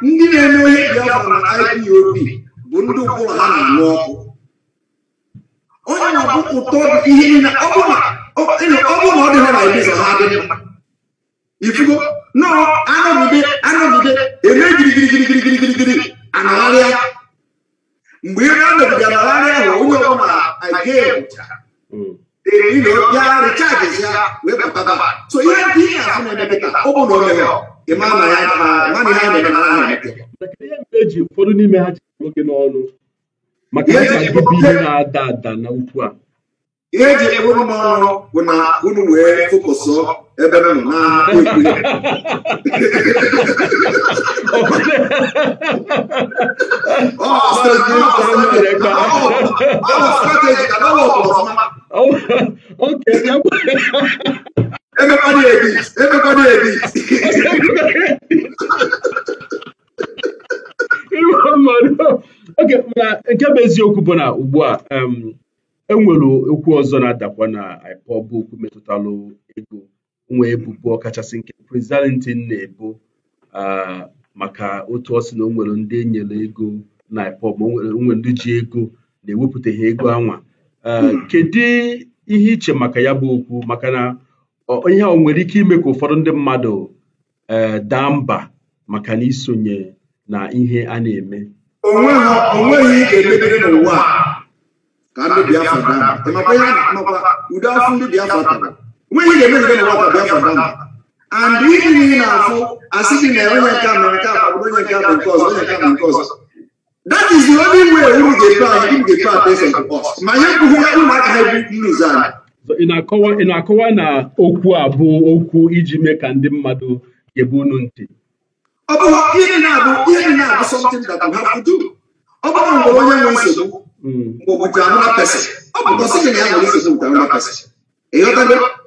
ndị na-eme ihe Biafra na IPOB bụ ndị ụkpụrụ ha na-anụ ọkụ onye nwa bụ ụtọ ihe niile ọ bụ na ọ dị ha na ibiza ha adị mma ifugo nọọ anọgide anọgide eme girigirigirigirigirigiri anagharịa mgbe ihe a mebiga anagharịa ahụ onye ihe na ọ bụ na ohere na ya ha na eji ụfọdụ n'ime ha ji nwoke n'ọnụ maka ihe na-ada ada na ukwu a ihe eji eburu m ọrụ bụ na unu wee fokọsọ ebe m nọ na-akpụ ikwu ya nke bụ eziokwu bụ na ugbu a enwere okwu ọzọ na-adakwa na IPOB okwu metụtalụ ego nwa ebubo ọkachasị nke Prezidentị na-ebo ah, maka otu ọ na o nwere ndị enyere ego na IPOB o ndị ji ego na-ewepụtaghị ego anwa ah, kedu ihe iche maka ya bụ okwu maka na ihe ọ nwere ike ime ka ụfọdụ ndị mmadụ eh, daa mba maka na isonye na ihe a na-eme onweghị emebere n'ụwa ka ndị Biafra daa nwunye ga-emeziga na nwata bịa and ịdị n'ihi na-afụ asị gị na onye nke mere nke a onye nke bụ nke ọzọ onye nke bụ nke that is the only way ga-epe anyị unu ga-epe a to us ma ihe mkpụrụ ụmụaka ha anya. ị na-akọwa na okwu a bụ okwu iji mee ka ndị mmadụ ga-ebu unu ntị ọ bụ ihe na-abụ ihe na-abụ something that we have ọ bụrụ onye nwe nsogbu hmm. ọ bụ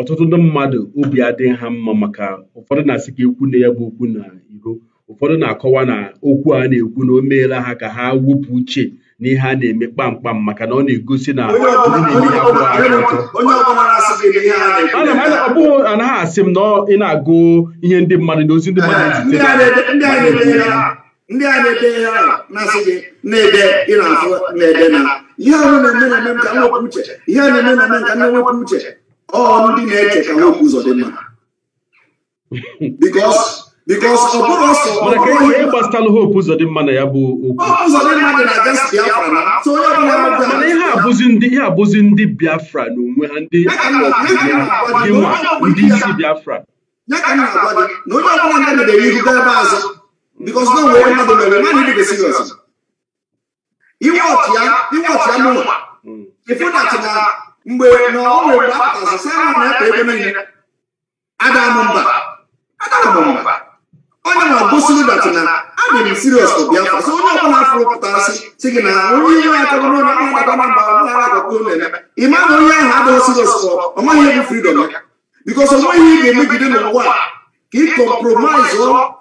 ọtụtụ ndị mmadụ obi adịghị ha mma maka ụfọdụ na-asị ka ekwu na ya bụ okwu na iro ụfọdụ na-akọwa na okwu a na-ekwu na o meela ha ka ha wepụ uche na ihe a na-eme kpamkpam maka na ọ na-egosi na ọ bụghị anaghị asị m na ị na-agụ ihe ndị mmadụ na ozi ndị mmadụ ndị a na-ede ihe a na-asị gị na-ede ị na-afụ na-ede na ihe ahụ na-eme na-eme ka nwepụ uche ihe a na-eme na-eme ka nwepụ uche ọrụ ndị na-eche ka nwoke ụzọ dị mma because because ihe abụzi ndị ihe abụzi ndị Biafra na onwe ha ndị nwa ndị isi Biafra ya because mgbe na ọ nwere mgbe akpọsị sị na na-ekpe ebe niile adara m mba adara m mba onye na-agụsiri dat na adị m sirios to biafra so onye ọbụla afọ pụtasị si gị na onye ihe ya chọrọ n'ụlọ akpa adaba mba ọmụghara agọta ụlọ eleme ịma na onye ahụ adịghị sirios tọ ọ maghị egwu fridọm ya bikos ọ nweghị ihe ga-emegide n'ụwa ka ị kọmpromise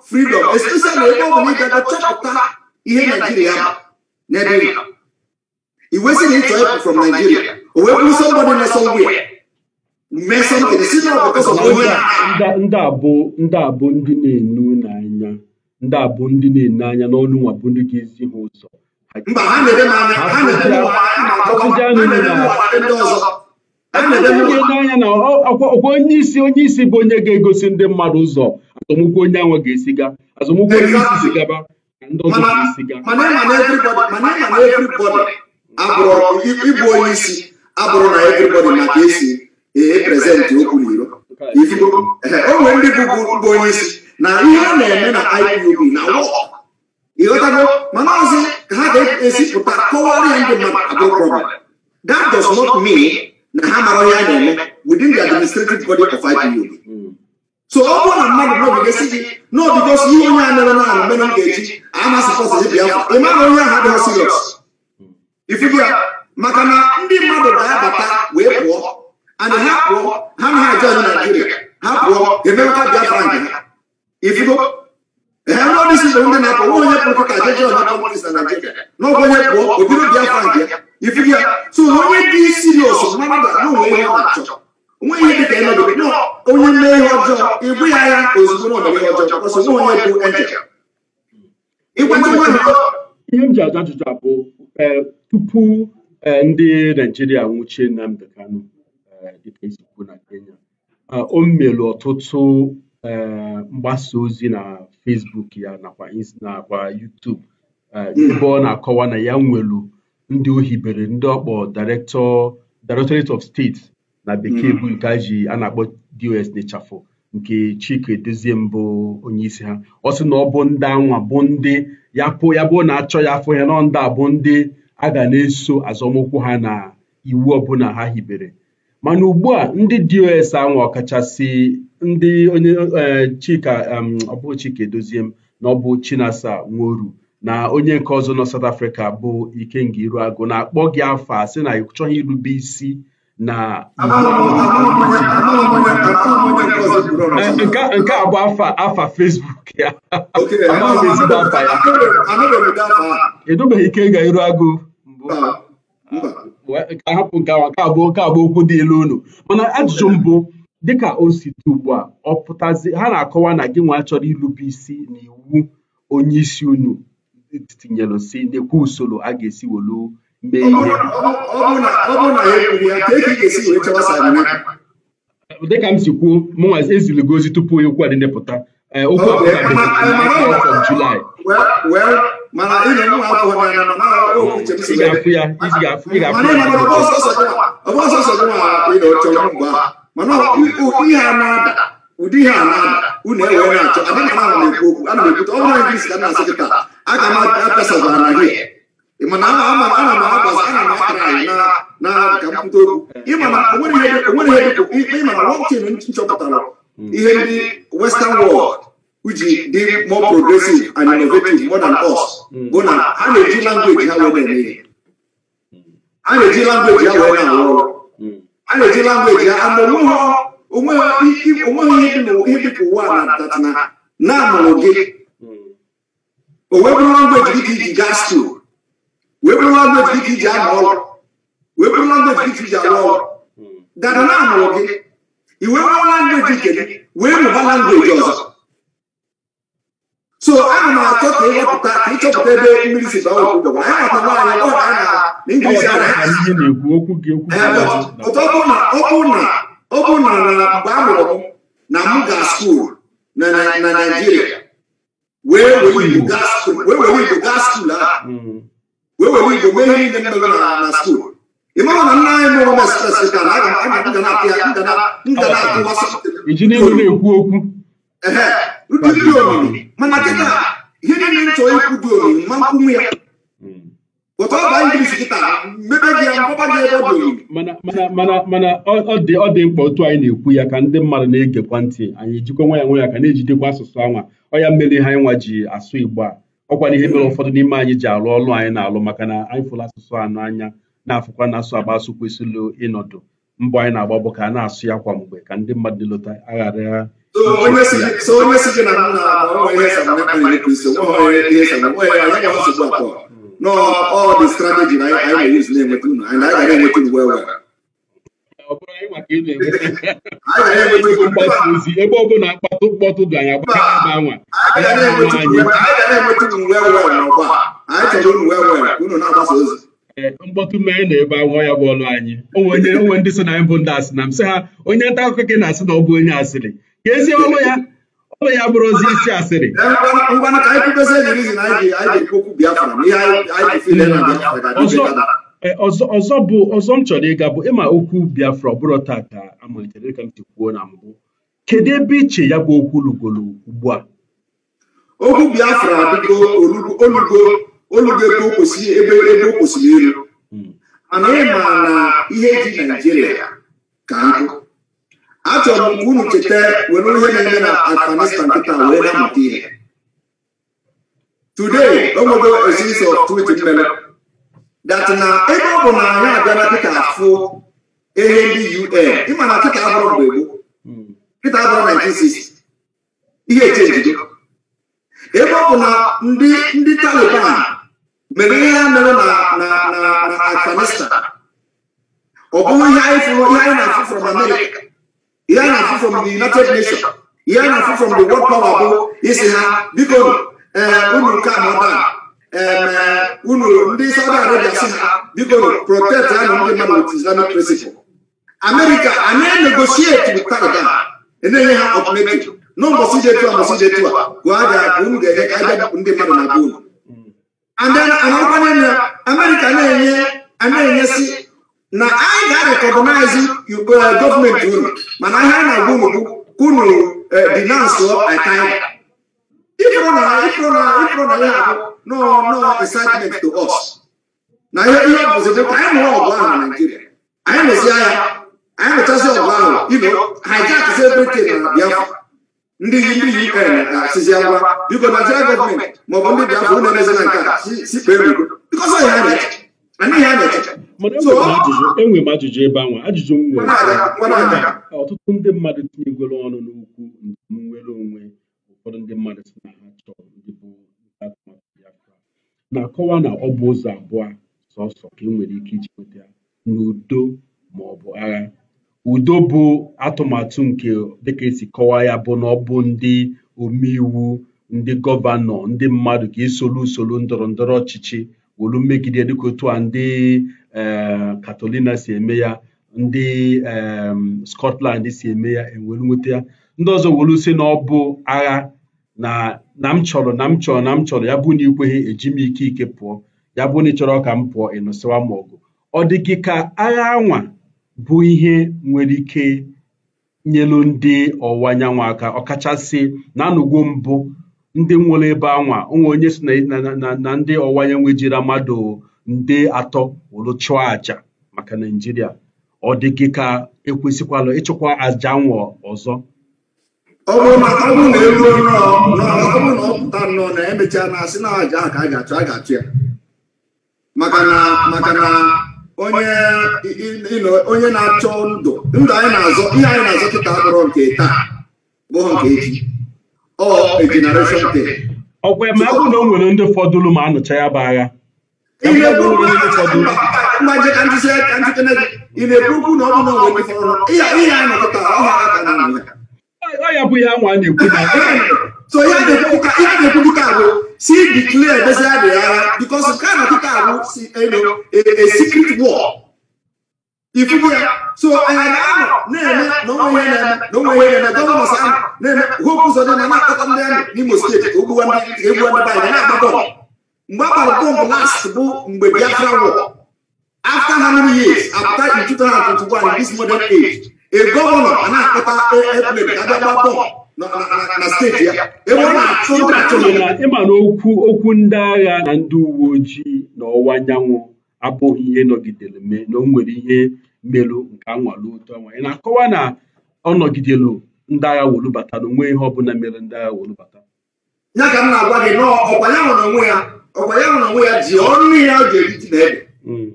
fridọm especially ebe ọ bụla ị gaga chọpụta ihe naijiria ma n'ebe ị iwe si na ịchọ ịpụ from naijiria wee ya mee si ndị ndị na-enu n'anya ndị ndị na-enu anya n'ọnụ nwa bụ ndị ga-ezi ha ụzọ mba ha na-ede ha ọkwa onye isi onye isi bụ onye ga-egosi ndị mmadụ ụzọ azọmụkwụ onye anwa ga-esiga azọmụkwụ onye isi sigaba ka ndị ọzọ ga ịbụ onye isi abụrụ na everybody ma ka esi eprezentị okwu n'iro ifugo o nwere ndị bụbu onye isi na ihe ọ na-eme na IPOB na ịghọtago mana ọzi ka ha ga-esipụta kọwara ya ndị mmadụ abụrụ problem that does not mean na ha mara ihe a na-eme within the administrative body of IPOB so ọ bụrụ na mmadụ n'obigesi gị n'obigosi ihe onye a mere na ala mere m ga-eji amasịkọsịzi bịa ịmara onye ahụ adịghị sirios ifugo ya maka na ndị mmadụ ga-abata wee pụọ ana ha pụọ ha na aja na naijiria ha pụọ emewekwa biafra nke ha ifugo ee eh, ndị ọdịsi bụ ndị na-apụ nwa onye pụrụ ka ajaji ọnata ọmọdịs na naijiria n'oge onye pụọ obido biafra nke ya ifugo ya so onye dị sirios mmadụ na onwe ihe ọ na-achọ onwe ihe dịka ịnọdụ nọ onye mee ihe ọjọọ ịbụ ya ya ozugbo na ọdịbe ọjọọ ọsọ nwa onye bụ enjel ịgwata nwa ihe m ji aja ajụjụ abụ eh, tupu Eh, ndị naijiria nwụchie Nnamdi Kanu eh, dịka esi na Kenya eh, o melu ọtụtụ mgbasa ozi na Facebook ya nakwa nakwa YouTube ebe ọ na-akọwa na ya nwelu ndị o hibere ndị ọkpọ director Directorate of State na bekee mm. bụ nke ji a na-akpọ DOS n'ịchafụ nke Chike dozie mbụ onyeisi ha ọ sị na ọ bụ ndị anwa bụ ndị ya pụ ya bụ na achọ ya afọ ya nọ ndị a bụ ndị a ga na-eso azọmụkwụ ha na iwu ọbụla ha hibere mana ugbu a ndị dos anwa ọkachasị ndị onye e, Chika ọbụ Chika na ọbụ Chinasa Nworu na onye nke ọzọ nọ South Africa bụ Ikenga agụ na-akpọ gị afọ a sị na ị chọghị irube isi na nke a bụ afa fesbuk ya edobeghị ike ga-eru agụ ah, hapụ ahapụ nke ahụ nke abụọ nke abụọ okwu dị elu unu mana ajụjụ mbụ dịka o si dị ugbu a ọ pụtazi ha na-akọwa na gị nwa chọrọ irube isi na iwu onye isi unu e tinyelụ si n'ekwu usoro a ga-esi welu dịka m si kwuo mụnwa eziligo ozi tupu okwu a dị ndepụta okwu ọbụla julaị ị ga ya ya ụdị ihe a na-ada unu ewe na-achọ ana m ekwute ọ bụrụ na ka na-asị kịta aga m apịasagwara gị ị na ama ana m ana m akara anyị na ka m kwute okwu ịma na onwere ihe ịma na wọntin nchọpụtara ihe ndị western world ji dị more progressive and innovative more than us bụ na ha na-eji langweji ha wee na ihe a na-eji langweji ha wee na-arụ ọrụ a na-eji langweji ha onweghị ihe ụwa na tatana na amụrụ gị o wee bụrụ langweji dị ka iji gas tool wee bụrụ language gị iji arụ ọrụ wee bụrụ language gị iji arụ ọrụ dada na gị i wee nwere language nke gị wee mụba ọzọ so ana m achọ ka ịhọpụta ịchọpụta ebe mmiri si na n'inglish na ọ bụ na ọ bụ na na mgbe a mụrụ na m ga skuul na wee were igbo gaa skuul ahụ hmm. wee igbo mee ihe niile mere na skuul na nna anyị mụrụ na ka na aga ga na-apị na iji n'ihu na-ekwu okwu ndị dị omimi mana kịta ihe niile ikwu dị omimi ma ya ọba kịta mebe gị ya gị ebe dị mana ọ dị mkpa otu anyị na-ekwu ya ka ndị mmadụ na-egekwa ntị anyị ejikwa nwa ya nwe ya ka na-ejidekwa asụsụ anwa ọ ya ha ịnwa ji asụ igbo ọkwa n'ihe ihe mere ụfọdụ n'ime anyị ji arụ ọrụ anyị na-alụ maka na anyị fụrụ asụsụ anụ anya na-afụkwa na asụ agba asụ kwesịrị ịnọdụ mbọ anyị na-agba bụ ka a na-asụ ya kwa mgbe ka ndị mmadụ lụta aghara ya ọ bụrụ maka ị na-enweta ozi ebe ọ bụla mkpatụ mkpọtụ dị anyị agbakọrọ ebe anwa mkpọtụ mee na-ebe anwụ ya bụ ọnụ anyị Onye onwe ndị so na anyị bụ ndị asị na m sị ha onye nta akụkọ gị na-asị na ọ bụ onye asịrị ka ezi ọnụ ya ọnụ ya bụrụ ozi isi asịrị ọsọ Eh, ọzọ ọzọ bụ ọzọ m chọrọ ịga bụ ịma okwu Biafra ọbụrụ tata amalitere ka m ti kwuo na mbụ kedu ebe iche ya bụ okwu lugolo ugbu a okwu Biafra adịgo olugo olugo ebe o kwesịrị ebe ebe o kwesịrị iru mana hmm. ịma na ihe dị Naijiria ka nkụ achọrọ m unu cheta were ihe na-eme na Afghanistan wee na-amụta ihe twit mere that na ebe ọ bụ na anyị abịala dịka afụ ehe ndị un ịma na kịta abụrụ mgbe gboo kịta abụrụ 1960 ihe eche njide ebe ọ bụ na ndị ndị taliban mere ihe ha mere na na na afghanistan ọ bụghị ihe anyị fụrụ ihe anyị na-afụ from america ihe anyị na-afụ from the united nations ihe anyị na-afụ from the world power bụ isi ha biko eh, unu nke a unu ndị Saudi Arabia si ha biko protect anụ ndị mmadụ with Islamic principle America anyị negotiate with Taliban enye ha alternative n'ụbọchị jetu a mbọchị jetu a gụọ aja ka unu ga-enye ka aja ndị mmadụ na be uh, unu and then anọkwanye na enye ana-enyesi na anyị ga-arekọgọnaizi gọọmenti unu mana ihe a na-agwa unu bụ unu dinansụọ aka ịhụnanya ịhụnanya abụ to us na ihe ihe bụzi anyị ọgụ ahụ na naijiria anyị agha anyị ọgụ ahụ na Biafra ndị ndị UN na-asịzi uh, agwa biko gọọmenti maọbụ ndị Biafra unu nke a ya anyị na-eche enwe m ajụjụ ebe anwa ajụjụ m nwere ọtụtụ ndị mmadụ tinyegoro ọnụ n'ukwu nwere onwe ụfọdụ ndị mmadụ na ha chọrọ ndị bụ atụmatụ Biafra na-akọwa na ọ bụ ụzọ abụọ sọsọ ka ị nwere ike iji nweta ya n'udo ma ọ bụ agha udo bụ atụmatụ nke dịka esi kọwaa ya bụ na ọ bụ ndị omeiwu ndị gọvanọ ndị mmadụ ka esolu usoro ndọrọ ndọrọ ọchịchị wolu megide dịka otu a ndị Katolina eh, si eme ya ndị eh, Scotland si eme ya ewelu nweta ya ndị ọzọ wolu si na ọ bụ agha na na m chọrọ na m chọrọ na m chọrọ ya bụ na ikweghị eji m ike ike pụọ ya bụ na ị chọrọ ka m pụọ ịnụsịwa m ọgụ ọ dị gị ka agha anwa bụ ihe nwere ike nyelu ndị ọwụwa anyanwụ aka ọkachasị na anụgo mbụ ndị nwere ebe anwa onwe onye si na ndị ọwa anyanwụ jiri mmadụ nde atọ wụrụ chụọ àjà maka naijiria ọ dị gị ka ekwesịkwala ịchụkwa àjà anwa ọzọ ọ bụrụ na ọ bụrụ na eruo ọ bụrụ na ọ pụta nnọọ na emechaa na asị na aja ka a ga-achụ a ga-achụ ya maka na maka na onye na-achọ ndụ ndụ anyị na-azọ ihe anyị na-azọ kịta abụrụ nke taa bụghị nke echi ọ generation day ọkwa ma ọ bụ na o nwere ndị fọdụrụ ma anụcha ya bụ agha ihe na-ekwukwu na ọ bụ na o nwere ndị fọdụrụ ihe anyị na-anọkọta ọha aka na ya ọ ya bụ ya nwa na-ekwu na so ihe a na-ekwubuka ahụ si declare bezi adị agha because nke a na-atụta ahụ si eno a secret war ifubu ya so anyị na-anọ na-eme na onwe ihe na-eme na onwe ihe na-eme gọvanọs ahụ na-eme hope ụzọ dị na na-akọta ndị amị n'imo steeti ogbuwa ndị egbuwa ndị banyị na-agba bọmbụ mgbe agbara bọmbụ last bụ mgbe biafra war after how many years after in 2021 this modern age e gọvanọ a na-akpọta airplane ka abịa gbaa na steeti ya ebe ọ na-achụ ịma na okwu okwu ndị agha na ndị uwe ojii na ọwụwa anyanwụ abụghị ihe nọgidere mee na o nwere ihe merụ nke anwale ụtọ nwa ị na-akọwa na ọ nọgidelu ndị agha wolubata na onwe ihe ọbụla mere ndị agha wolubata ya ka m na-agwa gị na ọkwa ya nwere onwe ya ọkwa ya nwere onwe ya ji ọrụ ihe o ji eriji na ede mm.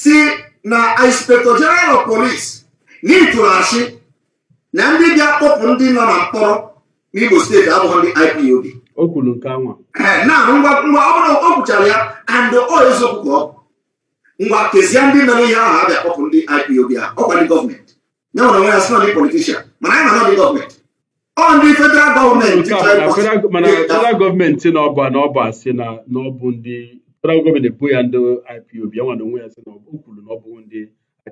si na inspector general of police n'ịtụrụ asị na ndị bịa kpọpụ ndị nọ na mkpọrọ n'Igbo steeti abụghị ndị IPOB o kwuru nke anwa na ngwa ngwa ọ bụrụ o kwuchara ya andị ọ eziokwu ngwa kezie ndị nọ ihe ahụ abịa kpọpụ ndị IPOB ahụ ọkwa ndị gọọmenti ya nwere onwe ya sị ndị politishan mana anyị nọ ndị gọọmenti ọ ndị federal gọọmenti mana federal gọọmenti na ọba na asị na ọ ndị federal gọọmenti bụ ya ndị IPOB ya nwere onwe ya sị na o kwuru na ọ ndị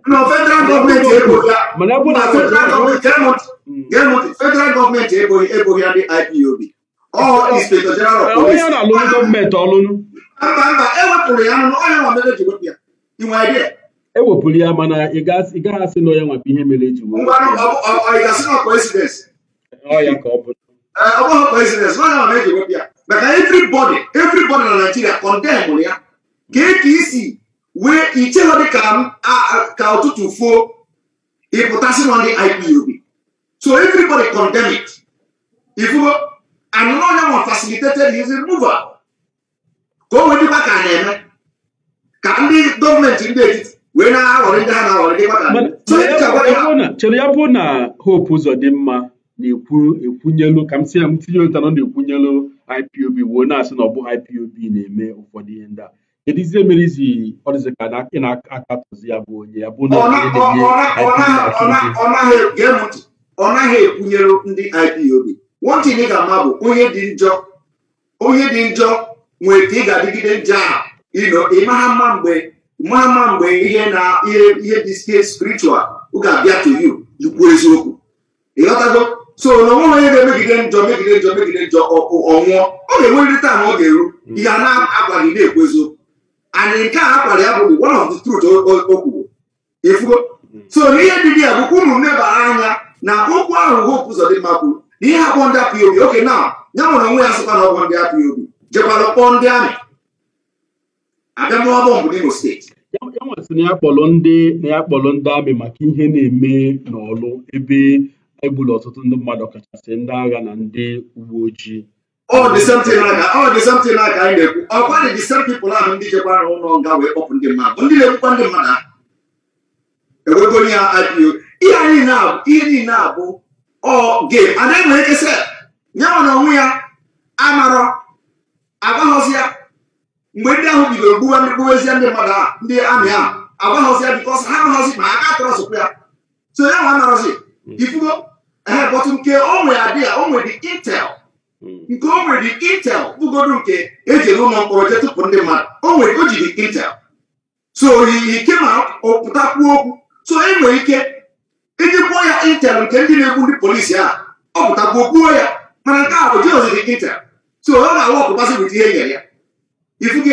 No, federal government ebo ya. Mana bu na federal government cannot. Hmm. Cannot federal government ebo ebo ya the IPOB. All oh. inspector general of eh, police. Onye na lolu government olunu. Mba mba ewepụrụ ya n'ọnụ onye nwa mere ji wepụ ya. I nwere idea. Ewepụrụ ya mana ị gaghị asị na onye nwa bụ ihe mere ji wepụ. Ngwa ọ gasị na coincidence. Ọ ya ka ọ bụ. Ọ bụghị coincidence onye nwa mere ji wepụ ya. Maka everybody everybody na Nigeria condemn ya. Ka e ka wee ichegho dị ka ụtụtụ fuo ịpụtasị nọ ndị IPOB so everybody condemn it ifugo anụna onye nwa facilitated his removal ka o wee dịkwa ka a na-eme ka ndị gọọmenti ndị etiti wee na-aghọrị ndị ha na-aghọrị dịkwa ka chere ya bụ na hope ụzọ dị mma na-ekwu ekwunyelu ka m si ya m tinye ụta na ọ na-ekwunyelu IPOB wee na-asị na ọ bụ IPOB na-eme ụfọdụ ihe ndị a kedu ihe merezi ọdịzi ị na-akatụzi ya bụ onye ya bụ na ọ naghị ekwunyere ndị IPOB nwantị ị ga-ama bụ onye dị njọ onye dị njọ nwere ka ị ga-adịgide njọ a ịmara mma mgbe mara mma mgbe ihe na ihe dị spiritual ga-abịa to you ị eziokwu ịghọtago so na onwe onye ga-emegide njọ megide njọ megide njọ ọ nwụọ ọ ga-enwerịrị taa na ọ ga-eru ihe a na-agwa gị na-ekwu eziokwu anyị nke a akwara ya bụ one of the truth o kwuru efugo so n'ihe dị ya bụkwa ụmụ m nebara anya na okwu ahụ Hope Uzodimma kwuru na ihe akpọ ndị obi oke na ya nwere onwe ya sịkwa na ọgwọ ndị obi jekwara kpọọ ndị amị abịamọbọ mbụ n'Imo steeti ya nwesị na ya kpọrọ ndị na ya kpọrọ ndị amị maka ihe na-eme n'ọlụ ebe egburu ọtụtụ ndị mmadụ ọkachasị ndị agha na ndị uwe ojii Oh, Oh dị something Oh, ọ dị something aka anyị Oh, ekwu ọkwa the same people ahụ ndị chekwara ụlọ nga wee kpọpụ ndị mmadụ Oh na-ekwukwa ndị mmadụ ahụ ewego onye ha IPO ihe niile abụ ihe niile abụ oh, game anaghị nwere ike sel ya nwa na onwe ya amarọ agbaghọzi ya mgbe ndị ahụ bidoro gbuwa ndị gbuwezie ndị mmadụ they ndị amị ahụ agbaghọzi ya bikọs ha amaghọzi ma aka atọrọ trust ya so ya nwa have bottom care, bọtụ we are there, Oh, we the intel Hmm. nke o nwere intel bụgodo nke eji ele ụlọ mkpọrọ jetụpụ ndị mmadụ o nwere o jiri intel so oyiyi ike ma pụtakwuo okwu so e nwere ike iji kwuo ya intel nke ndị na-egbu ndị polisi a ọ pụtakwuo kwuo ya mana nke a bụ jeziri intel so ọ na awụ ọpụtasị bụta ihe e nyere ya ifu gị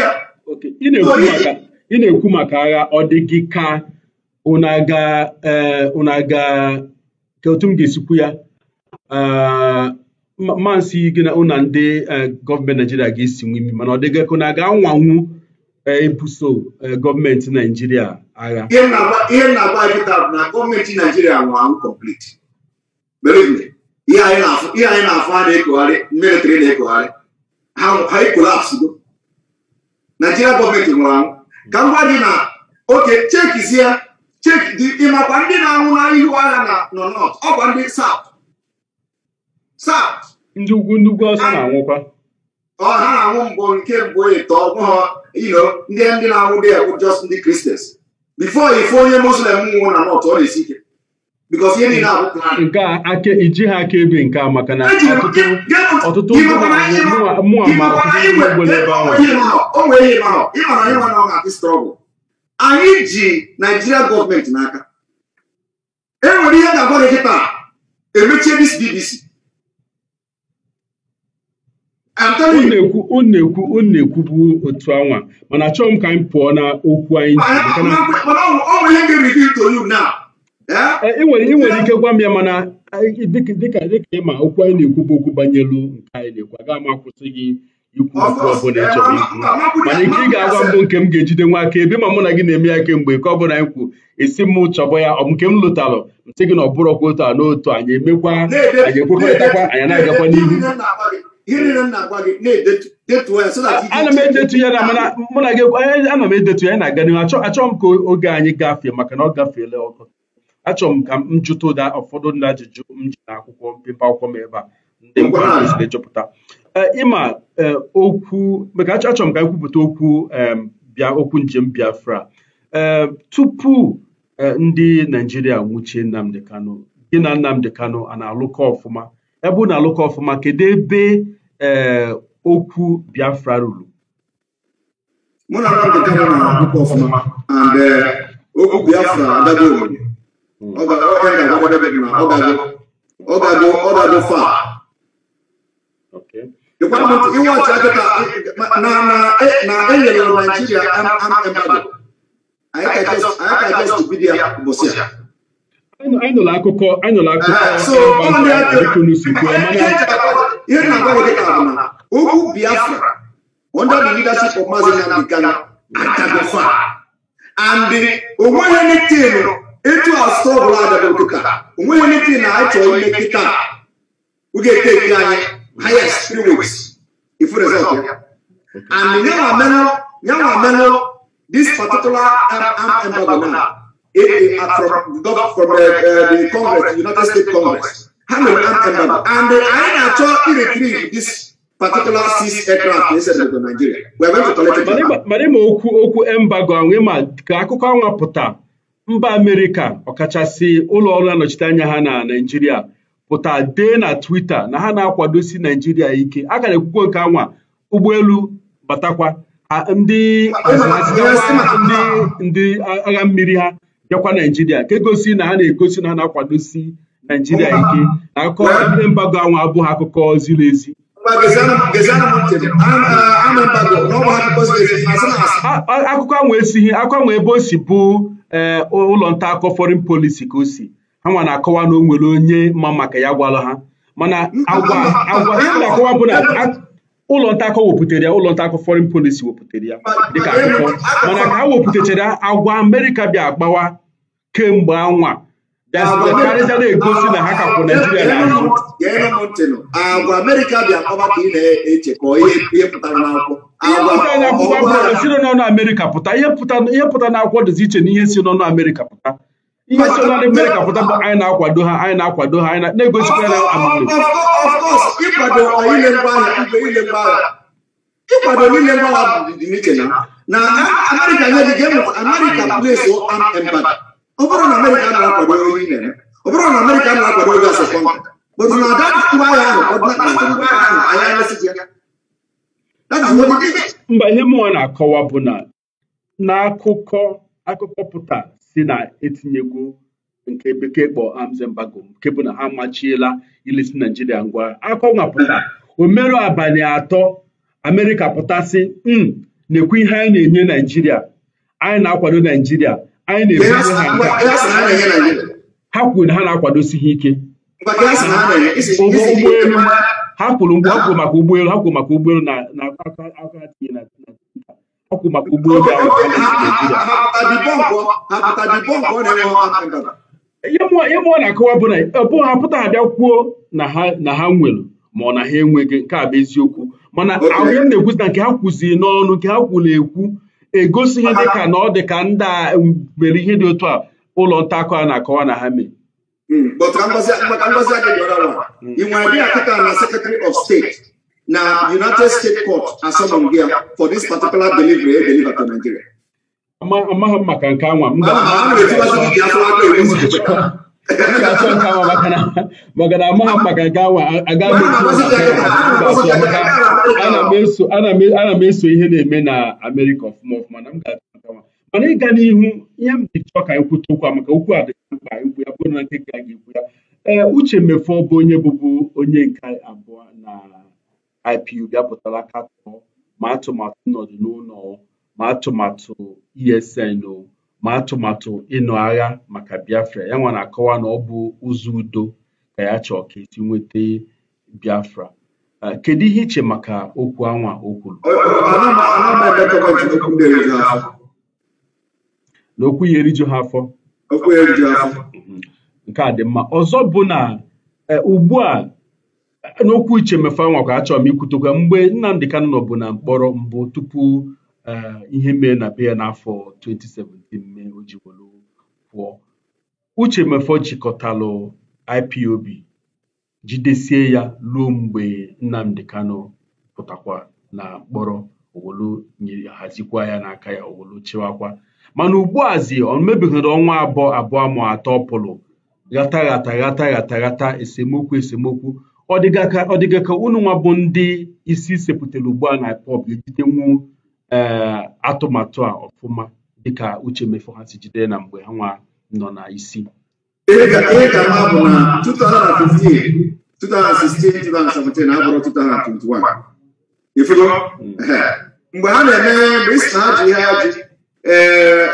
ị na-ekwu maka agha ọ dị gị ka ụnaga eh, ka otu m ga-esikwu ya eh, mansị gị na ụna ndị e, gọọmenti naijiria ga-esi nwe imi mana ọ dịgakụ na ga-anwanwu ebuso e, gọọmenti naijiria agha ihe na-agba nkịta bụ na gọọmenti naijiria nwanwu kọmplit ihe anyị na-afụ a na-ekogharị militri na-ekogharị ha ekolapsigo naijiria gọọmenti nwụrụ anwụ ka m gwa gị na oke chekizie ịmakwa ndị na-anwụ na ihu agha na nọ nọt ọkwa ndị saut saut ndị ugwu ndị ugwu ọsọ na-anwụkwa ọ ha na-anwụ mbụ nke mbụ ịtọ e ọbụghọ ilo ndị ndị na-anwụ dị bụ just ndị kristians bifo ife onye muslim nwụ na nọt ọ na-esi ike bikos ihe niile abụ nke a aka iji ha aka ebe nke a maka na e ọtụtụ mmụọ ma ọtụtụ ebe ahụ anyị ji naijiria gọọmenti n'aka enwere ihe ga-agwa gị kịta emechie dis bbc unu ekwu unu ekwubu otu anwa mana achọghị m ka anyị pụọ na okwu anyị ị nwere ike gwa m ya mana dịka ịma okwu anyị na-ekwu okwu banyelu nke anyị na-ekwu aga m akwụsị gị ikwu okwu ọbụla ị chọrọ ikwu mana nke ị ga-agwa mbụ nke m ga-ejide nwa aka ebe ma mụ na gị na-eme ya kemgbe nke ọ anyị kwu esi m chọbọ ya ọ nke m lụtalụ m sị gị na ọ bụrọkwa otu a n'otu anyị emekwa anyị ekwekọrịtakwa anyị na-agakwa n'ihu ana m edetu ya na mụ na gị m edetu ya na-aga n'ihu achọ m ka oge anyị gafee maka na ọ gafeela ọkụ achọrọ m ka m jụta ụda ụfọdụ ndị ajụjụ m ji na akwụkwọ mpempe akwụkwọ m ebe a ndị kwesịrị ịjụpụta e, ịma e, okwu maka achọrọ m ka ekwupụta okwu bịa okwu njem Biafra e, tupu ndị Naijiria nwuchie Nnamdi Kanu gị na Nnamdi Kanu a na-alụkọ ọfụma ebe unu alụkọ ọfụma kedu ebe ee eh, okwu Biafra ruru mụ na Nwambika bụ na alụkọ ọfụma and eh, okwu Biafra adago obodo fa na enyere naijiria anyị ka jes bidia ụbọchị a anụla akụkọ anụla akụkọ n'usekwu ihe na-agbanwe dị ka bụ na ugwu biafra under the leadership of Mazi Nnamdi Kanu adagofa and eh, onweghị anything eh, etu asụsụ ọbụla adagodo ka onweghị anything na anyị chọrọ ime kịta oge teki anyị highest three weeks ifu result ya and yanwa menụ yanwa menụ this particular arab embargo now if from, from uh, the Congress, United States Congress, ha mere embassy and anyị na-achọ iretrieve this particular six aircraft esedebe Nigeria mana ma okwu okwu embargo anwe ma ka akụkọ anwa pụta mba Amerịka ọkachasị ụlọ ọrụ anọchite anya ha na Naịjirịa pụta dee na Twitter na ha na-akwadosi Naịjirịa ike a gara ekwukwo nke anwa ụgbọelu batakwa ndị ndị agha mmiri ha bịakwa naijiria nke gosi na ha na-egosi na ha na-akwadosi naijiria ike na akụkọ ndị mbago ahụ abụghị akụkọ ziri ezi akụkọ ahụ esighị akụkọ ahụ ebe o si bụ ee ụlọ nta akọ foreign polisi ka o si ha nwa na-akọwa na o nwere onye ma maka ya gwara ha mana agwa agwa na-akọwa bụ na ụlọ ntakọ wepụtara ya ụlọ ntakọ foreign policy wepụtara ya dịka akụkọ mana ka ha wepụtachara agwa amerịka bịa agbawa kemgbe anwa bịazịkarịza na-egosi na ha kakwụ naijiria agwa na-echekọ ihe pụtara n'akwụkwọ akwụkwọ amerịka pụta ihe pụta n'akwụkwọ dịzi iche na ihe si n'ọnụ amerịka pụta ihe so na mere ka pụta bụ anyị na-akwado ha anyị na-akwado ha anyị na-egosikwa ya ịkwado na amerịka nye dị game amerịka place armed ọ bụrụ na amerịka na-akwado ihe na ọ bụrụ na amerịka na-akwado bụrụ na ada ahụ anyị mba ihe mụnwa na-akọwa bụ na n'akụkọ akụkọ pụta si na etinyegwu nke bekee kpọ arms mbago nke bụ na ha amachiela ilesi naijiria ngwa akọwapụta omerụ abalị atọ amerịka pụtasị m hmm, na-ekwu ihe anyị na-enye naijiria anyị na-akwado naijiria anyị na-ebunye ha nga ha kwuru na ha na-akwadosighị ike ha kwuru mgbe ha maka ụgbọelu ha kwuru maka na na ọkwụ maka ụgbọelu ihe mụọ na-akọwa bụ na ọbụ ha pụta abịa kwuo na ha nwere ma ọ na ha enweghị nke a bụ eziokwu mana ahụ m na-ekwu na nke ha kwuziri n'ọnụ nke ha kwuru ekwu egosighị dị ka na ọ dị ka ndị a mere ihe dị otu a ụlọ nta akụ a na-akọwa na ha mere hmm. ị nwere bịa kịta na secretary of steeti. na United States Court asọmpi ya for this particular delivery e deliver to Nigeria. amaghị m maka nke anwa na maka na amaghị ha maka nke anwa agaghị ana m eso ihe na-eme na Amerịka ọfụma ọfụma na m ga-achọ nke mana ịga n'ihu ihe m ji chọọ ka anyị kwute okwu a maka okwu a dị mkpa ikwu ya bụrụ na nke ga-ekwu ya uche mmefu ọ bụ onye bụbu onye nke abụọ na IPU bịapụtala katọ ma atụmatụ nnọdụ n'ụlọ ma atụmatụ ESN o ma atụmatụ ịnụ agha maka Biafra ya nwa na-akọwa na ọ bụ ụzọ udo ka ya chọọ ka esi nweta Biafra kedu ihe iche maka okwu anwa o kwuru okwu ya eriju ha afọ mhm. nke a dị mma ọzọ bụ na e, ugbu a n'okwu iche mmefe anwakwa achọrọ m ikwutokwa mgbe Nnamdi Kanu bụ na mkpọrọ mbụ tupu e, ihe mee na be ya n'afọ 2017 mee o ji pụọ Uche Mefọ jikọtalụ IPOB jidesie ya ruo mgbe nnamdị Kanu pụtakwa na mkpọrọ owolu hazikwa ya n'aka ya owolu chịwakwa mana ugbuazi ọ ọnwa abụọ abụọ ma atọ pụlụ ghata ghata ghata ghata ghata esemokwu esemokwu ọ dịga ka unu nwa bụ ndị isi sepụtara ugbu a na pọb ga-ejidenwu eh, atụmatụ a ọfụma dịka uche mefo ha si jide na mgbe ha nwa nọ na isi ihe ka mma bụ na 2016 2017 abụrụ 2021 ifugo mgbe ha na-eme mgbe isi na ajụ ihe ajụ ee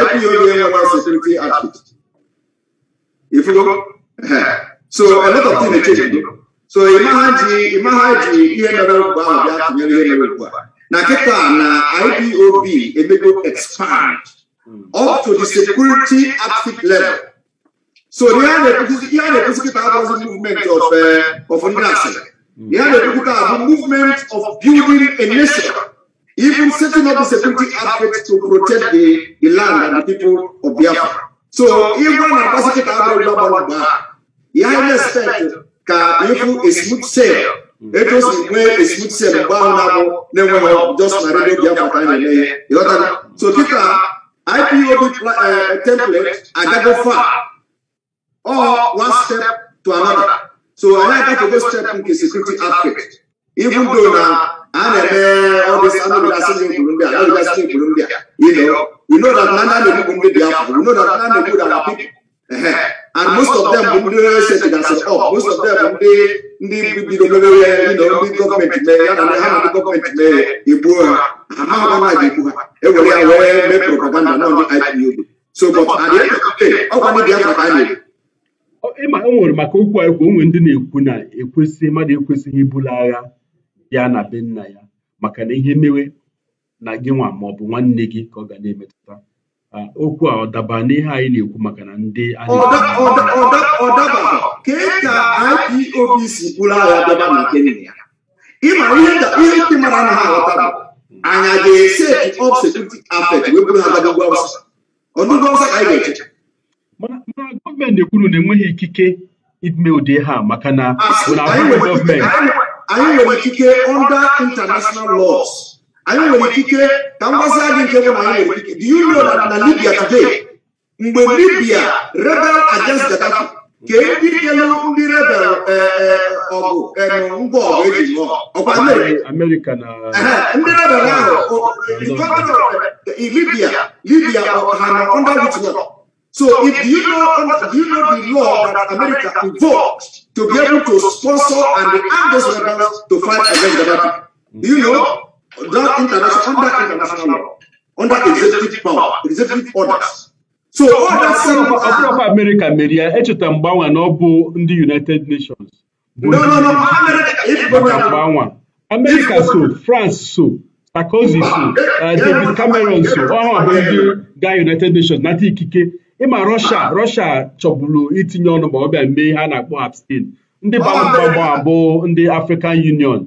IPOB enweghị sekuriti atụtụ ifugo So a lot of things are changing. So imagine imagine ihe mere ugbu ahụ bịa tụnyere ihe mere ugbu a. Na kịta na IPOB emego expand up to the security outfit level. So ihe a na-ekwuzi kịta abụghị movement of uh, of ndị asịrị. Ihe a na-ekwu kịta abụ movement of building a nation. Even setting up the security outfit to protect the, the land and the people of Biafra. So, ịgwa na-akpasị kịta abụghị ugbu ahụ ya na-expect ka ịfụ esmut sel etu o si nwee esmut sel mgbe ahụ na-abụ na-enweghị just na redio biafra ka anyị na-eme ya ịghọtara so kịta ipob template agago fa ọ one step to another so anyị agafego step nke security aspect even though na a na-eme ọdịs anụgasị na egburu ndị a anụgasị na egburu ndị a you know we know that na ndị a na-egbugbu ndị biafra we know that na na-egbu that people and most of them bụ ndị ọrụ setịgasịrị up most of them bụ ndị ndị bido mewewe ndị gọọmenti mee ya na ha na ndị gọọmenti mee egbuo ha amaghịkwa na ga-ekwu ha ewere ya wee mee propaganda na ndị IPOB so but at the end ọ the ndị Biafra ka anyị. na ịma o nwere maka okwu a ekwu onwe ndị na-ekwu na ekwesị mmadụ ekwesịghị ibulu agha ya na be nna ya maka na ihe mewe na gị nwa ma ọ bụ nwanne gị ka ọ ga na-emetụta okwu a ọ daba n'ihe anyị na-ekwu maka na ndị ọdaba ka e ka IPOB si bụrụ agha daba na Kenya ịma ihe ndị mara na ha aghọta bụ anya ga-ese of security afet wee bụrụ ha gagagwa ọsọ ọdụgwa ọsọ ka anyị ga-eche mana gọọmenti kwuru na enweghị ikike ime ụdị ha maka na anyị nwere ikike under international lọs. anyị nwere ikike ka m gwazie nke bụ anyị nwere ikike do you know that na libya today mgbe libya rebel against gaddafi ka ndị kelu ndị rebel e, e, ọgụ e, ngwa ọgụ eji lụọ ọkwa ndị rebel ahụ libya libya ha na under witness So if you know, if you know the law that America invoked to be able to sponsor and arm those to fight against the Gaddafi? you know? without international, under international law, under executive power, executive orders. So all that same of America media, echeta mgbanwe na ọ bụ ndị United Nations. No, no, no, America. America so, France so, Sarkozy so, uh, David Cameron so, ọha bụ ndị ga United Nations nata ikike. Ịma Russia, Russia chọburu itinye ọnụ ma ọ bịa mee ha na-akpọ abstain. Ndị gbara mgbanwe bụ ndị African Union.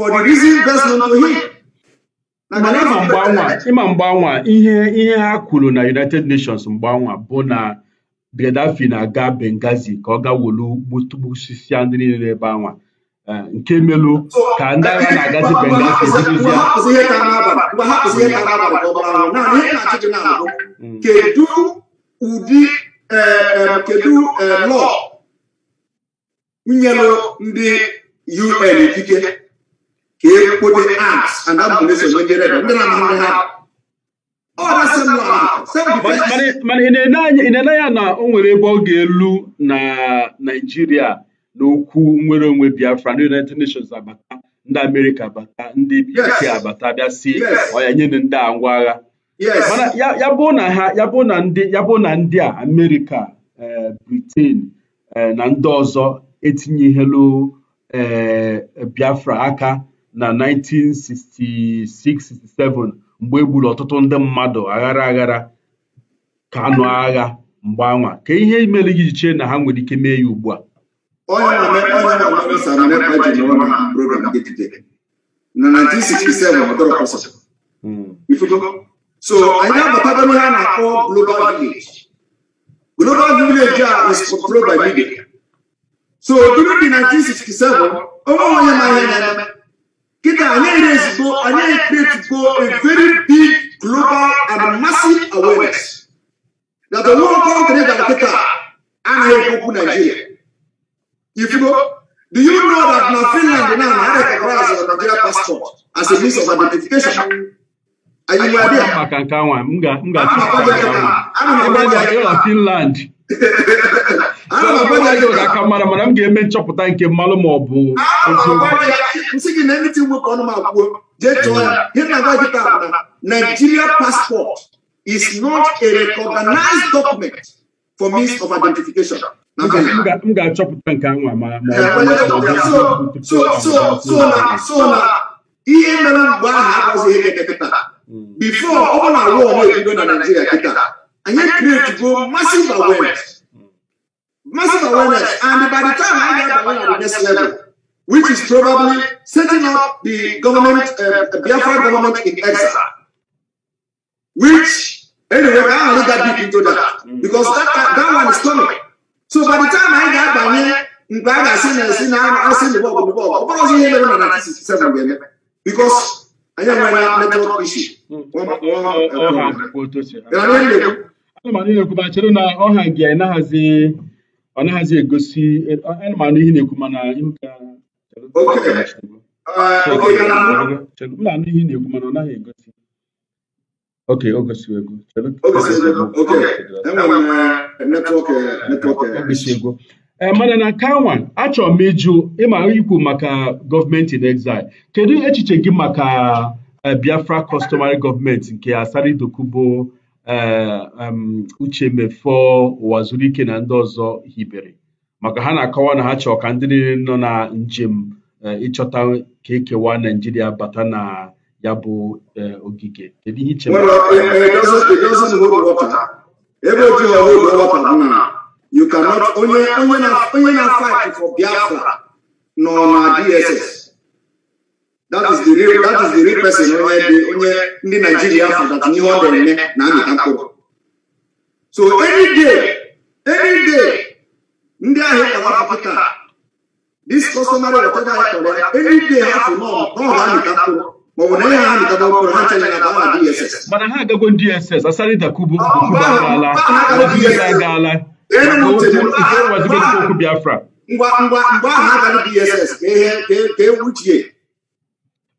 for the reason best to him. mana ịma mgbanwa ihe ihe ha kwuru na united nations mgbanwa bụ na Gaddafi na-aga bengazi ka ọ gawolu gbutugbusia ndị niile ebe anwa eh, nke melu ka ndị agha na-agazi bengazi mm. kedu ụdị eh, eh, kedu lọ nyelụ ndị UN ikike ka e ekwode acts and abolition megere ndị na-amahụ ha mana ị na-ele ya na o nwere ebe ọ ga-elu na Naịjirịa n'okwu nwere onwe Biafra na United Nations abata ndị amerika abata ndị UK abata bịa si ọya nye ndị a ngwa agha mana ya bụ na ndị a amerika eh, Britain eh, na ndị ọzọ etinyehelu eh, Biafra aka na 1966-67 mgbe e gburu ọtụtụ ndị mmadụ aghara aghara ka anụ agha mgbe anwa ka ihe imere gị chee na ha nwere ike mee ya ugbu a so anyị abatago n'ihe a na-akpọ global village global village a is controlled media so during the 1967 onwe onye ma ihe na Kita Anya is go, Anya create go a very big global and massive awareness that the world company that Kita Anya Koku Nigeria. If you go, do you know that now Finland now had a class of Nigeria passport as a means of identification? Are you aware? I'm not going to Finland a ga aka mara mana m ga-eme nchọpụta nke mmalụ ma ọ bụ Nigeria passport is not a recognized document for means of identification. m ga-achọpụta nke anwa ma ihe mere mgbe ahụ abụzighị eke kịta bifo ọ bụ na rụọ ọrụ ebido na Nigeria kịta anyị kretugo massive awareness massive awareness. And by the time I got awareness at next level, which is probably setting up the government, uh, the Biafra government in exile, which, anyway, I don't got deep into that because that, that, that one is coming. So by the time I got by here, mgbe a ga-asị na esi na asị na bọọgụ bụ bọọgụ ọ bụrụ ọzọ ihe mere na 1967 ga-eme bikos anyị nwere netwọk ishi ana m na-ekwuba chere na ọha gị anaghịzi ọ naghịzi egosi anụmanụ ihe na-ekwu mana eh, anụ ihe na-ekwu mana ọ naghị egosi ok o gosigo ego ego mana na kanwa achọ m ịjụ ịma ikwu maka gọọmenti in exile kedu echiche gị maka eh, biafra customary gọọmenti nke Asari Dokubo Eh, uche Mefọọ Ụwazurike na ndị ọzọ hibere maka ha na-akọwa na ha chọọ ka ndị niile nọ na njem eh, ịchọta ka ekewa Naijiria bata na ya bụ eh, ogige kedu ihe iche ebe onye na-fight for Biafra nọ na DSS that is the real that is the real person eh, onye ndị Naijiria fụtata ihe ọ na-eme na amịta mkpụrụ so every day day ndị ahịa ewapụta this customary whatever ha kpọrọ every day ha fụ n'ọha amịta mkpụrụ maọbụ na ihe ha amịtata mkpụrụ ha chere na DSS mana ha agago DSS asarị dakubu kubu agaala ahụ agaghị DSS ka e, e, e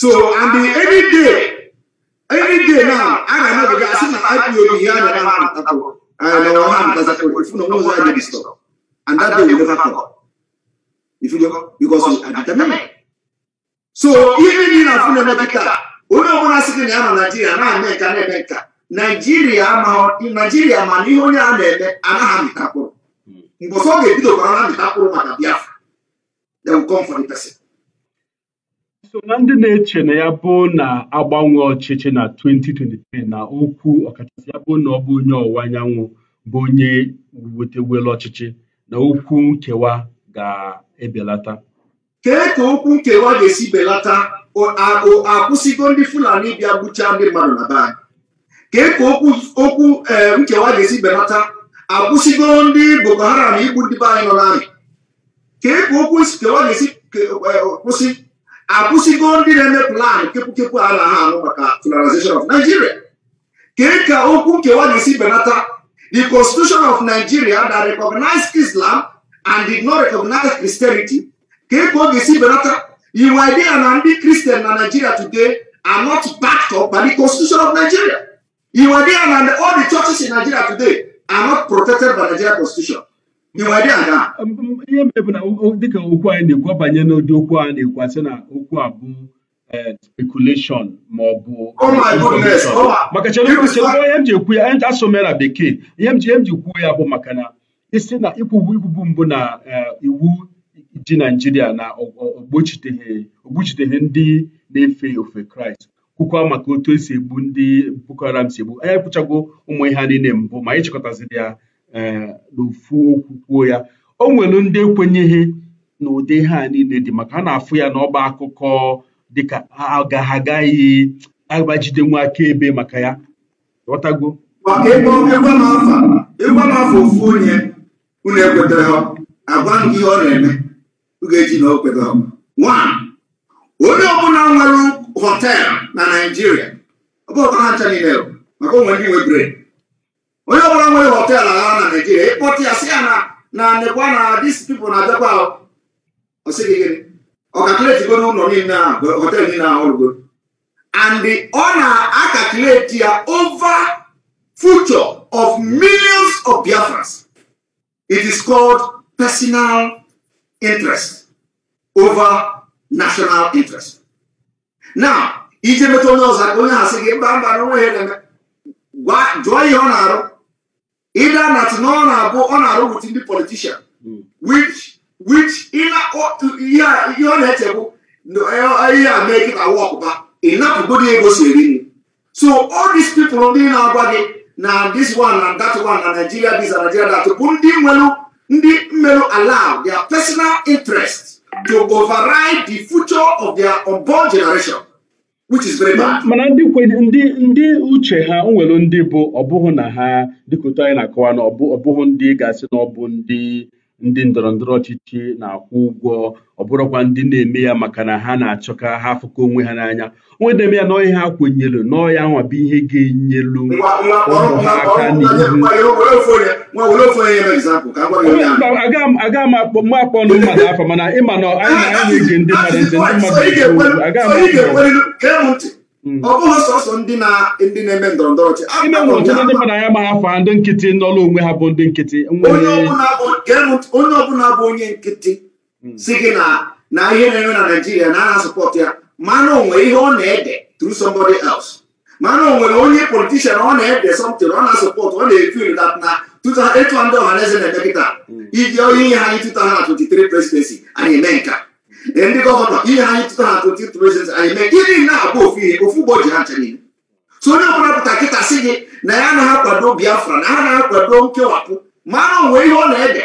So, and the any day, any day now, I don't know, because I see my IPO here and I don't know, and our hand does that, if no knows I did stop. And that day will never come. If you know, because we are So, even in a funeral, onye ọbụla sị gị na ya nọ naijiria na-eme nka na-eme nka naijiria naijiria ma na onye a na-eme anaghị amịta mkpụrụ mgbe ọsọ ọ ga na amịta mkpụrụ maka biafra they will come for the person so na ndị na-eche na ya bụ na agbanwe ọchịchị na 2023 na okwu ọkachasị ya bụ na ọ bụ onye ọwụwa anyanwụ bụ onye wetewela ọchịchị na okwu nkewa ga-ebelata kee ka okwu nkewa ga-esi belata akwụsịgo ndị Fulani bịa gbuchaa ndị mmadụ na be kee ka okwu eh, nkewa ga-esi belata akwụsịgo ndị Boko Haram igbu ndị be anyị nọ n'amị kee ka okwu nkewa ga-esi eh, kwụsị akwụsịgo ndị na-eme plan kepụkepụ a na-ahụ maka federalization of Nigeria kee ka okwu nkewa ga-esi benata the constitution of Nigeria that recognized Islam and did not recognize Christianity kee ka ọ ga-esi benata iwu idea na ndị Christian na Nigeria today are not backed up by the constitution of Nigeria iwu idea na all the churches in Nigeria today are not protected by Nigeria constitution Um, um, ihe bụ na dịka okwu anyị na-ekwu banye n'ụdị okwu a na-ekwu asị na okwu a bụ eh, speculation ma ọ bụ maka ihe m ji ekwu ya na bekee ihe m ji kwuo ya bụ maka na isi na ikwubu ikwubu mbụ na eh, iwu ji naijiria na ogbochiteghị ndị na-efe ofe kraịst kwukwa maka otu esi egbu ndị boko haram si egbu anya ekwuchago ụmụ ihe niile mbụ ma anyị chịkọtaziri ya E, n'ofu okwu kwuo ya o nwere ndị ekwenyeghị na ụdị ha niile dị maka ha na-afụ ya n'ọba akụkọ dịka ha agaghị agbajidenwu akaebe maka ya ghọtago maka ebe ịgba n'afọ ofu onye unu ekwetere agwa gị ihe ọ na-eme ụ ga-eji na o Nwa onye ọbụla nwere họteelụ na Naijiria, ọ bụ ọtara ncha niile maka onwe ndị nwe bred onye ọbụla nwere họteelụ agha na naijiria ịkpọta ya si ya na na nekwa na dis pipo na abịakwa osigigiri ọkakuleti niile ahụ họteelụ niile ahụ ọrụgo and ọ na-akakuleti ya over future of millions of biafrans it is called personal interest over national interest now ije meta onye ọzọ ka onye ha sị gị mba mba na onwe ha jụọ ihe ọ na-arụ either na ti na ọ na-abụ ọ na-arụ with ndị politician hmm. which which to ihe ọ na make it a work, kịta enough ịnapụgodi ego si eri nri so all these people ndị na-agwa gị na this one and that one na Nigeria this and Nigeria that bụ ndị nwere ndị mmerụ allow their personal interest to override the future of their unborn generation mana ndị ndị uche ha nwere ndị bụ ọbụghị na ha dịkụta anyị na-akọwa na ọbụghị ndị ga-asị na ọ bụ ndị ndị ndọrọ ndọrọ ọchịchị na-akwụ ụgwọ ọ bụrụkwa ndị na-eme ya maka na ha na achọka ha afụkọ onwe ha n'anya onwe na-eme ya n'ọhịa ha kwenyelu n'ọhịa nwa bụ ihe ga-enyelu ụmụ aka aga m akpọ mmadụ afọ mana ịma na anyị na-ege ndị mmadụ ntị ndị mmadụ Hmm. ọ bụghị sọsọ ndị na-eme ndọrọ ndọrọ ọchị ndị mmadụ anya ma afa ndị nkịtị n'ọlụ onwe ha bụ ndị nkịtị onye ọbụla bụ onye nkịtị hmm. si gị na ihe na enwe na naijiria na agha sọpọt ya mana o ihe ọ na-ede through somebody else mana o onye politishan ọ na-ede something ọ na-asọpọt ọ na-efil dat na etu ndị ọha na eze na-eme kịta hmm. iji onye ihe ha anyị 2023 presidency anyị eme nka ndị gọvanọ ihe anyị tụtara na 22 reasons anyị mee gịnị na-abụ ofu ihe ofu ụgbọ ji ha nche niile so onye ọbụla pụta kịta sị gị na ya na-akwado biafra na ha na-akwado nkewapụ mara onwe ihe ọ na-ede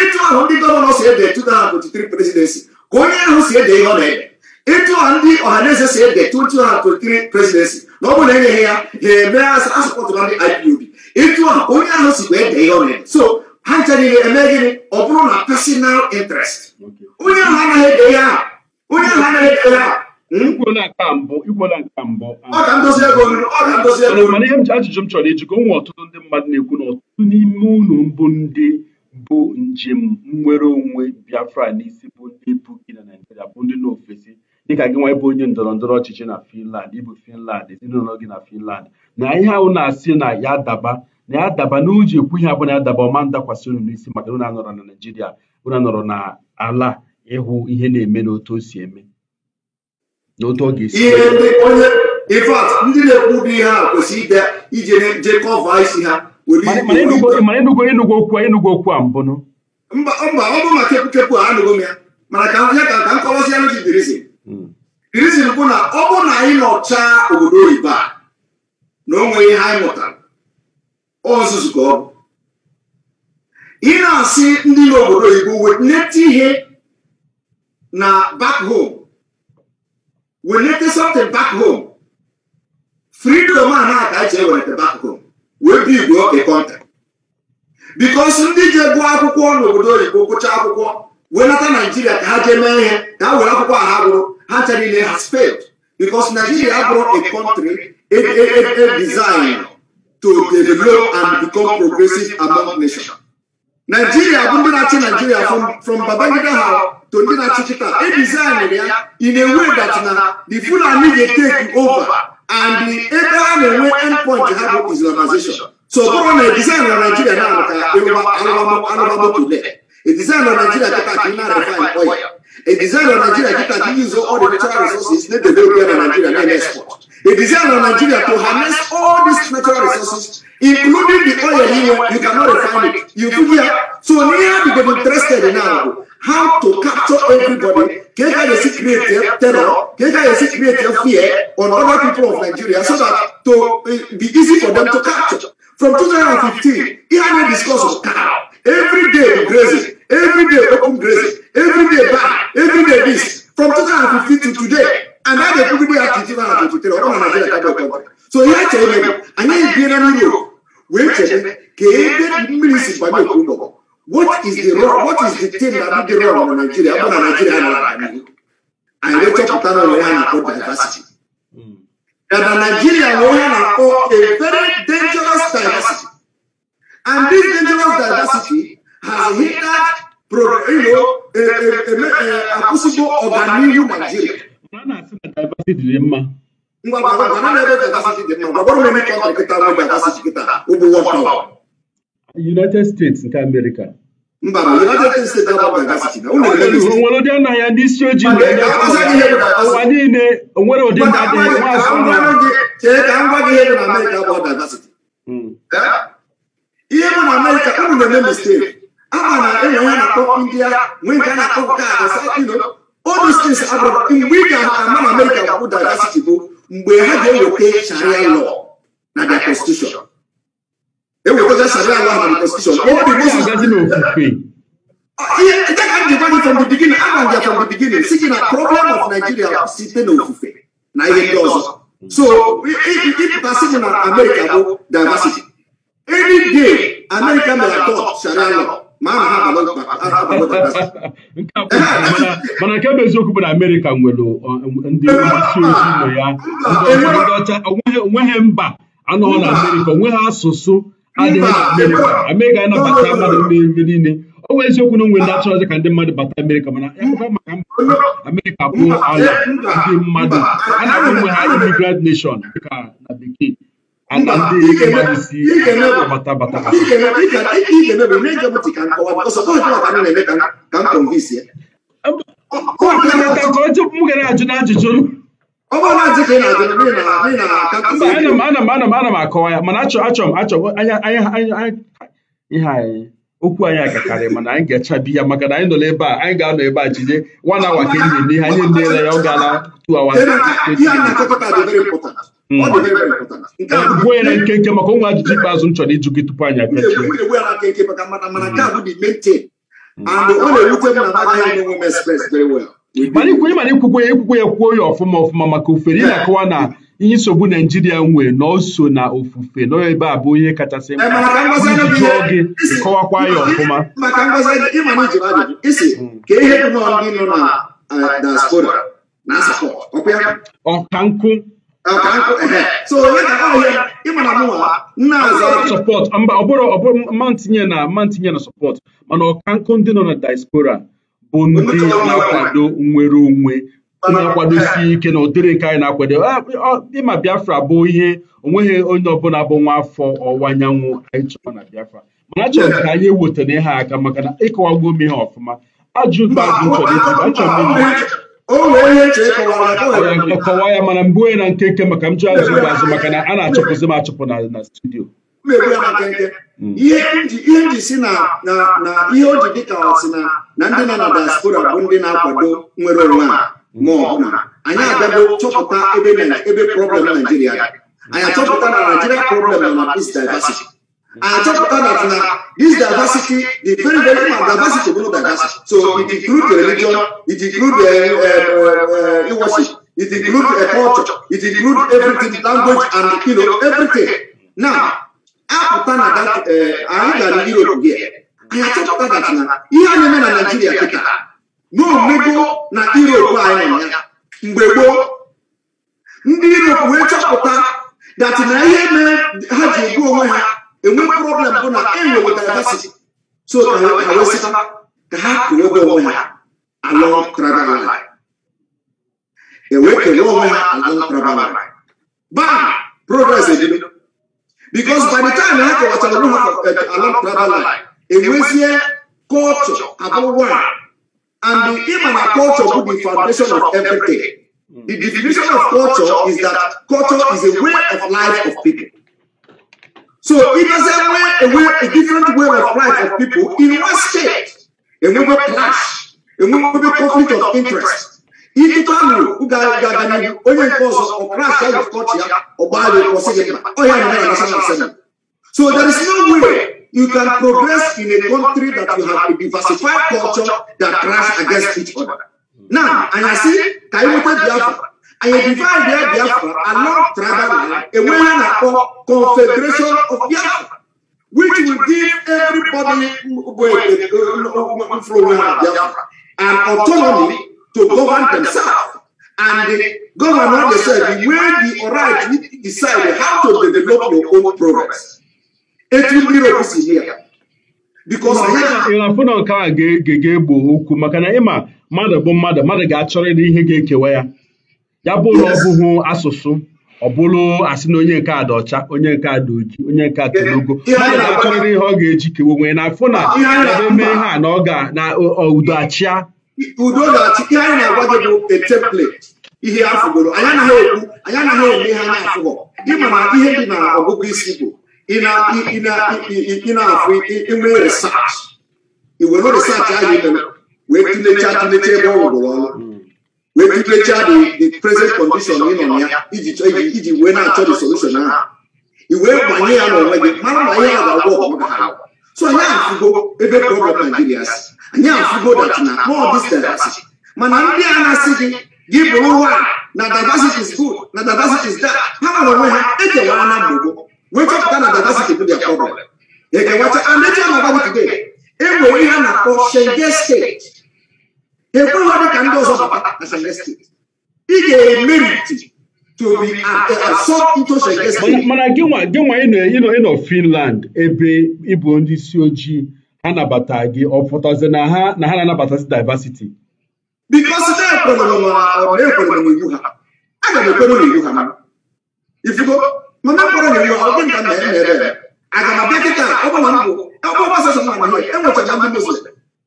ịtụ ahụ ndị gọvanọ si ede 2023 presidensi ka onye ahụ si ede ihe ọ na-ede ịtụ ahụ ndị ọhaneze si ede 2023 presidensi na ọ bụrụ na enyeghị ya ha eme asọpụtụra ndị IPOB ịtụ ahụ onye ahụ sikwa ede ihe ọ na-ede so ha ncha niile eme gịnị ọ bụrụ na personal interest onye ahụ anaghị ede ya aha onye ahụ anaghị ede ya aha hmm? ọ ga ndozi ego ọ ga ndozi ego mana ihe m ji ajụjụ m chọrọ ejikọ onwe ọtụtụ ndị mmadụ na-ekwu na ọtụtụ n'ime ụlọ mbụ ndị bụ njem nnwere onwe Biafra n'isi bụ ndị na Naịjirịa bụ ndị n'ofesi dịka gị nwa bụ onye ndọrọ ndọrọ ọchịchị na Finland ịbụ Finland ezinụlọ gị na Finland na ihe ahụ na-asị na ya daba na-adaba n'uji ekwu ihe abụọ na-adaba ọma ndakwasị unu n'isi maka na anọrọ na Naịjirịa unu anọrọ na ala ịhụ ihe na-eme n'otu o si eme n'otu ọ ga-esi ihe a ije ha okwu a okwu a mana hmm. na ọ bụ na anyị nọchaa obodo oyibo a na ihe anyị mụtara ọzụzụ ka ọ bụ ị na-asị ndị n'obodo oyibo weneta ihe na back home weneta something back home freedom a na-aka eji eweneta back home wee bi igwe ọka kọnta bikos ndị ji gụọ akwụkwọ n'obodo oyibo gụcha akwụkwọ wee naijiria ka ha jee mee ihe ka ha were akwụkwọ a ha gụrụ ha nchara niile ha sped bikos naijiria abụrụ a kọntrị edizin e, e, e to develop and become progressive among nations. Nigeria bụ ndị na Nigeria from from Babangida ha to ndị na-achị chịta e design ya in a way that na the Fulani ga-take over and the ha na-enwe endpoint ha bụ Islamization. So bụrụ na design na Nigeria na-alụ ka alụbamotole. A design na Nigeria kịta ka ị refine oil. A design of Nigeria that can use all the natural resources need to develop in Nigeria and export. A design of Nigeria to harness all these natural resources, including the oil here, you cannot refine it. You here, so near become interested now how to capture everybody, get how you create terror, get how you create fear on other people of Nigeria so that to eh, be easy for them to capture. From 2015, he had a discourse of cow. Every day we graze every day open grace, every day back, every day this, from 2015 to today. And that the people have to give out to tell all Nigeria that go So here tell me, and I be na you. Wait tell me, ke mmiri si ba me kuno. What is the wrong? What is the thing that be the wrong on Nigeria? Abana Nigeria na. And we talk about on one about diversity. Hmm. That Nigeria we have a very dangerous diversity. And this dangerous diversity has hindered akwụsịgo ọganihu naijiria united states nke amerịka ndị ihe bụ na amerịka unu na-eme mistake Anna, everyone at top India, when Ghana top Ghana, you know, all these things abroad. In we can among America would diversity go, we have they will take Sharia law, not their constitution. They will go to Sharia law and constitution. All the Muslims doesn't know. Ah, yeah, that can be done from the beginning. I can get from the beginning. Seeking a problem of Nigeria, sitting on Fufe. Now he does. So, if you keep passing on America, diversity. Any day, America may adopt Sharia law. mana nke bụ eziokwu bụ na Amerịka nwere uh, ndị mgbasi ozi ụlọ ya onweghị mba anọghị na Amerịka onweghị asụsụ adịghị na Amerịka ga anabata mmadụ n'ebe niile ọ nwee eziokwu na onwe ndị achọrọzi ka ndị mmadụ bata amerika mana emekwa maka mba Amerịka bụ ala ndị mmadụ a na-ahụ onwe ha imigrant nation dịka na bekee ana ndị isi bata bata m ga na-ajụ na ajụjụ ana m akọwa ya mana achọ m achọ ihe anyị okwu anyị agakarị mana anyị ga-echabi ya maka na anyị nọ na a anyị ga-anọ ebe a jinye nwa na awa ka enyi n'ihe anyị nneela ya ọ gaala two Mm. nwere nkenke maka onwe ajụjụ ikpeazụ m chọrọ ịjụ gị tupu anyị agachi maka mana a mm. na na very well ikwukwe ya ekwukwe ya kwuo ya ọfụma ọfụma maka ofere ị na-akọwa na ihe nsogbu naijiria nwee na o na ofufe na ebe a bụ eh, ihe kachasị mkpa jụọ gị kọwakwa ya ọfụma ọka nkụ ịmana mba ọbụrụ ọbụrụ na mantinye na sọpọt mana ọkankụ ndị nọ na diaspora bụ ndị na-akwado nnwere onwe na-akwadosi ike na ụdịrị nke anyị na-akwado ah, ịma Biafra bụ ihe onweghị onye ọbụla bụ nwa afọ ọwụwa anyanwụ anyị chọrọ na Biafra mana achọrọ ka anyị wetara ihe aka maka na ịkọwagbo m ihe ọfụma ajụ kọwaa ya mana mbụ onye na nkenke maka m ji azụ ụgwọ maka na a na-achụpụzi m achọpụ na studio hmm. ihe ihe ji si na ihe o ji ka si na ndị nọ na diaspora bụ ndị na-akwado nwere onwe a ma ọbụla anyị abịago chọpụta ebe problem naijiria anyị achọpụta na naijiria problem nọ na peace diversity And on top of that, now, this diversity, the very, very important diversity, no diversity. So it includes religion, it includes uh, um, uh, uh, it includes uh, culture, it includes everything, language, and you know, everything. Now, apụta na that anyị uh, gara Europe gị anyị achọpụta that na ihe a na-eme na Naijiria kịta na omego na Europe anyị nọ ya mgbe gboo ndị Europe wee chọpụta that na ihe mere ha ji egbu onwe ha enwe problem bụ na enwe diversity so ka wesị ka ha kere ebe onwe ha ala tribal line enwe kere onwe ha ala tribal line bam progress edebe because by the time ha kewachara onwe ha eh, ala tribal line enwezie culture abụ one and ịma na culture bụ the foundation of everything the definition of culture is that culture is a way of life of people So it doesn't wear a, way, a different way of life of people in one state. And we clash. a we be conflict of interest. If you tell me, any? only cause of clash out of culture, or by the position, oh yeah, that's what I'm saying. So there is no way you can progress in a country that you have a diversified culture that clash against each other. Now, and I see, Kaiwote Biafra, anyị divide Biafra along tribal line enwe ihe na-akpọ confederation of Biafra which will give everybody bụ mfụrụ na Biafra an autonomy to govern themselves and the governor decide when the right decide how to develop your own progress. Etu Europe si here. ịrafụ na nke a ga-egbo okwu maka na ịma mmadụ bụ mmadụ mmadụ ga-achọrọ ịdị ihe ga-ekewa ya ya bụrụ ọ bụghị asụsụ ọ bụrụ asị na onye nke a ọcha onye nke a dị oji onye nke a na-achọrịrị ihe ọ ga-eji kewe onwe na afụ na eme ihe a na ọ ga na udo achịa udo ga-achị ihe anyị na-agwa gị bụ template ihe afụgoro anyị anaghị ekwu anyị anaghị eme ihe anyị afụgo ịma na ihe dị na ọgụgụ isi bụ ị na-afụ inwe research iwere research ahụ imere wee tụlechaa tụlechaa ebe ọ rụgoro ọrụ legislature the the present condition nọ na ya iji chọ iji iji wee na-achọ the solution ahụ iwe banye ya n'onwe gị mara na ihe a ga-agwọ ọgọmọ ha so anyị afụgo ebe problem Nigeria si anyị afụgo that na all this diversity mana ndị a na-asị gị gị bụrụ nwa na diversity is good na diversity is that ha nọrọ onwe ha ekewara na mgbogbo wee chọpụta na diversity bụ their problem ekewacha and echi a na-agwa gị today e nwere ihe a na-akpọ Shengen state ekweghị onye ka ndị ọzọ bata na ị ga-emeriti mana gịnwa gịnwa ịnọ Finland ebe ịbụ ndị isi ojii ha nabata gị ọ pụtazi na ha na ha diversity na iwu ọgụ na emere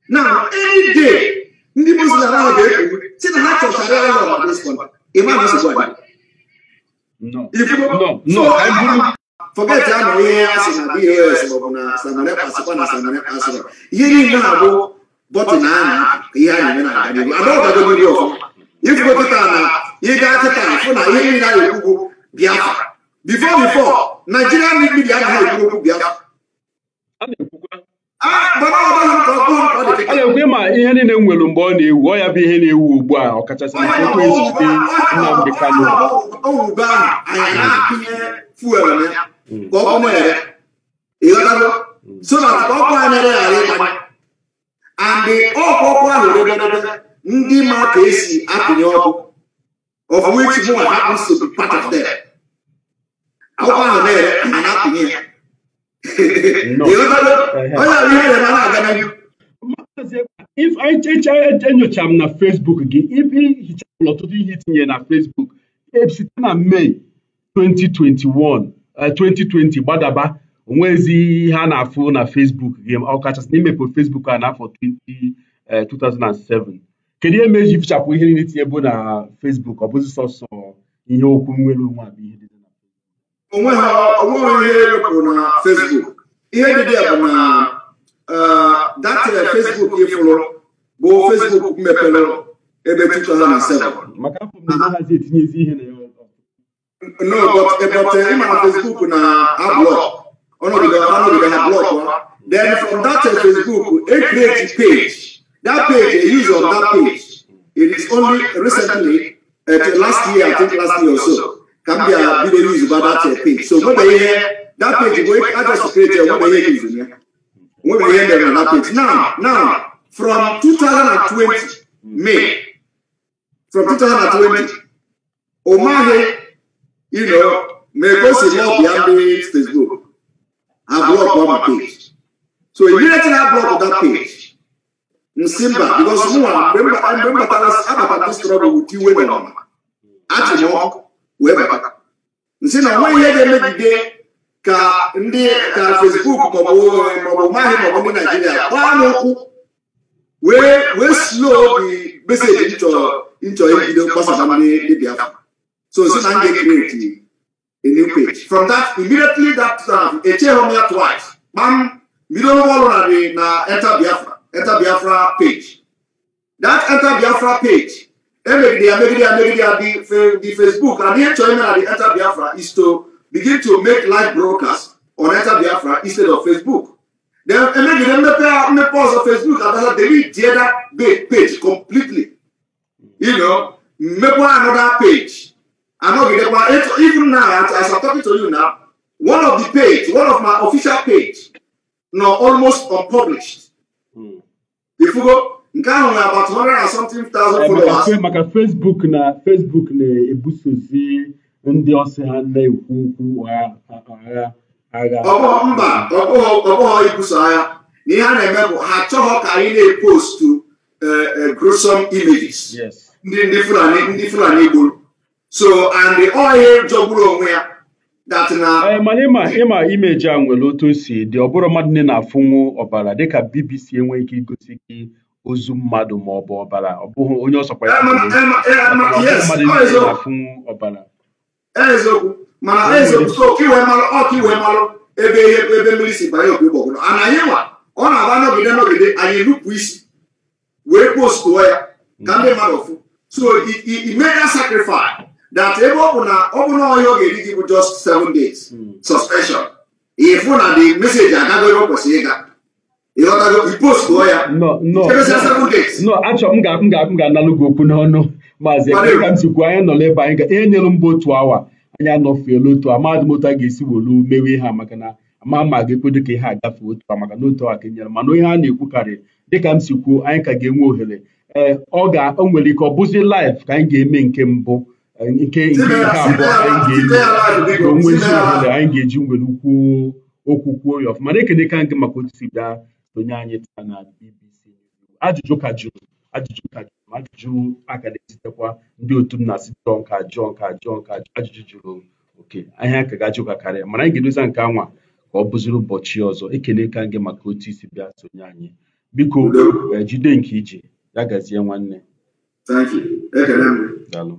na e any ndị muslim ahụ ga-ekwu si na ha chọchara ya na imam is one no i buru forget ya na ihe a sị na bos maọbụ na samare pasịkwa na samare pasịkwa ihe niile na-abụ bọtụl a na ihe a na-eme na agadiru adọgadogori ọfụma ifugo kịta na ịga kịta fụ na ihe niile a na-ekwugwu biafra bifo bifo naijiria ndị mmiri anaghị ekwu okwu a na-ekwe ma ihe niile m nwere mgbe ọ na-ewu ọ ya bụ ihe na-ewu ugbu a ọkachasị na ekwe ezute Nnamdi Kanu andị ọkụkụ ahụ ndị ma ka esi apịnye ọkụ of which one happens to be part of them akwụkwọ ahụ na-ere a na-apịnye ya enyochara m na fesbuk gị ibe hichapụrụ ọtụtụ ihe itinye na fesbuk site na mee 2021 eh, gbadaba onwezi ihe a na-afụ na fesbuk gị ọkachasị na imepe fesbuk a n'afọ 2007 eh, kedu ihe meji fichapụ ihe niile tinye bụ na fesbuk ọ bụzi sọsọ ihe okwu nwere onwe abụ ihe onwe ha onwe ihe bụ na Facebook ihe dị dị bụ na datịrị uh, Facebook ịfụrụ bụ Facebook mepere ebe 2007 no but ebọte uh, ịma na Facebook na ablọk ọnọdụga ọnọdụga ha blọk then from that Facebook a e create page that page a use of that page it is only recently at uh, last year I think last year or so Gambia video news about that page. So what they hear, that page, where I just created, what they hear is in here. What they hear them that page. Now, now, from 2020, May, from 2020, Omahe, you know, may go see more Biambi Facebook. I blocked on page. So immediately I blocked that page. Nsimba, because no one, remember, I remember that I was about to struggle with you women on. Actually, wee bata nsị na onwe ihe ga-emegide ka ndị ka fesbuk maọbụ maọbụ maọbụ ndị naijiria gbaa n'ụkwụ wee wee slo meseji nchọ nchọ ibido gbasara ndị so nsị na m ga-ekreti from that immediately that time echeghị ya twice kpam bido ọrụ narị na enter biafra page that enter page Emegidia, Megidia, Megidia, the, the Facebook and the China and the Enter Biafra is to begin to make live broadcasts on Enter Biafra instead of Facebook. Then Emegidia, Mepe, Mepe also Facebook and that's delete the other page completely. You know, Mepe another page. And eh, even now, as I'm talking to you now, one of the page, one of my official page, now almost unpublished. Hmm. If nke ahụ na agbata 100 and something thousand eh, followers. maka Facebook na Facebook na-ebusozi ndị ọsị ha na-ekwu okwu agha agha. ọbụ mba ọbụghọ ibuso agha na ihe a na-eme bụ ha chọghọ ka anyị na-epostu eh, eh, gruesome images ndị ndị Fulani ndị Fulani gburu so and the oil jọgburu onwe ya mana ịma ịma imeji a nwere otu o si dị ọ bụrụ mmadụ na-afụnwu ọbara dịka BBC enweghị ike igosi gị ozu mmadụ ma ọ bụ ọbara ọ bụghị onye ọsọkwa ya mmadụ na-afụ oh. ọbara so iwe malụ ebe ihe ebe mmiri si banye obi a na nwa ọ na-aba n'ogide n'ogide anyị nupụ isi wee postuo ya ka ndị mm. mmadụ fụ so imega sacrifice that ebe ọ bụ na ọ bụ na ọhịa ga-eri gị bụ just seven days mm. suspension ịfụ na the message agago ebe kwesịrị ịga ịpostuo ya nọ achọ m ga-apụ ga-apụ ga-analụ gị okwu n'ọnụ maazị ka m sikwu anyị nọ n'ebe anyị ga ihe nyere mba otu awa anyị anọfuela otu a mahadum otu a ga-esi wolu mewe ihe a maka na ama ma ga-ekwedo ka ihe agafe otu a maka na otu awa ka enyere mana onye a na-ekwukarị dịka m sikwuo anyị ka ga-enwe ohere ee ọ ga-o nwere ike ọ bụzi laif ka anyị ga-eme nke mbụ eh, nke nke abụọ anyị ga-eme ka o ohere anyị ga-eji nwere ukwu okwu kwuo ya ọfụma na-ekene ka gị maka otu si bịa onye anyị taa na BBC ajụjụ ka jụrụ ajụjụ ka jụrụ ajụjụ a ka na-esitekwa ndị otu m na-asị jụọ nka jụọ nka jụọ nka ajụjụ jụrụ oke ahịa ka ga karịa mana anyị ga-edozi nke anwa ka ọ bụziri ụbọchị ọzọ ekele ka gị maka otu isi bịa sonye anyị biko eh, jide nke ije ya gazie nwanne daalụ